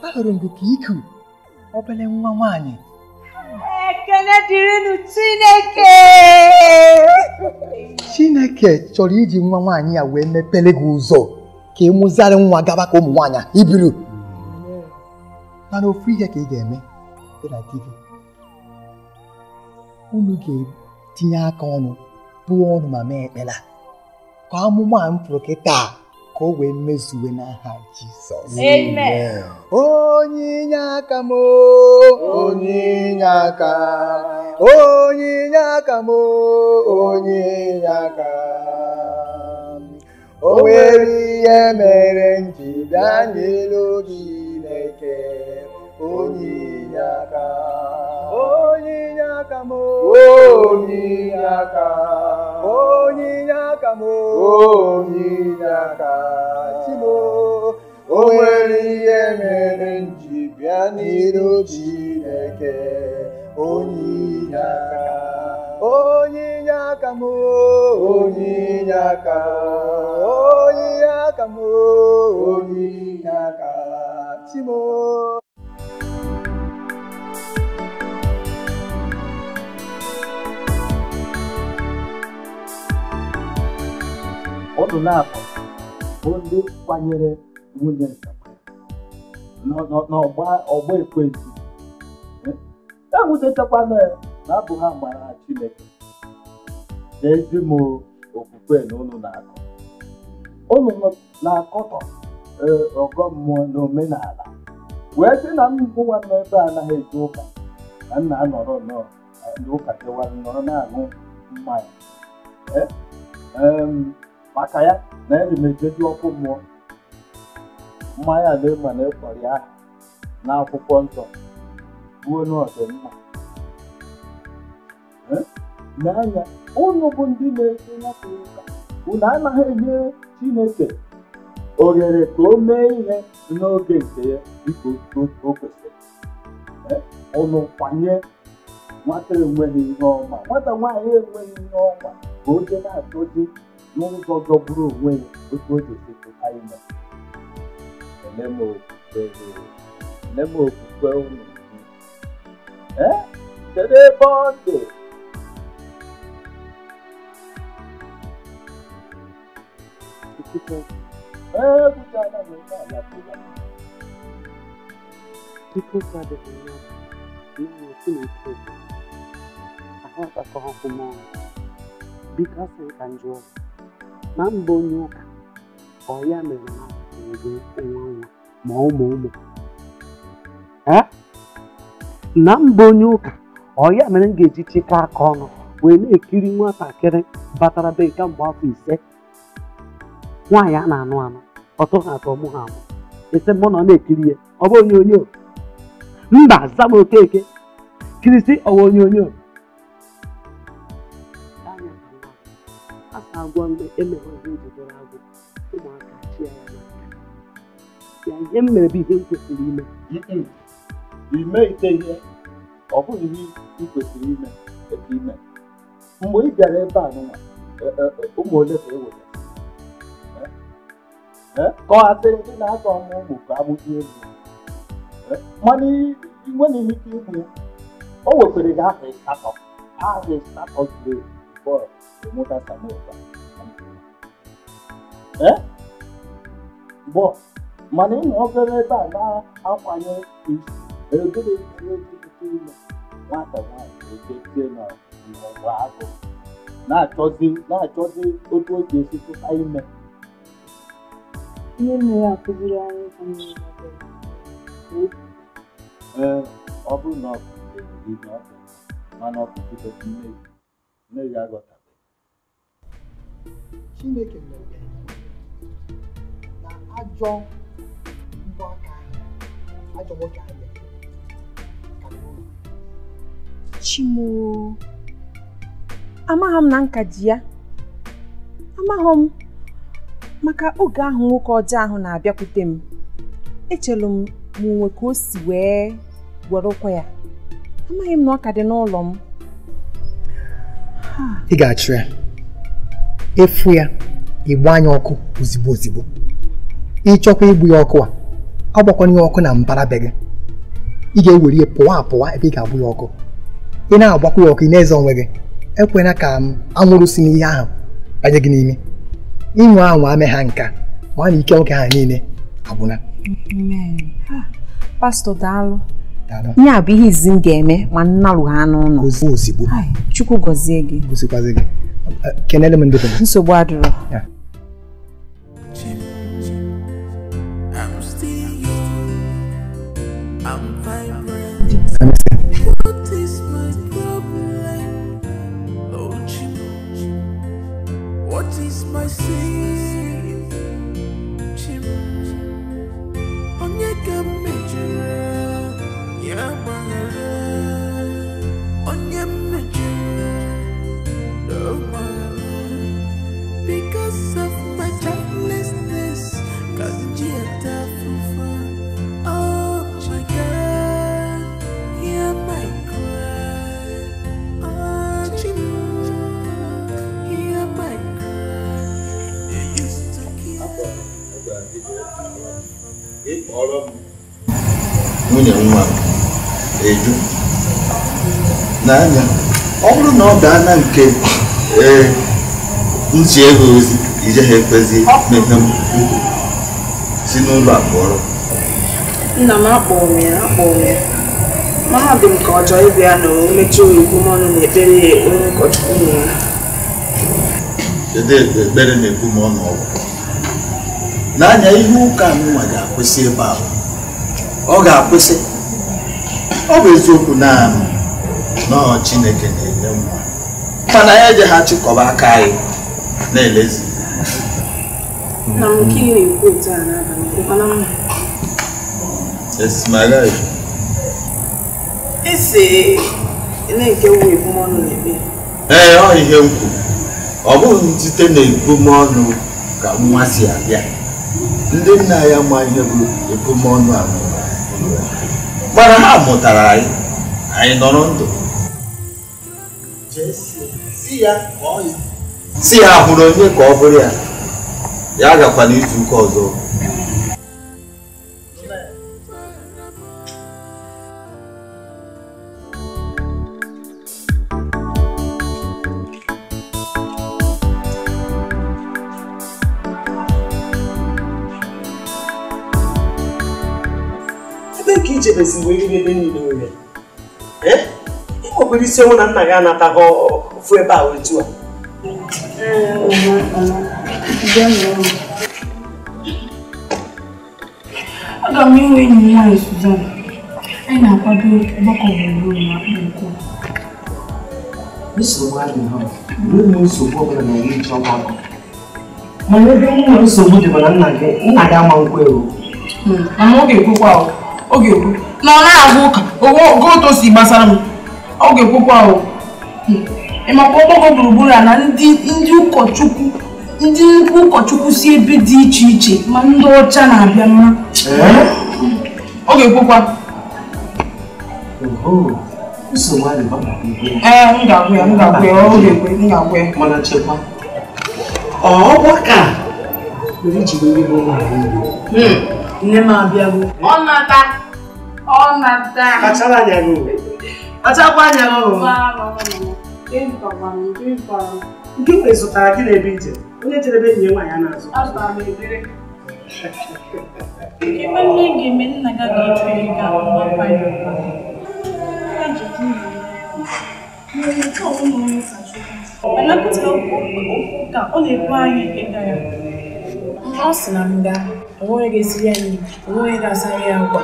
ahụrụ m gị ka iku obere nwa nwanyị ekele dịrịnụ Chineke Chineke chọrọ iji nwa nwaanyị ya wee mepere gị ụzọ ka ị e mụzarị nwa gaba ka ụmụ nwaanyị ibiru mana ofu ihe ka ị ga-eme unu ga-etinye aka ọnụ bụọ ọnụ ma mee ekpere ka amụma m taa ka o wee mezuwe n'aha Jizọs amen onye inye aka m onye inye aka onye inye aka m onye inye aka o nwere ihe mere m n'elu gị Chineke onye inye aka onye inye aka m onye inye aka onye inye aka m onye inye aka chimo o nwere ihe mere nji bịa n'iru Chineke onye inye aka onye inye aka m onye inye aka onye inye aka m onye inye aka chimo na abụ bụ ndị kwanyere nwunye n'ọgba ekwentị ewutetakwana e ya na abụ ha gbara Chineke na eji m okwukwe na ụnụ na-akọ ụnụ na-akọtọ e, ọgọ mmụọ na omenala wee sị na mbụ nwanne ebe anaghị eji ụka na nna anọrọ nnọọ ndị ụka nọrọ na-aṅụ mmanya e, maka ya na ya na-emejeji ọkụ mmụọ mmanya na-ema na ịkpọrọ ya n'akwụkwọ nsọ ruo n'ọdịmma n'anya ụnụ bụ ndị na-eso nyapụ ụka unu anaghị enye chineke oghere ka o mee ihe n'oge nke ya dịka o kwesịrị ụnụ kwanye nwata enweghị ihe ọma nwata nwaanyị enweghị ihe ọma ka o je na-achọzi lórí gbọgbọ búrò owó ẹ gbogbo òjò ṣe tó káyé mọ. ẹlẹ́mọ̀ òkùnkùn ẹ̀rọ ẹlẹ́mọ̀ òkùnkùn ẹ̀rọ nìyí. ẹ tẹ̀lé bọ́ọ̀dì. ẹ gbogbo aláwọ̀ ẹ̀ náà yàtọ̀ yàtọ̀. People gather in love, no more to it. Eh? Eh, I have a couple Because I enjoy. na mba onye ụka ọ ya mere na ụmụ onwe onwe ma ụmụ ụmụ na mba onye ụka ọ ya mere m ga-eji chịkọ aka ọnụ wee na-ekiri nwatakịrị batara be nke mgbe afọ ise nwaanyị a na-anụ anụ ọtọ ha atọ mụ ha amụ ese mụ na ọ na-ekiri ya ọ bụ onyonyo mba zama okeke kirisi ọwa onyonyo asa agwa mgbe emeghọzi njidere agwụ ụmụaka chịa ya n'aka ya ihe m mere bụ ihe m kwesịrị ime ime ite ihe ọ bụghị ihe ị kwesịrị ime e ime mgbe ị bịara ebe a n'ụwa e, e, ụmụ ole ka e were eh? eh? kọghasịrị ndị na-azọ ọmụ ụmụ ka agbụji elu eh? mana ịnwere ike ikwu o wekwere gị aha ịsatọ aha ịsatọ zuru bọọlụ promoter Samuel. Eh? Bụ mana ịnọ obere ebe a na-akwanye isi egere eeete ụlọ nwata nwanyị eketie na ọgụ agụ na bụrụ na-achọzi o ji ime ihe nne ya akụziri anyị ee ọ bụrụ na ọ bụ mana ọ bụ Chineke mere na ajọ mbọ aka ahụ ajọ nwoke ahụ Chimo amaghị m na nka ji ya amaghị m maka oge ahụ nwoke ọjọọ ahụ na-abịakwute m echere m ma onwe ka o si wee were ụkwa ya amaghị m na ọ ka dị n'ụlọ m ị ga-achụ ya efu ya ịgbanye ọkụ ozigbo ozigbo ịchọkwa igbu ya ọkụ a ọ gbakwana ya ọkụ na mbara be gị ị ga-ewere ya pụwa apụwa ebe ị ga abụ ya ọkụ ị na-agbakwa ya ọkụ ị na-eze onwe gị ekwela ka anwụrụ si n'ihe ahụ banye gị n'ime ịnwụ anwụ ame ha nka ma na ike nwoke ha niile agwụna pastọ daalụ ya bụ ihe izi m ga-eme ma nnarụ ha n'ụlọ chukwu gọzie gị gị kenelle mɛ ndugu. nsogbu adurɔ. Yeah. ịkpọrọ m nwunye nwa eju n'anya ọ bụrụ na ọ gaa na nke ee ntị ego ozi ije ha ekwezi mepe m si n'ụlọ a pụọrọ nna m akpọrọ ya akpọrọ ya mahadum ka ọ chọọ ịbịa na omechi oyibo mọnụ na ekpere ya onye ụkọchukwu ya. kedu ekpere na-ekwu ma ọ n'anya ihe ụka nwa ga-akwụsị ebe ahụ ọ ga-akwụsị ọ bụ eziokwu naanị nọọ Chineke na-enye nwa mana ya eji ha chịkọba aka anyị na-elezi ee ọ ihe m kwuru ọ bụghị site na ebumọnụ ka nwa si abịa ndị nna ya ma ihe bụ ebumọnụ a mana ha mụtara anyị anyị nọrọ ndụ si ya hụrụ onye ka ọ bụrụ ya ya agakwana izu ụka ọzọ echebezi mgbe eriri ebe niile ore eh? ịkpọkwere isi onwe na nna gị anataghị ofu ebe a otu a aga m inwe enyi nwaanyị Suzan anyị na-akwado ọgbakọ gburugburu na nsogbu adịghị nsogbu ọbụla na ọgbakọ mana ebe nwa nsogbu dị nna gị nna gị ama nkwe. Hmm, ewu ọ ga na ọ na-agụ ụka ogo otu si gbasara m ọ ga-ekwukwa ahụ hmm. ịmakwa ọgbakọ gburugburu a na ndị ụkọchukwu ndị nnukwu ụkọchukwu si ebe dị iche iche ma ndị ọcha na-abịa mma eh? hmm. ọ ga-ekwukwa ee eh, m ga-agwụ ya m ga-agwụ ya ọ ga-ekwe m ga-agwụ ya mana chekwa ọgbakọ a nwere iji bụ ndị bụ ụmụ hmm. nne m abịago ọ nata all my time. Kachara nyago. Achakwa nyago. Mama, mama. Gịnị tọgbara m, gịnị tọgbara m. Nke mgbe ị zụtara gị n'ebe ije, onye jere ebe enyi nwaanyị a na-azụ. Azụtara m ebere. Ebe nne ga-eme nna gị ga-echu ihe ga mgbakwa ya ụkwa. Ya jikwa ụlọ Mmiri ọ na-ekwu anyị ịga ya. Ọ sị na nga, onweghị ga-esiri anyị, onweghị ga-asara ya agwa.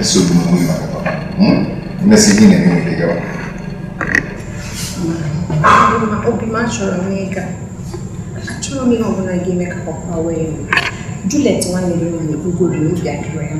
esogbu hmm? onwe na eme nwere gawa obi m achọrọ m ịga achọrọ m ihe ga-eme ka papa wee Juliet nwanne gị nwaanyị bugoro ya mma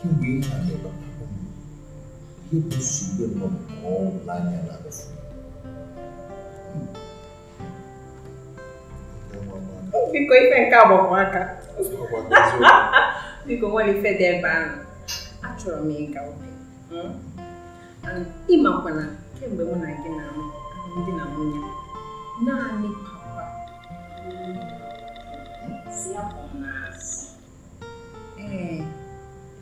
kemgbe ihe ihe bụ nsogbu na biko ife nke agbamaka biko nwere ife dị ebe ahụ achọrọ m ịga obi ịmakwana kemgbe mụ na gị na ndị na nwunye naanị papa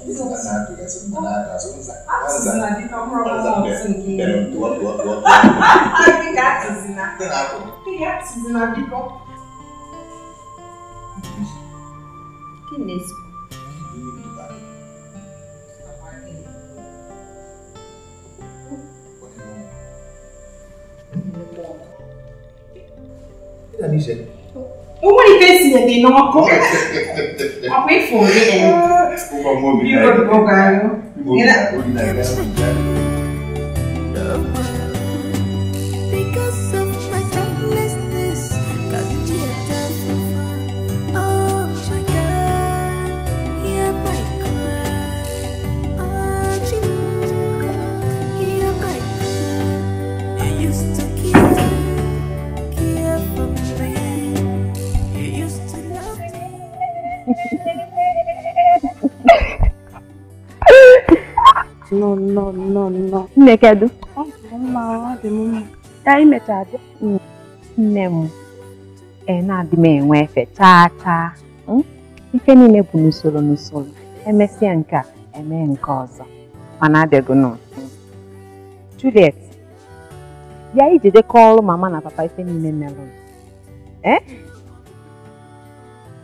Ini tadi Tidak Umuri pesinye de noko. Akwifundile. Kuba ngobi nayo. Ngobi nayo. Ngobi nayo. No, no, no, no. Nne kedụ? Ọ dị mma, ka anyị mechara é Nne m, e na-adị m enwe efe chaa chaa. Hmm? Ife niile bụ n'usoro n'usoro. Emesịa nke a, emee nke ọzọ. Mana não. nọ. Juliet, bịa iji de call mama na papa ife niile merụrụ. Eh?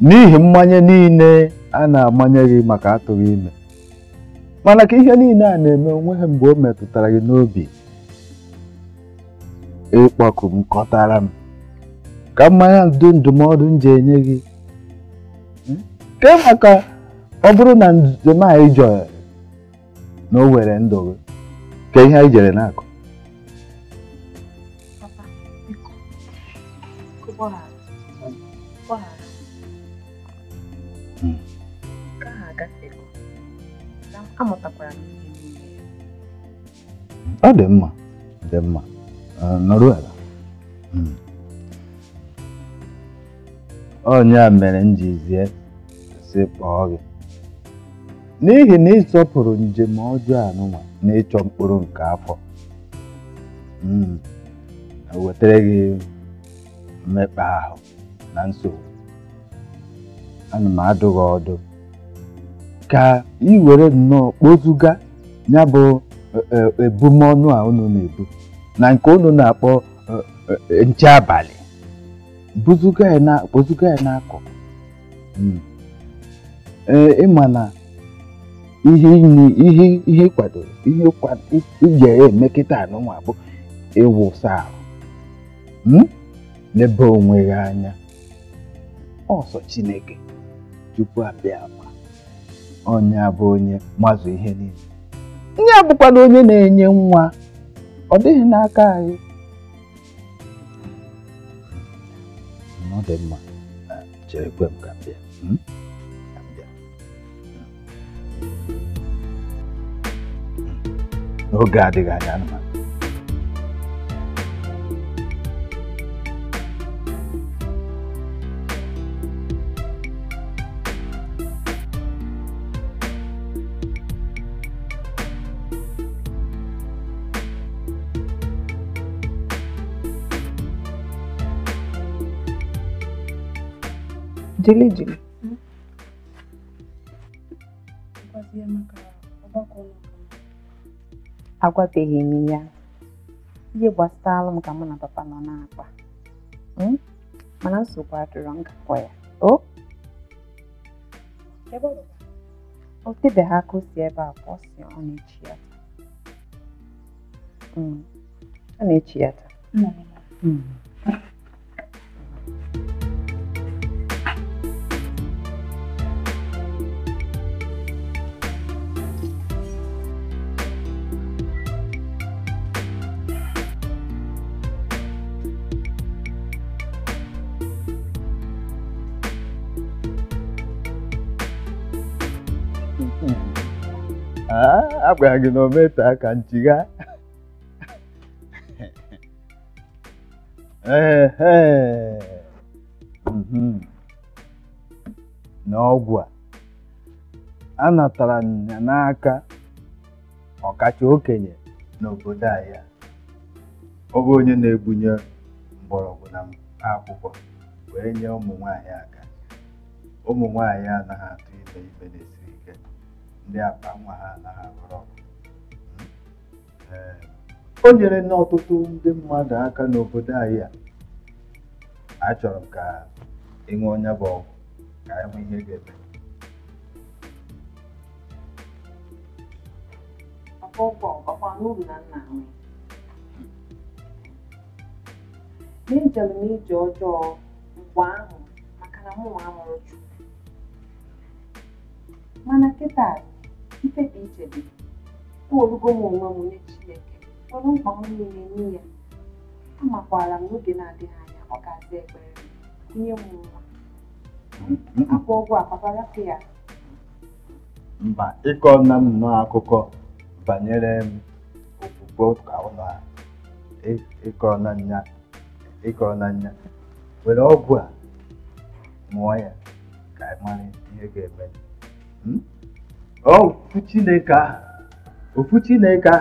n'ihi mmanya niile a na-amanye gị maka atụghị ime mana ka ihe niile a na-eme onwe ha mgbe o metụtara gị n'obi ịkpọku m kọtara ka mmanya ndụmọdụ m ji enye gị maka hmm? ọ bụrụ na njem anyị jọrọ na o were ndụ gị ka ihe anyị jere na amụtakwara m ihe niile ọ dị mma dị mma nọrọ ala hmm. onye a mere m ji zie kpọọ gị n'ihi na ịsọpụrụ njem ọjọọ anụnwa na ịchọ mkpụrụ nke afọ hmm. wetara gị mmekpa ahụ na nsogbu ana m adụ gị ọdụ ka ị were nnọọ kpozuga ya bụ e, e, ebumọnụ a unu na-ebu na nke unu na-akpọ e, nche abalị kpozuga ya n'akọ hmm. ịma na ihe ihe kwadoro ihe ije emekịta anụnwa bụ ịwụsa ahụ hmm? n'ebe onwe gị anya ọsọ Chineke tupu abịa onye bụ onye mazụ ihe niile nye abụkwala onye na-enye nwa ọ dịghị n'aka anyị ọ dị mma chere ah, kwe m ka m bịa n'oge hmm? hmm. hmm. adịghị anya anụmanụ jili jili agwabeghị m ya ihe gbasara m ka mụ na papa nọ na-akpa hmm? mana nsogbu adịrọ ngakọ ya o ha aka o si ebe a pụọ si ọ na-echi ya ọ na-echi ya taa hmm. hmm. agwara ah, gị na o metụ aka nchigha mhm. na ọgwụ a anatara ya n'aka ọkacha okenye n'obodo ahịa ọ bụ onye na-ebunye mgbọrọgwụ na akwụkwọ wee nye ụmụ nwanyị aka ụmụ nwanyị anaghị atụ ibe ibe n'ezi ndị akpa nwa ha anaghị eh. oh, n'ọtụtụ ndị mmadụ aka n'obodo anyị a achọrọ m ka onye bụ ọgwụ ka ihe ga-eme ọjọọ mana kịta mkpebi ichebe olugo m onwe m nye Chineke nwere mkpa m niile nye ya amakwara m n'oge na-adịghị anya ọ ga-aza ekpere nye m nwa akwa ọgwụ akpaparapụ ya mba ịkọ nna m nnọọ akụkọ banyere m okwukwe ụka ụlọ ịkọrọ na nya ịkọrọ na nya were ọgwụ a mụọ ya ka ị mara ihe ga-eme hmm? ofu chineke ahụ ofu chineke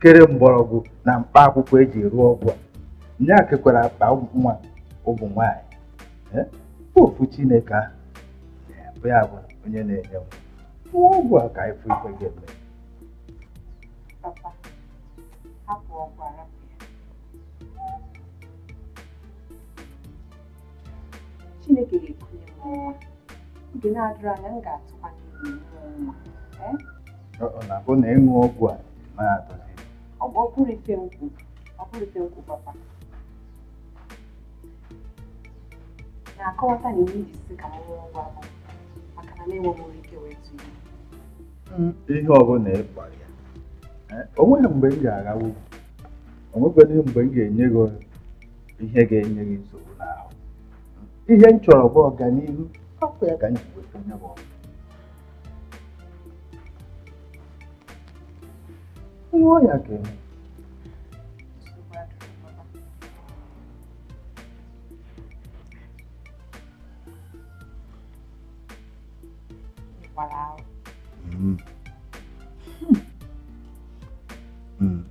kere mgbọrọgwụ na mkpa akwụkwọ eji rụọ ọgwụ a nya kekwara akpa nwa ụmụ nwanyị ofu chineke ahụ bụ ya bụ onye na-enye nwa ọgwụ a ka ife ife ga-eme Chineke ga-ekunye m nwa oge na-adịrị anya m ga-atụkwa n'ihu nwa ọ na-abụ na ịṅụ ọgwụ a na adozi ọ bụ ọbụrụ ife nkwụ ọbụrụ ife nkwụ papa na-akọwata na ihe iji sị ka m ṅụọ ọgwụ abụ maka na na-enweghị m ike wee tụ hmm, ihe ọ bụla ị kpara ya eh, nweghị mgbe m ga o onwekweghị mgbe m ga-enye gị ihe ga-enye gị nsogbu n'ahụ hmm, ihe m chọrọ bụ ọganihu hapụ ya ka m ji weta onye bụ ọgụ Tem olha aqui.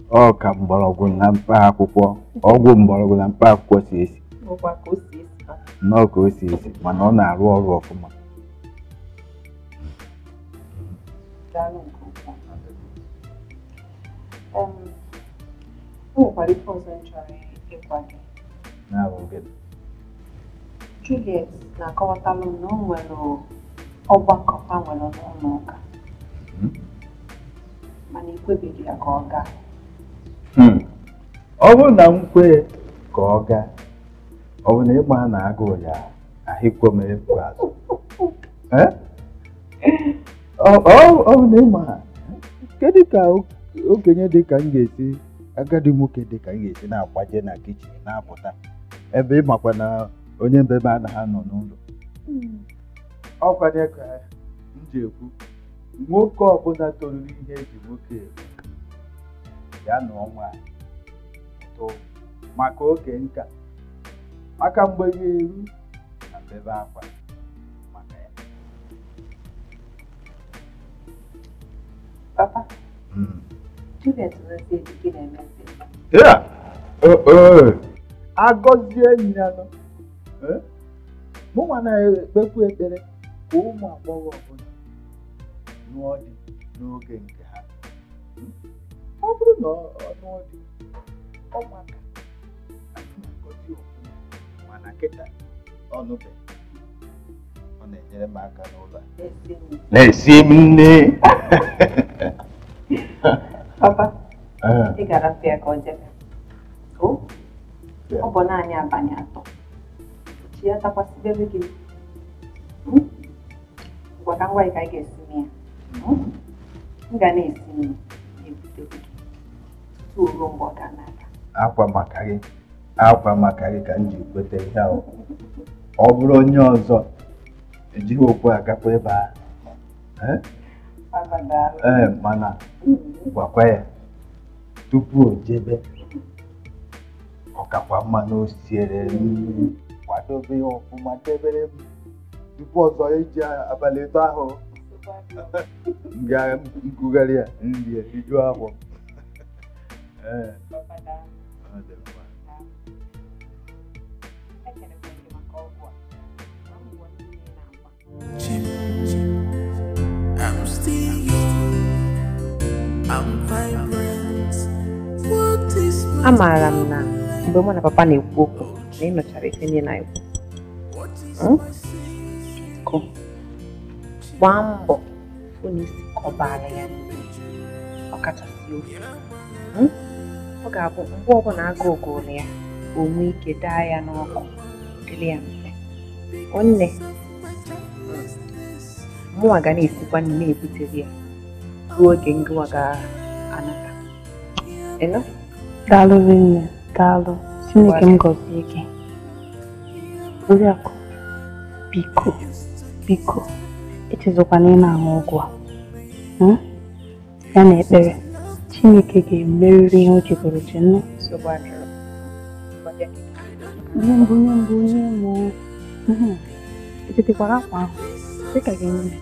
ọ ka mgbọrọgwụ na mkpa akwụkwọ ọgwụ mgbọrọgwụ na mkpa akwụkwọ si esi nnọọ ka o si esi mana ọ na-arụ ọrụ ọfụma o nwekwara ife ọzọ m chọrọ ịgwa gị Juliet na-akọwatalụ m na o nwere ọgbakọ ha nwere n'ụlọ ụka mana ekwebeghị ya ka ọ gaa ọ bụrụ na m kwee ka ọ gaa ọ bụ na ịgba ha na agụụ ya ahịkwo m efu azụ okenye dị ka m ga-esi agadi nwoke dị ka m ga-esi na-akwaje na kichin na-apụta ebe ịmakwa na onye mbebe anaghị anọ n'ụlọ hmm. ọkwanye ka m ji ekwu nwoke ọbụla toruru ihe eji nwoke ya na ọnwa tụ maka oke nka maka mgbe ya eru na mbebe akwa maka ya papa hmm. agọzie enyi ya nọ mụnwa na-ekpekwu ekpere ka ụmụ agbọghọ ọbụla lụọ di n'oge nke ha ọ bụrụ na ọ lụọ di ọmụaka na-agọzi ofụma mana kịta ọnụbe ọ na-enyere m aka n'ụlọ na-esi m nne Papa, ị eh. gara arapụ ka ọ jebe. O, ọ bụ naanị abalị atọ. Chi ya takwasịbere gị. Ngwa ka ngwa ị ka ị ga-esime ya. M ga na-esime ya ebute gị tutu ruo mgbe ọ ga na-aga. Akwa maka gị akwa maka gị ka m ji kweta ihe ahụ. Ọ bụrụ onye ọzọ ejighị okwu agakwa ebe ahụ. Ee, mana hmm. gwakwa ya tupu o jebe ọkakwa mma na o siere kwadobe ya ọfụma debere m tupu ọzọ eji abalị ịtọ ahụ ngụgharị ya nri ya ahụ afọ ọ Chim, chim. amaara m na mgbe mụ na papa na-ekwu okwu na ị nụchara ife na-ekwu hmm? gbaa mbọ hụ na kọbara ya ọkachasị ofe hmm? ọ ga-abụ mgbe ọbụla aga ogoro ya onwe ike daa ya n'ọkụ dịrị ya mfe nwanne hmm. mụnwa ga na-esikwa na na-ebutere ya ruo oge ngụwa ga-anata daalụ rinne daalụ chineke m gọzie gị oriakụ biko biko echezọkwana ị na-aṅụ ọgwụ a ya na ekpere chineke ga emerịrị ihe o jegoro ji nnu onye mbụ onye mbụ onye mbụ echetekwara akwa ahụ dịka gị nne